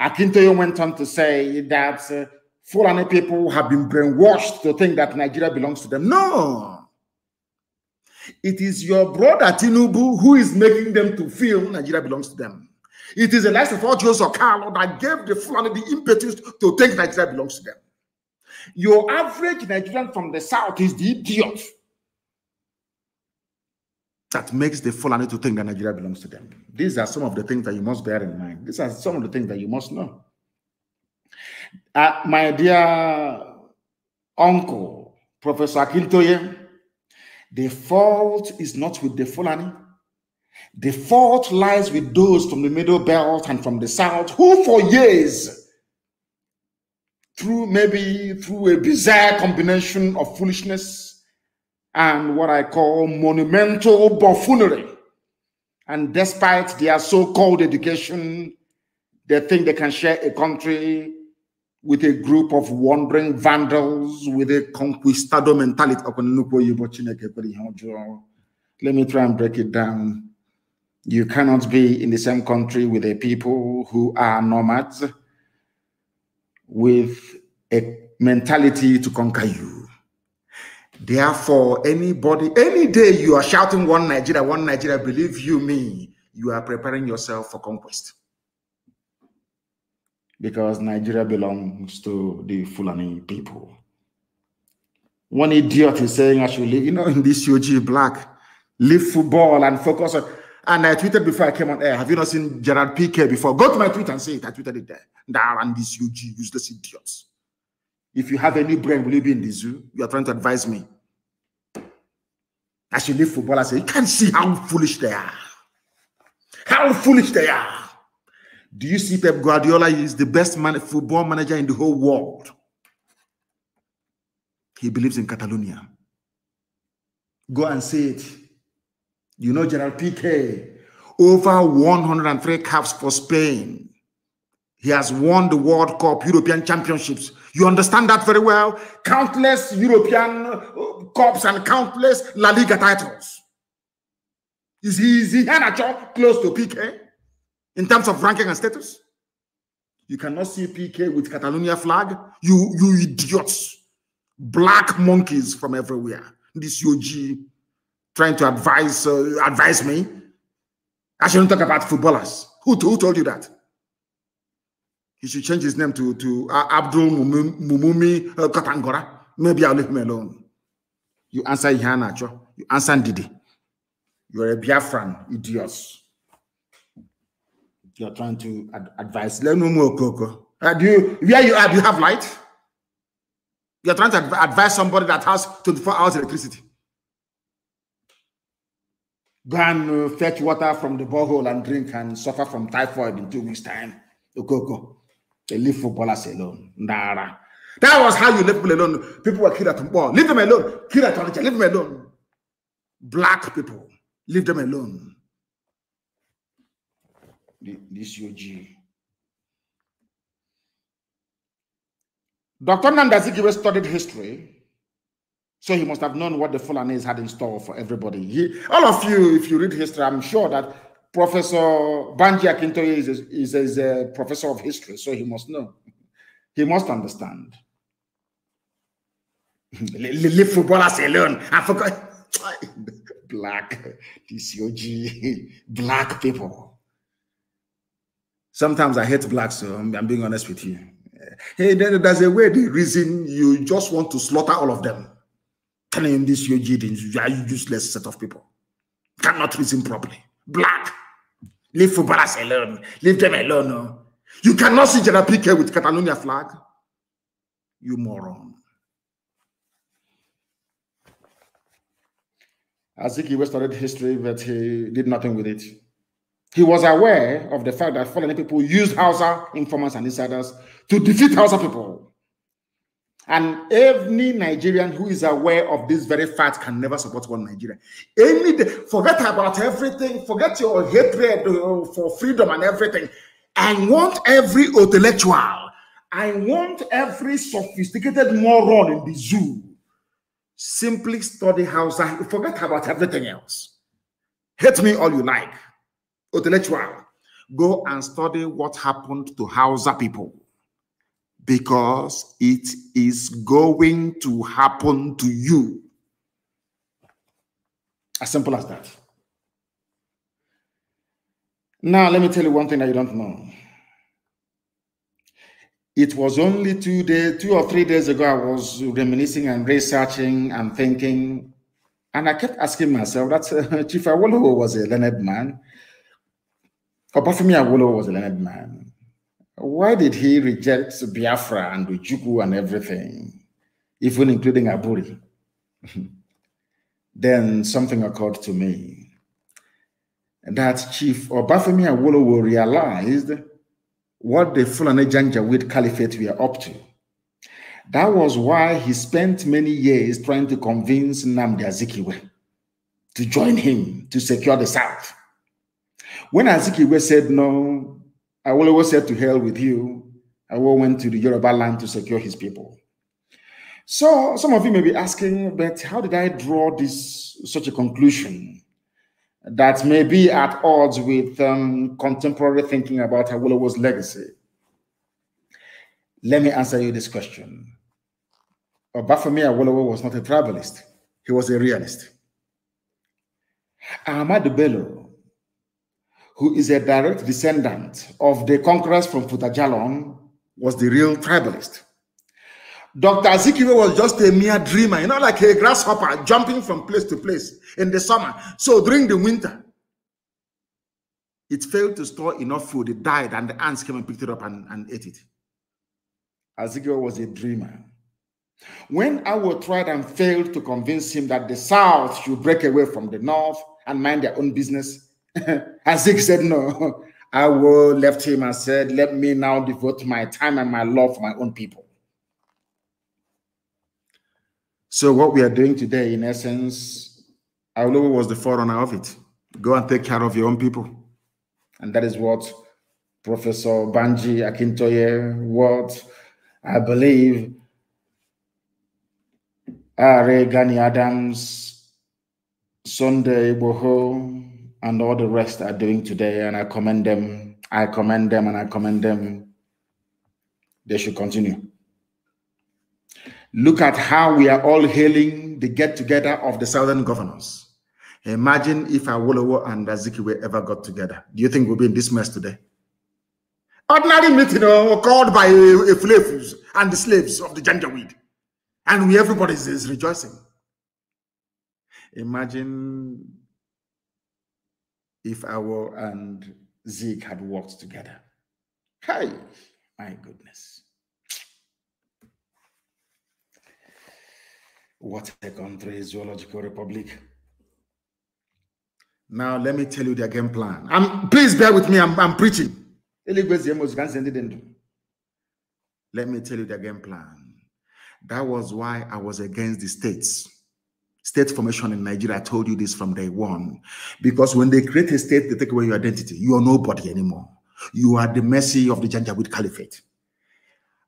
S3: Akintoye went on to say that uh, Fulani people have been brainwashed to think that Nigeria belongs to them. No. It is your brother Tinubu who is making them to feel Nigeria belongs to them. It is the likes of Ojos Carlo that gave the Fulani the impetus to think Nigeria belongs to them. Your average Nigerian from the south is the idiot that makes the Fulani to think that Nigeria belongs to them. These are some of the things that you must bear in mind. These are some of the things that you must know. Uh, my dear uncle, Professor Akintoye, the fault is not with the Fulani. The fault lies with those from the Middle Belt and from the South who, for years, through maybe through a bizarre combination of foolishness and what I call monumental buffoonery, and despite their so called education, they think they can share a country with a group of wandering vandals with a conquistador mentality. Let me try and break it down. You cannot be in the same country with a people who are nomads with a mentality to conquer you. Therefore, anybody, any day you are shouting one Nigeria, one Nigeria, believe you me, you are preparing yourself for conquest because Nigeria belongs to the Fulani people. One idiot is saying I should leave, you know, in this UG black, leave football and focus on. And I tweeted before I came on air. Have you not seen Gerard PK before? Go to my tweet and say it. I tweeted it there. Now and this UG useless idiots. If you have any brain, will you be in the zoo? You are trying to advise me. I should leave football. I say, you can't see how foolish they are. How foolish they are. Do you see Pep Guardiola is the best man, football manager in the whole world? He believes in Catalonia. Go and say it. You know General Piqué, over 103 caps for Spain. He has won the World Cup, European Championships. You understand that very well. Countless European uh, Cups and countless La Liga titles. Is he, is he close to Piqué? in terms of ranking and status. You cannot see PK with Catalonia flag. You you idiots, black monkeys from everywhere. This UG trying to advise uh, advise me. I shouldn't talk about footballers. Who, who told you that? He should change his name to to uh, Abdul Mumumi uh, Katangora. Maybe I'll leave him alone. You answer Ihanacho. You answer Didi. You're a Biafran, idiots you're trying to ad- advise. Let no more cocoa. Uh, do you where you are? Do you have light? You're trying to adv- advise somebody that has 24 hours electricity. Go and uh, fetch water from the borehole and drink and suffer from typhoid in two weeks' time. Okoko. Oh, they leave footballers alone. Nara. That was how you leave people alone. People were killed at Mbo. Leave them alone. Kill at Leave them alone. Black people. Leave them alone this UG. Dr. Nandazikiwe studied history, so he must have known what the Fulanis had in store for everybody. He, all of you, if you read history, I'm sure that Professor Banji Akintoye is, is, is a professor of history, so he must know. He must understand. Leave footballers alone. I forgot. Black, DCOG, black people. Sometimes I hate blacks, so I'm, I'm being honest with you. Hey, then there's a way the reason you just want to slaughter all of them. Telling him this, you are you are useless set of people. Cannot reason properly. Black. Leave footballers alone. Leave them alone. No? You cannot see Gerard Piqué with Catalonia flag. You moron. Aziki studied history, but he did nothing with it. He was aware of the fact that foreign people used Hausa informants and insiders to defeat Hausa people. And every Nigerian who is aware of this very fact can never support one Nigeria. Any day, forget about everything, forget your hatred uh, for freedom and everything. I want every intellectual, I want every sophisticated moron in the zoo. Simply study Hausa. Forget about everything else. Hate me all you like intellectual, go and study what happened to Hausa people because it is going to happen to you. As simple as that. Now, let me tell you one thing that you don't know. It was only two days, two or three days ago, I was reminiscing and researching and thinking, and I kept asking myself that uh, Chief Awolowo was a learned man Obafemi Awolo was a learned man. Why did he reject Biafra and Ujuku and everything, even including Aburi? then something occurred to me that Chief Obafemi Awolowo realized what the Fulani Janjaweed Caliphate were up to. That was why he spent many years trying to convince Namdi Azikiwe to join him to secure the South. When Azikiwe said no, Awolowo said to hell with you. Awolowo went to the Yoruba land to secure his people. So some of you may be asking, but how did I draw this such a conclusion that may be at odds with um, contemporary thinking about Awolowo's legacy? Let me answer you this question. Obafemi Awolowo was not a tribalist; he was a realist. Ahmadu Bello who is a direct descendant of the conquerors from Futajalon, was the real tribalist. Dr. Azikiwe was just a mere dreamer, you know, like a grasshopper jumping from place to place in the summer. So during the winter, it failed to store enough food. It died, and the ants came and picked it up and, and ate it. Azikiwe was a dreamer. When Awo tried and failed to convince him that the South should break away from the North and mind their own business, Isaac said, No. I will left him and said, Let me now devote my time and my love for my own people. So, what we are doing today, in essence, our Lord was the forerunner of it. Go and take care of your own people. And that is what Professor Banji Akintoye, what I believe Are Gani Adams, Sunday Boho, and all the rest are doing today. And I commend them. I commend them and I commend them. They should continue. Look at how we are all hailing the get together of the southern governors. Imagine if Awolowo and Azikiwe ever got together. Do you think we'll be in this mess today? Ordinary meeting uh, called by slaves uh, and the slaves of the gingerweed. And we everybody is rejoicing. Imagine if Awo and Zeke had worked together. Hi, my goodness. What a country, Zoological Republic. Now, let me tell you their game plan. I'm, please bear with me, I'm, I'm preaching. Let me tell you their game plan. That was why I was against the states state formation in Nigeria. I told you this from day one. Because when they create a state, they take away your identity. You are nobody anymore. You are the mercy of the Janjaweed Caliphate.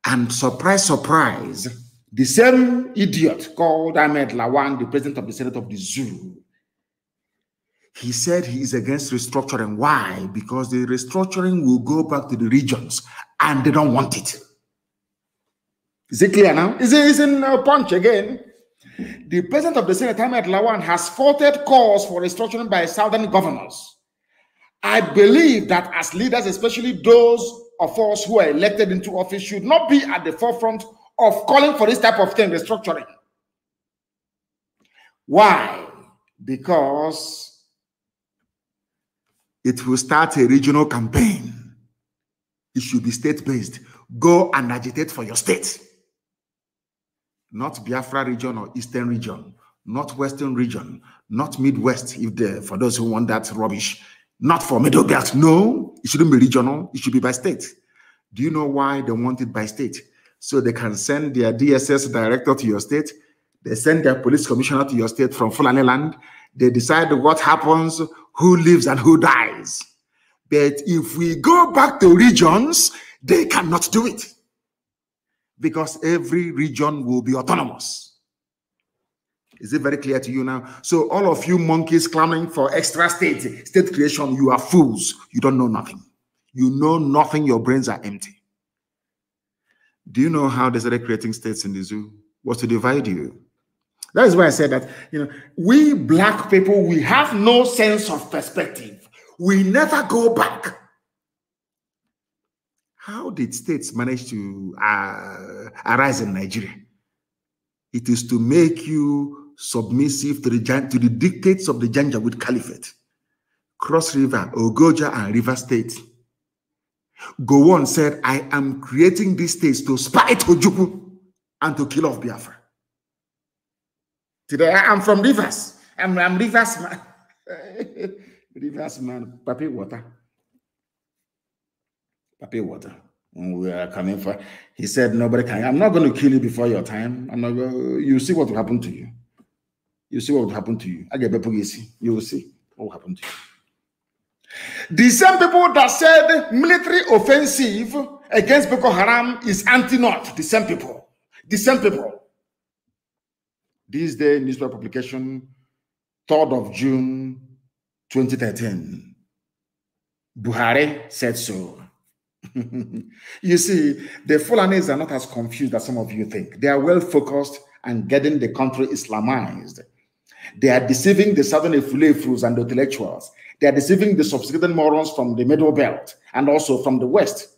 S3: And surprise, surprise, the same idiot called Ahmed Lawan, the president of the Senate of the Zoo, he said he is against restructuring. Why? Because the restructuring will go back to the regions and they don't want it. Is it clear now? Is it is in a punch again? The president of the Senate, Ahmed Lawan, has faulted calls for restructuring by southern governors. I believe that as leaders, especially those of us who are elected into office, should not be at the forefront of calling for this type of thing, restructuring. Why? Because it will start a regional campaign. It should be state-based. Go and agitate for your state not Biafra region or Eastern region, not Western region, not Midwest, if the, for those who want that rubbish, not for Middle Belt. No, it shouldn't be regional, it should be by state. Do you know why they want it by state? So they can send their DSS director to your state, they send their police commissioner to your state from Fulani land, they decide what happens, who lives, and who dies. But if we go back to regions, they cannot do it because every region will be autonomous. Is it very clear to you now? So, all of you monkeys clamoring for extra state, state creation, you are fools. You don't know nothing. You know nothing. Your brains are empty. Do you know how they started creating states in the zoo? Was to divide you. That is why I said that, you know, we black people, we have no sense of perspective. We never go back. How did states manage to uh, arise in Nigeria? It is to make you submissive to the, to the dictates of the Janjaweed Caliphate. Cross River, Ogoja, and River State. Gowon said, I am creating these states to spite Ojukwu and to kill off Biafra. Today, I am from Rivers. I'm, I'm Rivers man. rivers man, Papi Water. Papi water. we are coming for. He said, Nobody can. I'm not going to kill you before your time. I'm not going you see what will happen to you. You see what will happen to you. I get Bepugisi. You will see what will happen to you. The same people that said military offensive against Boko Haram is anti-North, the same people. The same people. This day, newspaper publication, 3rd of June 2013. Buhari said so. you see, the Fulanis are not as confused as some of you think. They are well focused and getting the country Islamized. They are deceiving the southern Efulefus and the intellectuals. They are deceiving the sophisticated morons from the middle belt and also from the west,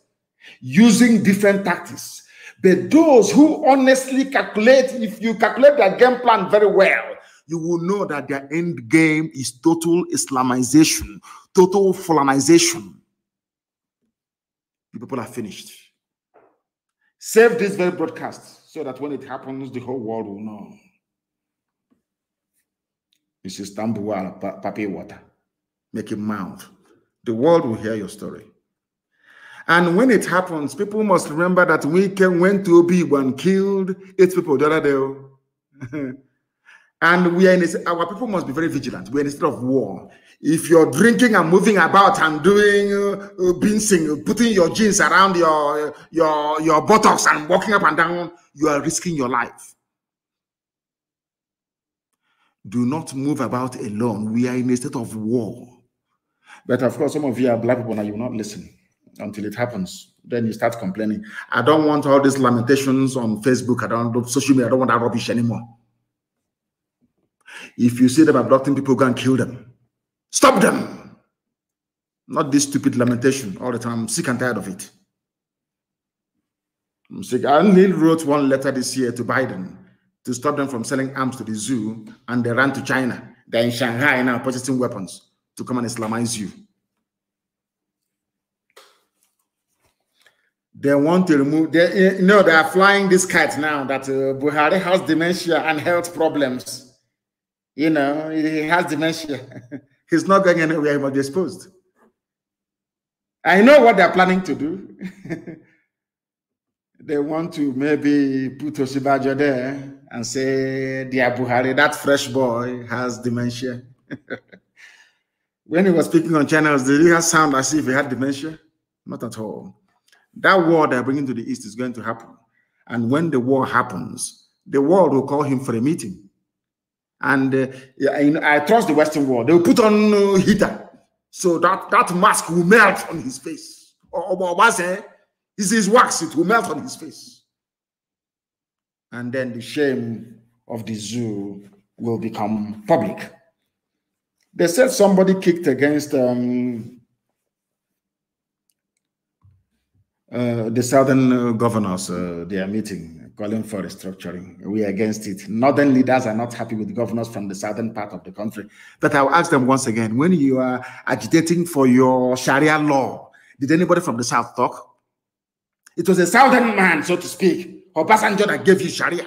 S3: using different tactics. But those who honestly calculate, if you calculate their game plan very well, you will know that their end game is total Islamization, total fulanization people are finished. Save this very broadcast so that when it happens, the whole world will know. This is Tambuwal Papi Water. Make a mouth. The world will hear your story. And when it happens, people must remember that we came, went to Obi and killed eight people the other day. Oh. and we are in a, our people must be very vigilant. We are in a state of war if you're drinking and moving about and doing uh, uh, uh, putting your jeans around your your your buttocks and walking up and down, you are risking your life. Do not move about alone. We are in a state of war. But of course, some of you are black people and you will not listen until it happens. Then you start complaining. I don't want all these lamentations on Facebook. I don't social media. I don't want that rubbish anymore. If you see them abducting people, go and kill them. Stop them. Not this stupid lamentation all the time. I'm sick and tired of it. I'm sick. I only wrote one letter this year to Biden to stop them from selling arms to the zoo, and they ran to China. They're in Shanghai now purchasing weapons to come and Islamize you. They want to remove. They, you know, they are flying this kite now that uh, Buhari has dementia and health problems. You know, he has dementia. He's not going anywhere. He must be exposed. I know what they're planning to do. they want to maybe put Osibajo there and say, Dear Buhari, that fresh boy has dementia. when he was speaking on channels, did he sound as if he had dementia? Not at all. That war they're bringing to the East is going to happen. And when the war happens, the world will call him for a meeting and uh, I, trust the Western world. They will put on uh, heater, so that that mask will melt on his face. Or, or, or is wax; it will melt on his face, and then the shame of the zoo will become public. They said somebody kicked against um, uh, the southern uh, governors uh, their meeting calling for restructuring. We are against it. Northern leaders are not happy with governors from the southern part of the country. But I'll ask them once again when you are agitating for your Sharia law, did anybody from the south talk? It was a southern man, so to speak, Obasanjo that gave you Sharia.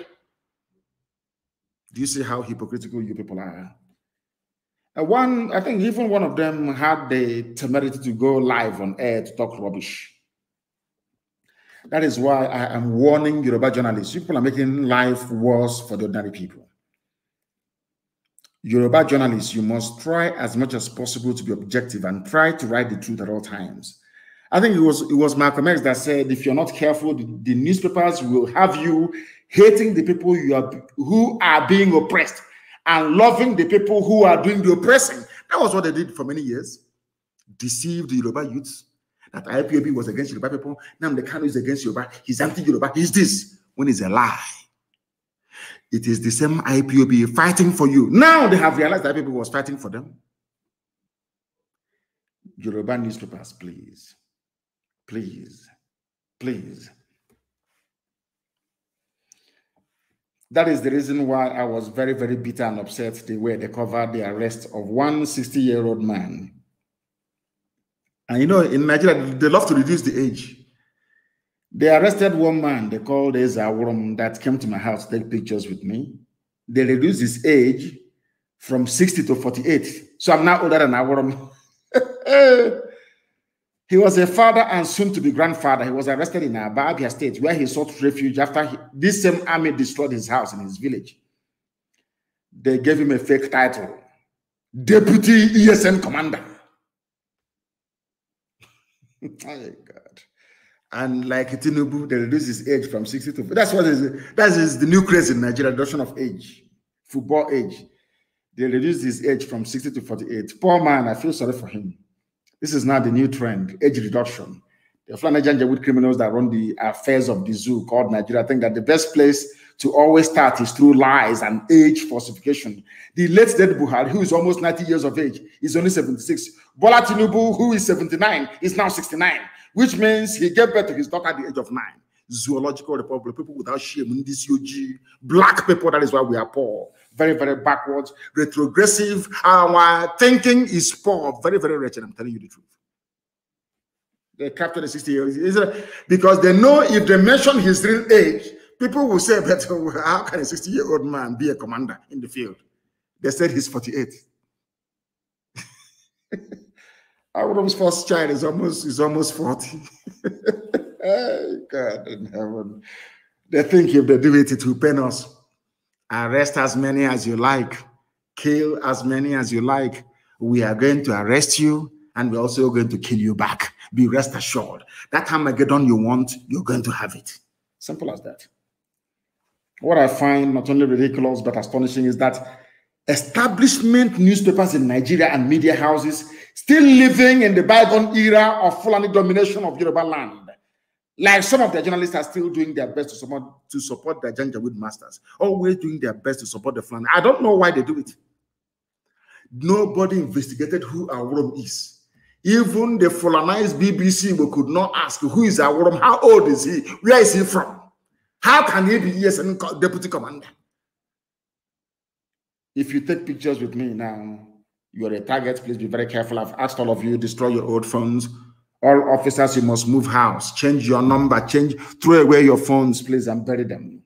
S3: Do you see how hypocritical you people are? Uh, one, I think even one of them had the temerity to go live on air to talk rubbish that is why I am warning Yoruba journalists. You people are making life worse for the ordinary people. Yoruba journalists, you must try as much as possible to be objective and try to write the truth at all times. I think it was it was Malcolm X that said, if you're not careful, the, the newspapers will have you hating the people you are who are being oppressed and loving the people who are doing the oppressing. That was what they did for many years. Deceived the Yoruba youths that IPOB was against Yoruba people. Now the Kano is against Yoruba. He's anti-Yoruba. He's this. When it's a lie. It is the same IPOB fighting for you. Now they have realized that people was fighting for them. Yoruba newspapers, please. Please. Please. That is the reason why I was very, very bitter and upset the way they covered the arrest of one 60 year old man and you know, in Nigeria, they love to reduce the age. They arrested one man they called Eza Wurum that came to my house to take pictures with me. They reduced his age from 60 to 48. So I'm now older than Awurum. he was a father and soon to be grandfather. He was arrested in Abia State where he sought refuge after he, this same army destroyed his house in his village. They gave him a fake title, Deputy ESN Commander. My God. And like Tinubu, they reduce his age from 60 to that's what is that is the new craze in Nigeria, reduction of age, football age. They reduce his age from 60 to 48. Poor man, I feel sorry for him. This is now the new trend, age reduction. The Flanagan with criminals that run the affairs of the zoo called Nigeria think that the best place to always start is through lies and age falsification. The late dead Buhari, who is almost 90 years of age, is only 76. Bola Tinubu, who is 79, is now 69, which means he gave birth to his daughter at the age of nine. Zoological Republic, people without shame, in this UG, black people, that is why we are poor. Very, very backwards, retrogressive. Our thinking is poor, very, very wretched. I'm telling you the truth. They captured the 60 years because they know if they mention his real age, People will say, but uh, how can a 60 year old man be a commander in the field? They said he's 48. Abram's first child is almost is almost 40. God in heaven. They think if they do it, it will pain us. Arrest as many as you like, kill as many as you like. We are going to arrest you and we're also going to kill you back. Be rest assured. That Armageddon you want, you're going to have it. Simple as that. What I find not only ridiculous but astonishing is that establishment newspapers in Nigeria and media houses still living in the bygone era of Fulani domination of Yoruba land. Like some of their journalists are still doing their best to support to support with Janjaweed masters, always doing their best to support the Fulani. I don't know why they do it. Nobody investigated who Aworom is. Even the Fulanized BBC could not ask who is Aworom, how old is he, where is he from? How can he be ESN deputy commander? If you take pictures with me now, you are a target. Please be very careful. I've asked all of you, destroy your old phones. All officers, you must move house. Change your number. Change, throw away your phones, please, and bury them.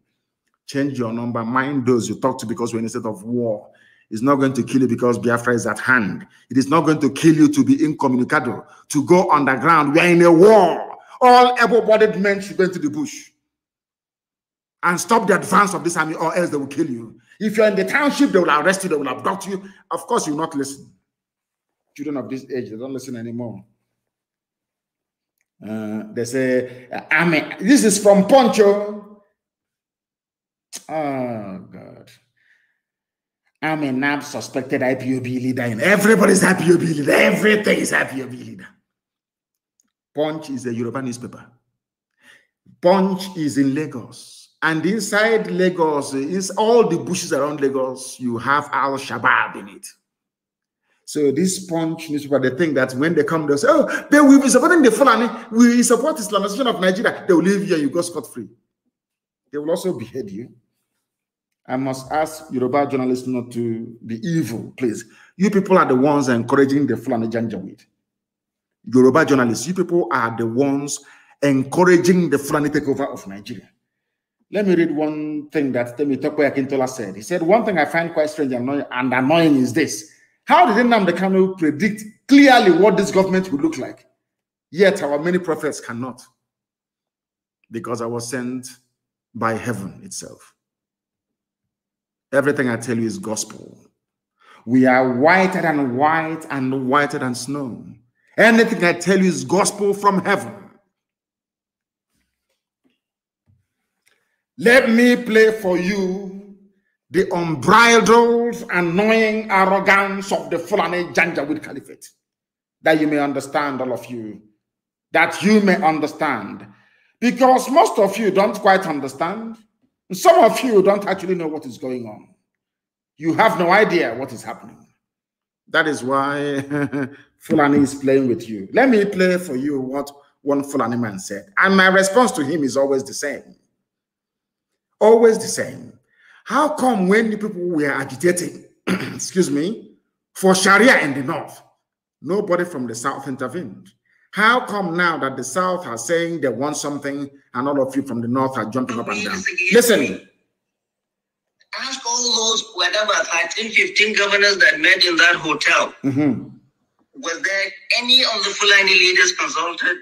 S3: Change your number. Mind those you talk to because we're in a state of war. It's not going to kill you because Biafra is at hand. It is not going to kill you to be incommunicado, to go underground. We are in a war. All able-bodied men should go into the bush and stop the advance of this army, or else they will kill you. If you're in the township, they will arrest you, they will abduct you. Of course, you will not listen. Children of this age, they don't listen anymore. Uh, they say, uh, "Amen." This is from Poncho. Oh, God. I'm a suspected IPOB leader, everybody's IPOB leader. Everything is IPOB leader. Punch is a European newspaper. Punch is in Lagos. And inside Lagos, is all the bushes around Lagos, you have Al Shabaab in it. So this punch newspaper, they think that when they come, they'll say, oh, they will be supporting the Fulani. We support Islamization of Nigeria. They will leave you and you go scot-free. They will also behead you. I must ask Yoruba journalists not to be evil, please. You people are the ones encouraging the Fulani Janjaweed. Yoruba journalists, you people are the ones encouraging the Fulani takeover of Nigeria. Let me read one thing that Temi Tokwe Akintola said. He said, One thing I find quite strange and annoying is this. How did Nnamdi Kanu predict clearly what this government would look like? Yet our many prophets cannot, because I was sent by heaven itself. Everything I tell you is gospel. We are whiter than white and whiter than snow. Anything I tell you is gospel from heaven. Let me play for you the unbridled, annoying arrogance of the Fulani Janjaweed Caliphate, that you may understand, all of you, that you may understand. Because most of you don't quite understand. Some of you don't actually know what is going on. You have no idea what is happening. That is why Fulani is playing with you. Let me play for you what one Fulani man said. And my response to him is always the same always the same. How come when the people were agitating, excuse me, for Sharia in the north, nobody from the south intervened? How come now that the south are saying they want something and all of you from the north are jumping up and down? Listen.
S4: Ask all those, whatever, 13, 15 governors that met in that hotel. Mm-hmm. Was there any of the Fulani leaders consulted?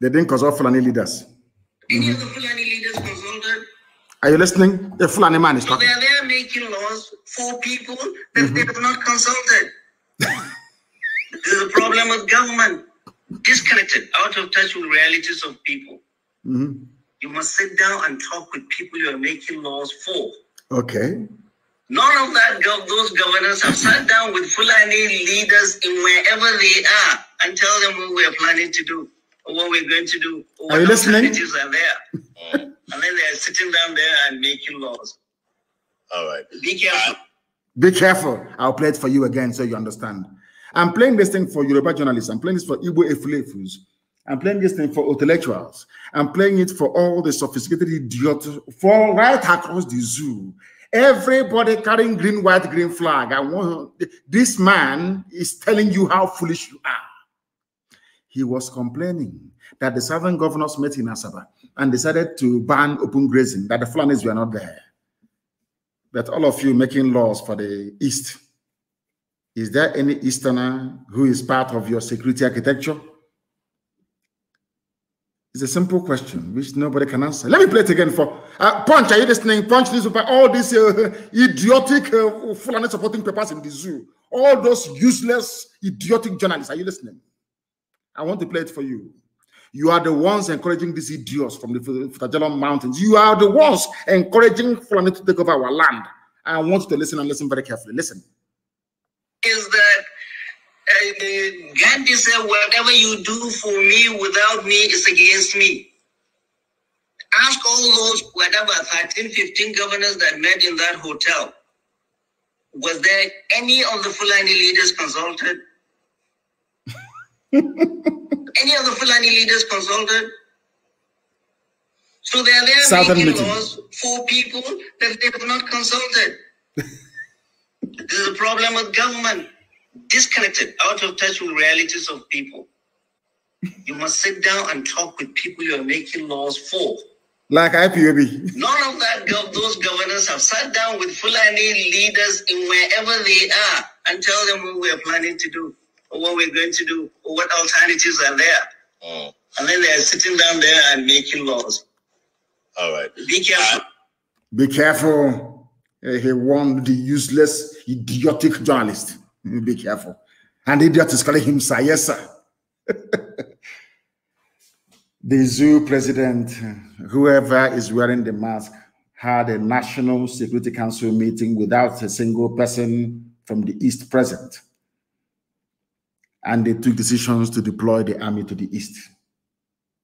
S3: They didn't consult Fulani leaders. Any mm-hmm. of the
S4: Fulani leaders consulted?
S3: Are you listening? The Fulani man is talking.
S4: So they're there making laws for people that mm -hmm. they have not consulted. There is a problem of government. Disconnected, out of touch with realities of people. Mm -hmm. You must sit down and talk with people you are making laws for. Okay. None of that those governors have sat down with Fulani leaders in wherever they are and tell them what we are planning to do or what we're going to do. Or are what you listening? are there. And then they're sitting down there and making laws. All right. Be careful.
S3: Be careful. I'll play it for you again so you understand. I'm playing this thing for Yoruba journalists. I'm playing this for Igbo Efulefus. I'm playing this thing for intellectuals. I'm playing it for all the sophisticated idiots for right across the zoo. Everybody carrying green, white, green flag. I want this man is telling you how foolish you are. He was complaining that the southern governors met in Asaba and decided to ban open grazing, that the Fulanis were not there. But all of you making laws for the East, is there any Easterner who is part of your security architecture? It's a simple question which nobody can answer. Let me play it again for uh, Punch. Are you listening? Punch this by all these uh, idiotic uh, and supporting papers in the zoo. All those useless, idiotic journalists. Are you listening? I want to play it for you. You are the ones encouraging these idiots from the Futajalon Mountains. You are the ones encouraging Fulani to take over our land. I want you to listen and listen very carefully. Listen.
S4: Is that uh, Gandhi said, whatever you do for me without me is against me. Ask all those, whatever, 13, 15 governors that met in that hotel. Was there any of the Fulani leaders consulted? any other Fulani leaders consulted? So they are there Southern making meeting. laws for people that they were not consulted. this is a problem with government. Disconnected, out of touch with realities of people. You must sit down and talk with people you are making laws for. Like IPOB. None of that those governors have sat down with Fulani leaders in wherever they are and tell them what we are planning to do what we're going to do, what alternatives are there. Mm. And then they're sitting down there and making laws. All right. Be careful. Uh,
S3: be careful. Eh, he warned the useless, idiotic journalist. Mm, be careful. And idiot is calling him sir. Yes, sir. the zoo president, whoever is wearing the mask, had a National Security Council meeting without a single person from the East present and they took decisions to deploy the army to the east.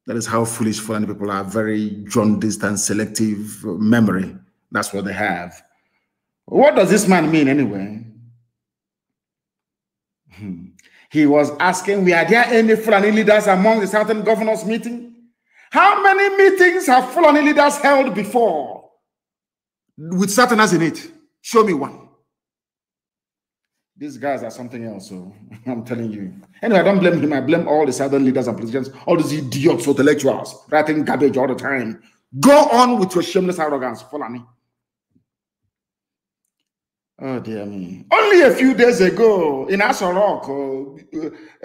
S3: That is how foolish foreign people are, very jaundiced and selective memory. That's what they have. What does this man mean anyway? Hmm. He was asking, were there any Fulani leaders among the Southern Governors meeting? How many meetings have Fulani leaders held before? With Southerners in it. Show me one. These guys are something else. So I'm telling you. Anyway, I don't blame him. I blame all the southern leaders and politicians, all these idiots, intellectuals, writing garbage all the time. Go on with your shameless arrogance. Follow me. Oh dear me. Only a few days ago in Asorok, uh,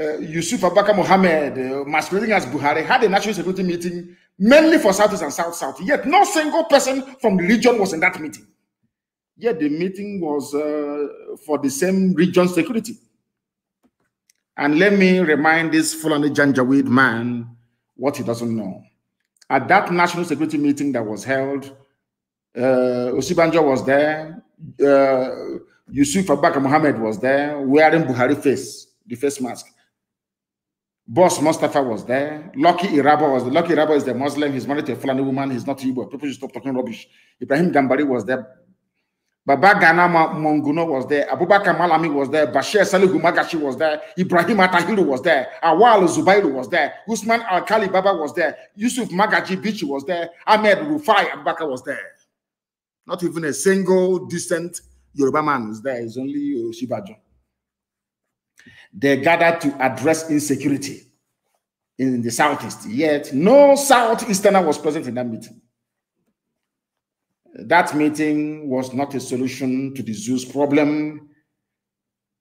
S3: uh, Yusuf Abaka Mohammed, uh, masquerading as Buhari, had a national security meeting mainly for Southeast and South South. Yet no single person from the region was in that meeting. Yet the meeting was uh, for the same region security. And let me remind this Fulani Janjaweed man what he doesn't know. At that national security meeting that was held, uh, was there, uh, Yusuf Abaka Mohammed was there, wearing Buhari face, the face mask. Boss Mustafa was there. Lucky Iraba was there. Lucky Iraba is the Muslim. He's married to a Fulani woman. He's not Igbo. People should stop talking rubbish. Ibrahim Gambari was there. Baba Ghana Monguno was there, Abubakar Malami was there, Bashir Salihu Magashi was there, Ibrahim Atahiru was there, Awal Zubairu was there, Usman Al Khali Baba was there, Yusuf Magaji Bichi was there, Ahmed Rufai Abubakar was there. Not even a single decent Yoruba man is there, it's only Oshibajo. They gathered to address insecurity in the Southeast, yet no Southeasterner was present in that meeting. That meeting was not a solution to the zoo's problem.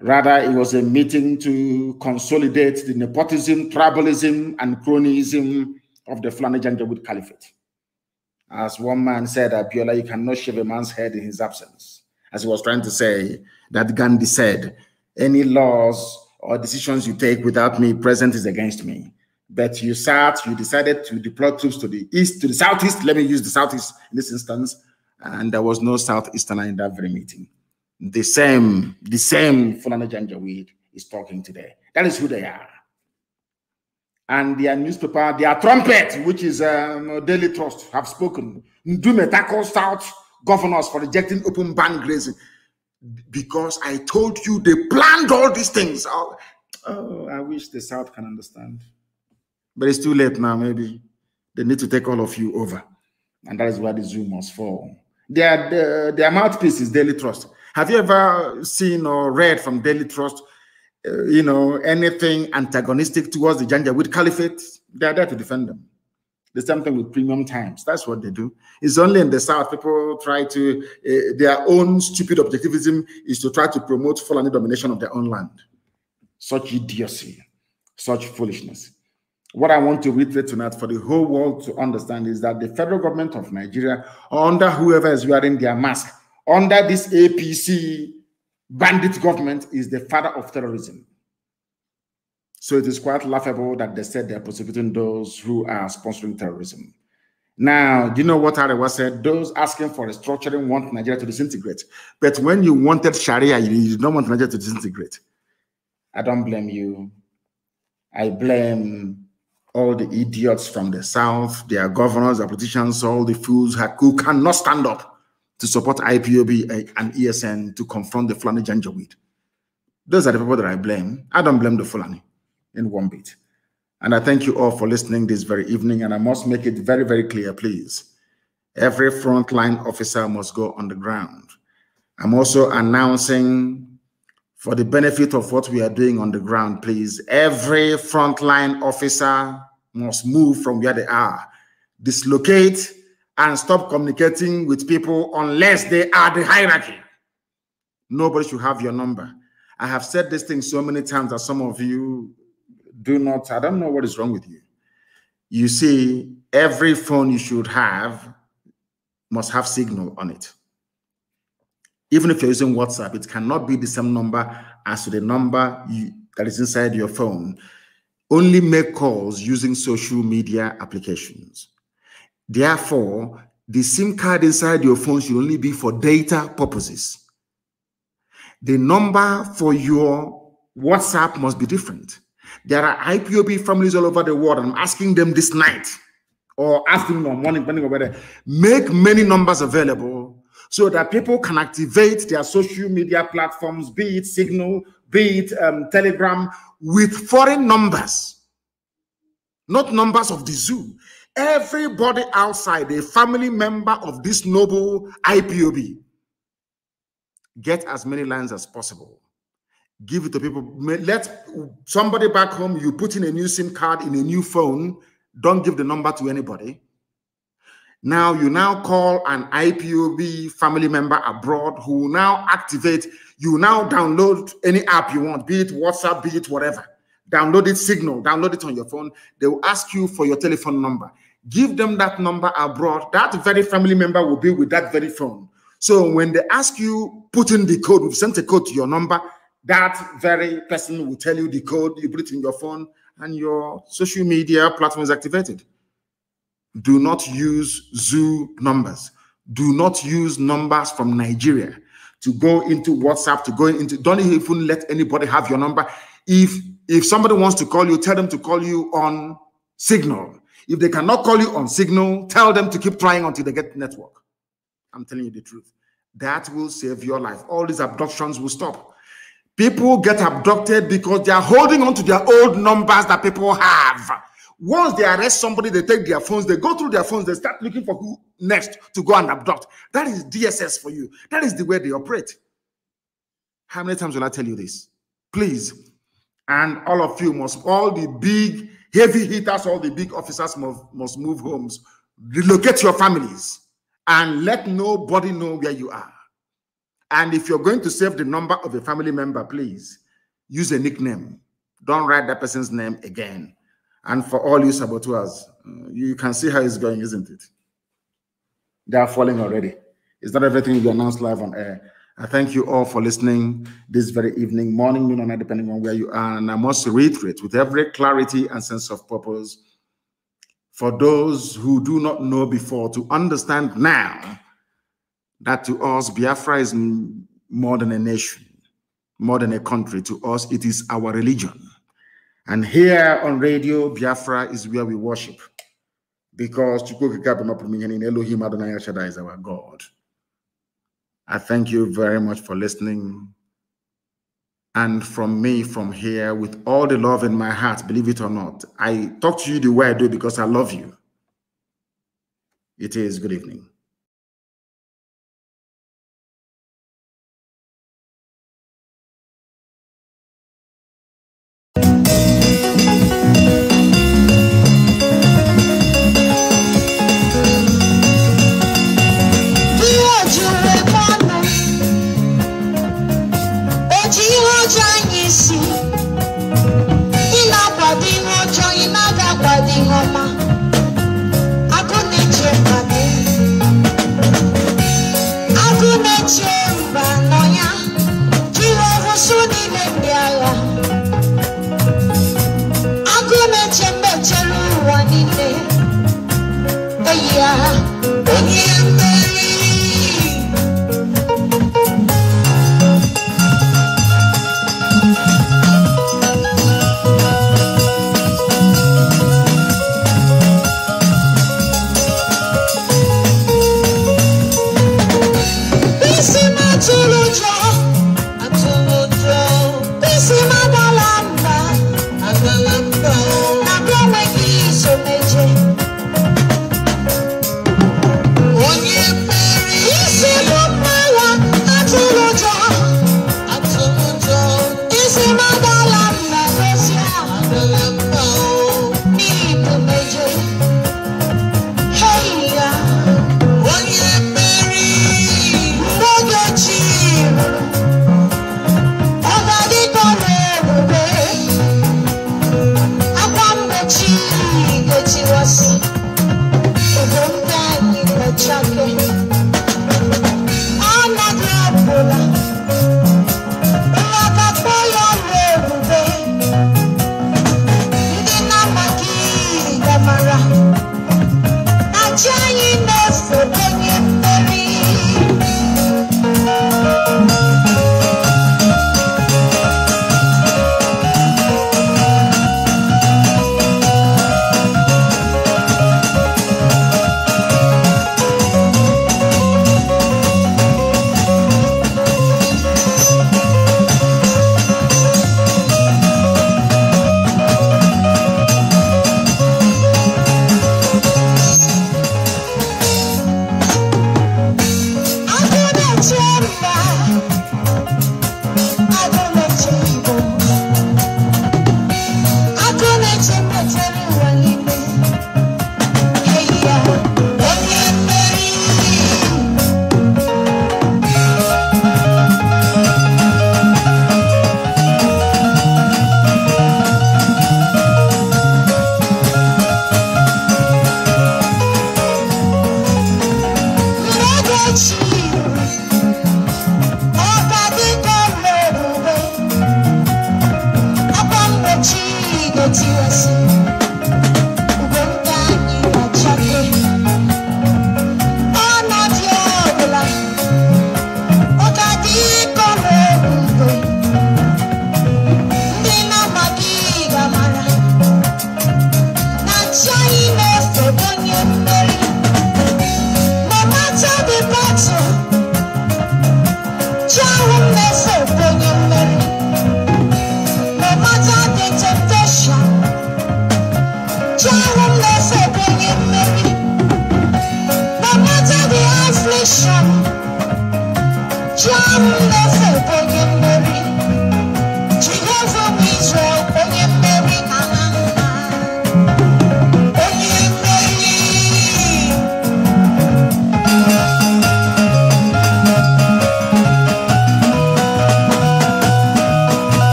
S3: Rather, it was a meeting to consolidate the nepotism, tribalism, and cronyism of the Flanagan Dawood Caliphate. As one man said, Abiola, you cannot shave a man's head in his absence. As he was trying to say, that Gandhi said, any laws or decisions you take without me present is against me. But you sat, you decided to deploy troops to the east, to the southeast. Let me use the southeast in this instance and there was no Southeasterner in that very meeting. The same, the same Fulani Janjaweed is talking today. That is who they are. And their newspaper, their trumpet, which is um, Daily Trust, have spoken. Ndume tackles South governors for rejecting open ban grazing because I told you they planned all these things. Oh, oh, I wish the South can understand. But it's too late now, maybe. They need to take all of you over. And that is where the Zoom must fall. Their, their, mouthpiece is Daily Trust. Have you ever seen or read from Daily Trust, uh, you know, anything antagonistic towards the Janjaweed Caliphate? They are there to defend them. The same thing with Premium Times. That's what they do. It's only in the South people try to, uh, their own stupid objectivism is to try to promote Fulani domination of their own land. Such idiocy, such foolishness what I want to reiterate tonight for the whole world to understand is that the federal government of Nigeria, under whoever is wearing their mask, under this APC bandit government, is the father of terrorism. So it is quite laughable that they said they're prosecuting those who are sponsoring terrorism. Now, do you know what Arewa said? Those asking for restructuring want Nigeria to disintegrate. But when you wanted Sharia, you did not want Nigeria to disintegrate. I don't blame you. I blame all the idiots from the south, their governors, their politicians, all the fools who cannot stand up to support IPOB and ESN to confront the Fulani Janjaweed. Those are the people that I blame. I don't blame the Fulani in one bit. And I thank you all for listening this very evening. And I must make it very, very clear, please. Every frontline officer must go on the ground. I'm also announcing for the benefit of what we are doing on the ground, please. Every frontline officer must move from where they are, dislocate, and stop communicating with people unless they are the hierarchy. Nobody should have your number. I have said this thing so many times that some of you do not, I don't know what is wrong with you. You see, every phone you should have must have signal on it. Even if you're using WhatsApp, it cannot be the same number as the number you, that is inside your phone only make calls using social media applications. Therefore, the SIM card inside your phone should only be for data purposes. The number for your WhatsApp must be different. There are IPOB families all over the world, and I'm asking them this night or afternoon or morning, depending on whether make many numbers available so that people can activate their social media platforms, be it Signal be it um, Telegram, with foreign numbers, not numbers of the zoo. Everybody outside, a family member of this noble IPOB, get as many lines as possible. Give it to people. Let somebody back home, you put in a new SIM card in a new phone, don't give the number to anybody. Now you now call an IPOB family member abroad who now activate you now download any app you want, be it WhatsApp, be it whatever. Download it, Signal, download it on your phone. They will ask you for your telephone number. Give them that number abroad. That very family member will be with that very phone. So when they ask you, put in the code, we've sent a code to your number, that very person will tell you the code, you put it in your phone, and your social media platform is activated. Do not use zoo numbers. Do not use numbers from Nigeria to go into WhatsApp, to go into don't even let anybody have your number. If if somebody wants to call you, tell them to call you on Signal. If they cannot call you on Signal, tell them to keep trying until they get network. I'm telling you the truth. That will save your life. All these abductions will stop. People get abducted because they are holding on to their old numbers that people have. Once they arrest somebody, they take their phones, they go through their phones, they start looking for who next to go and abduct. That is DSS for you. That is the way they operate. How many times will I tell you this? Please. And all of you must, all the big heavy hitters, all the big officers must, must move homes. Relocate your families and let nobody know where you are. And if you're going to save the number of a family member, please use a nickname. Don't write that person's name again and for all you saboteurs. You can see how it's going, isn't it? They are falling already. It's not everything you announced live on air. I thank you all for listening this very evening, morning, noon, and night, depending on where you are. And I must reiterate with every clarity and sense of purpose for those who do not know before to understand now that to us, Biafra is more than a nation, more than a country. To us, it is our religion. And here on Radio Biafra is where we worship. Because Elohim Adonai is our God. I thank you very much for listening. And from me, from here, with all the love in my heart, believe it or not, I talk to you the way I do because
S5: I love you. It is good evening.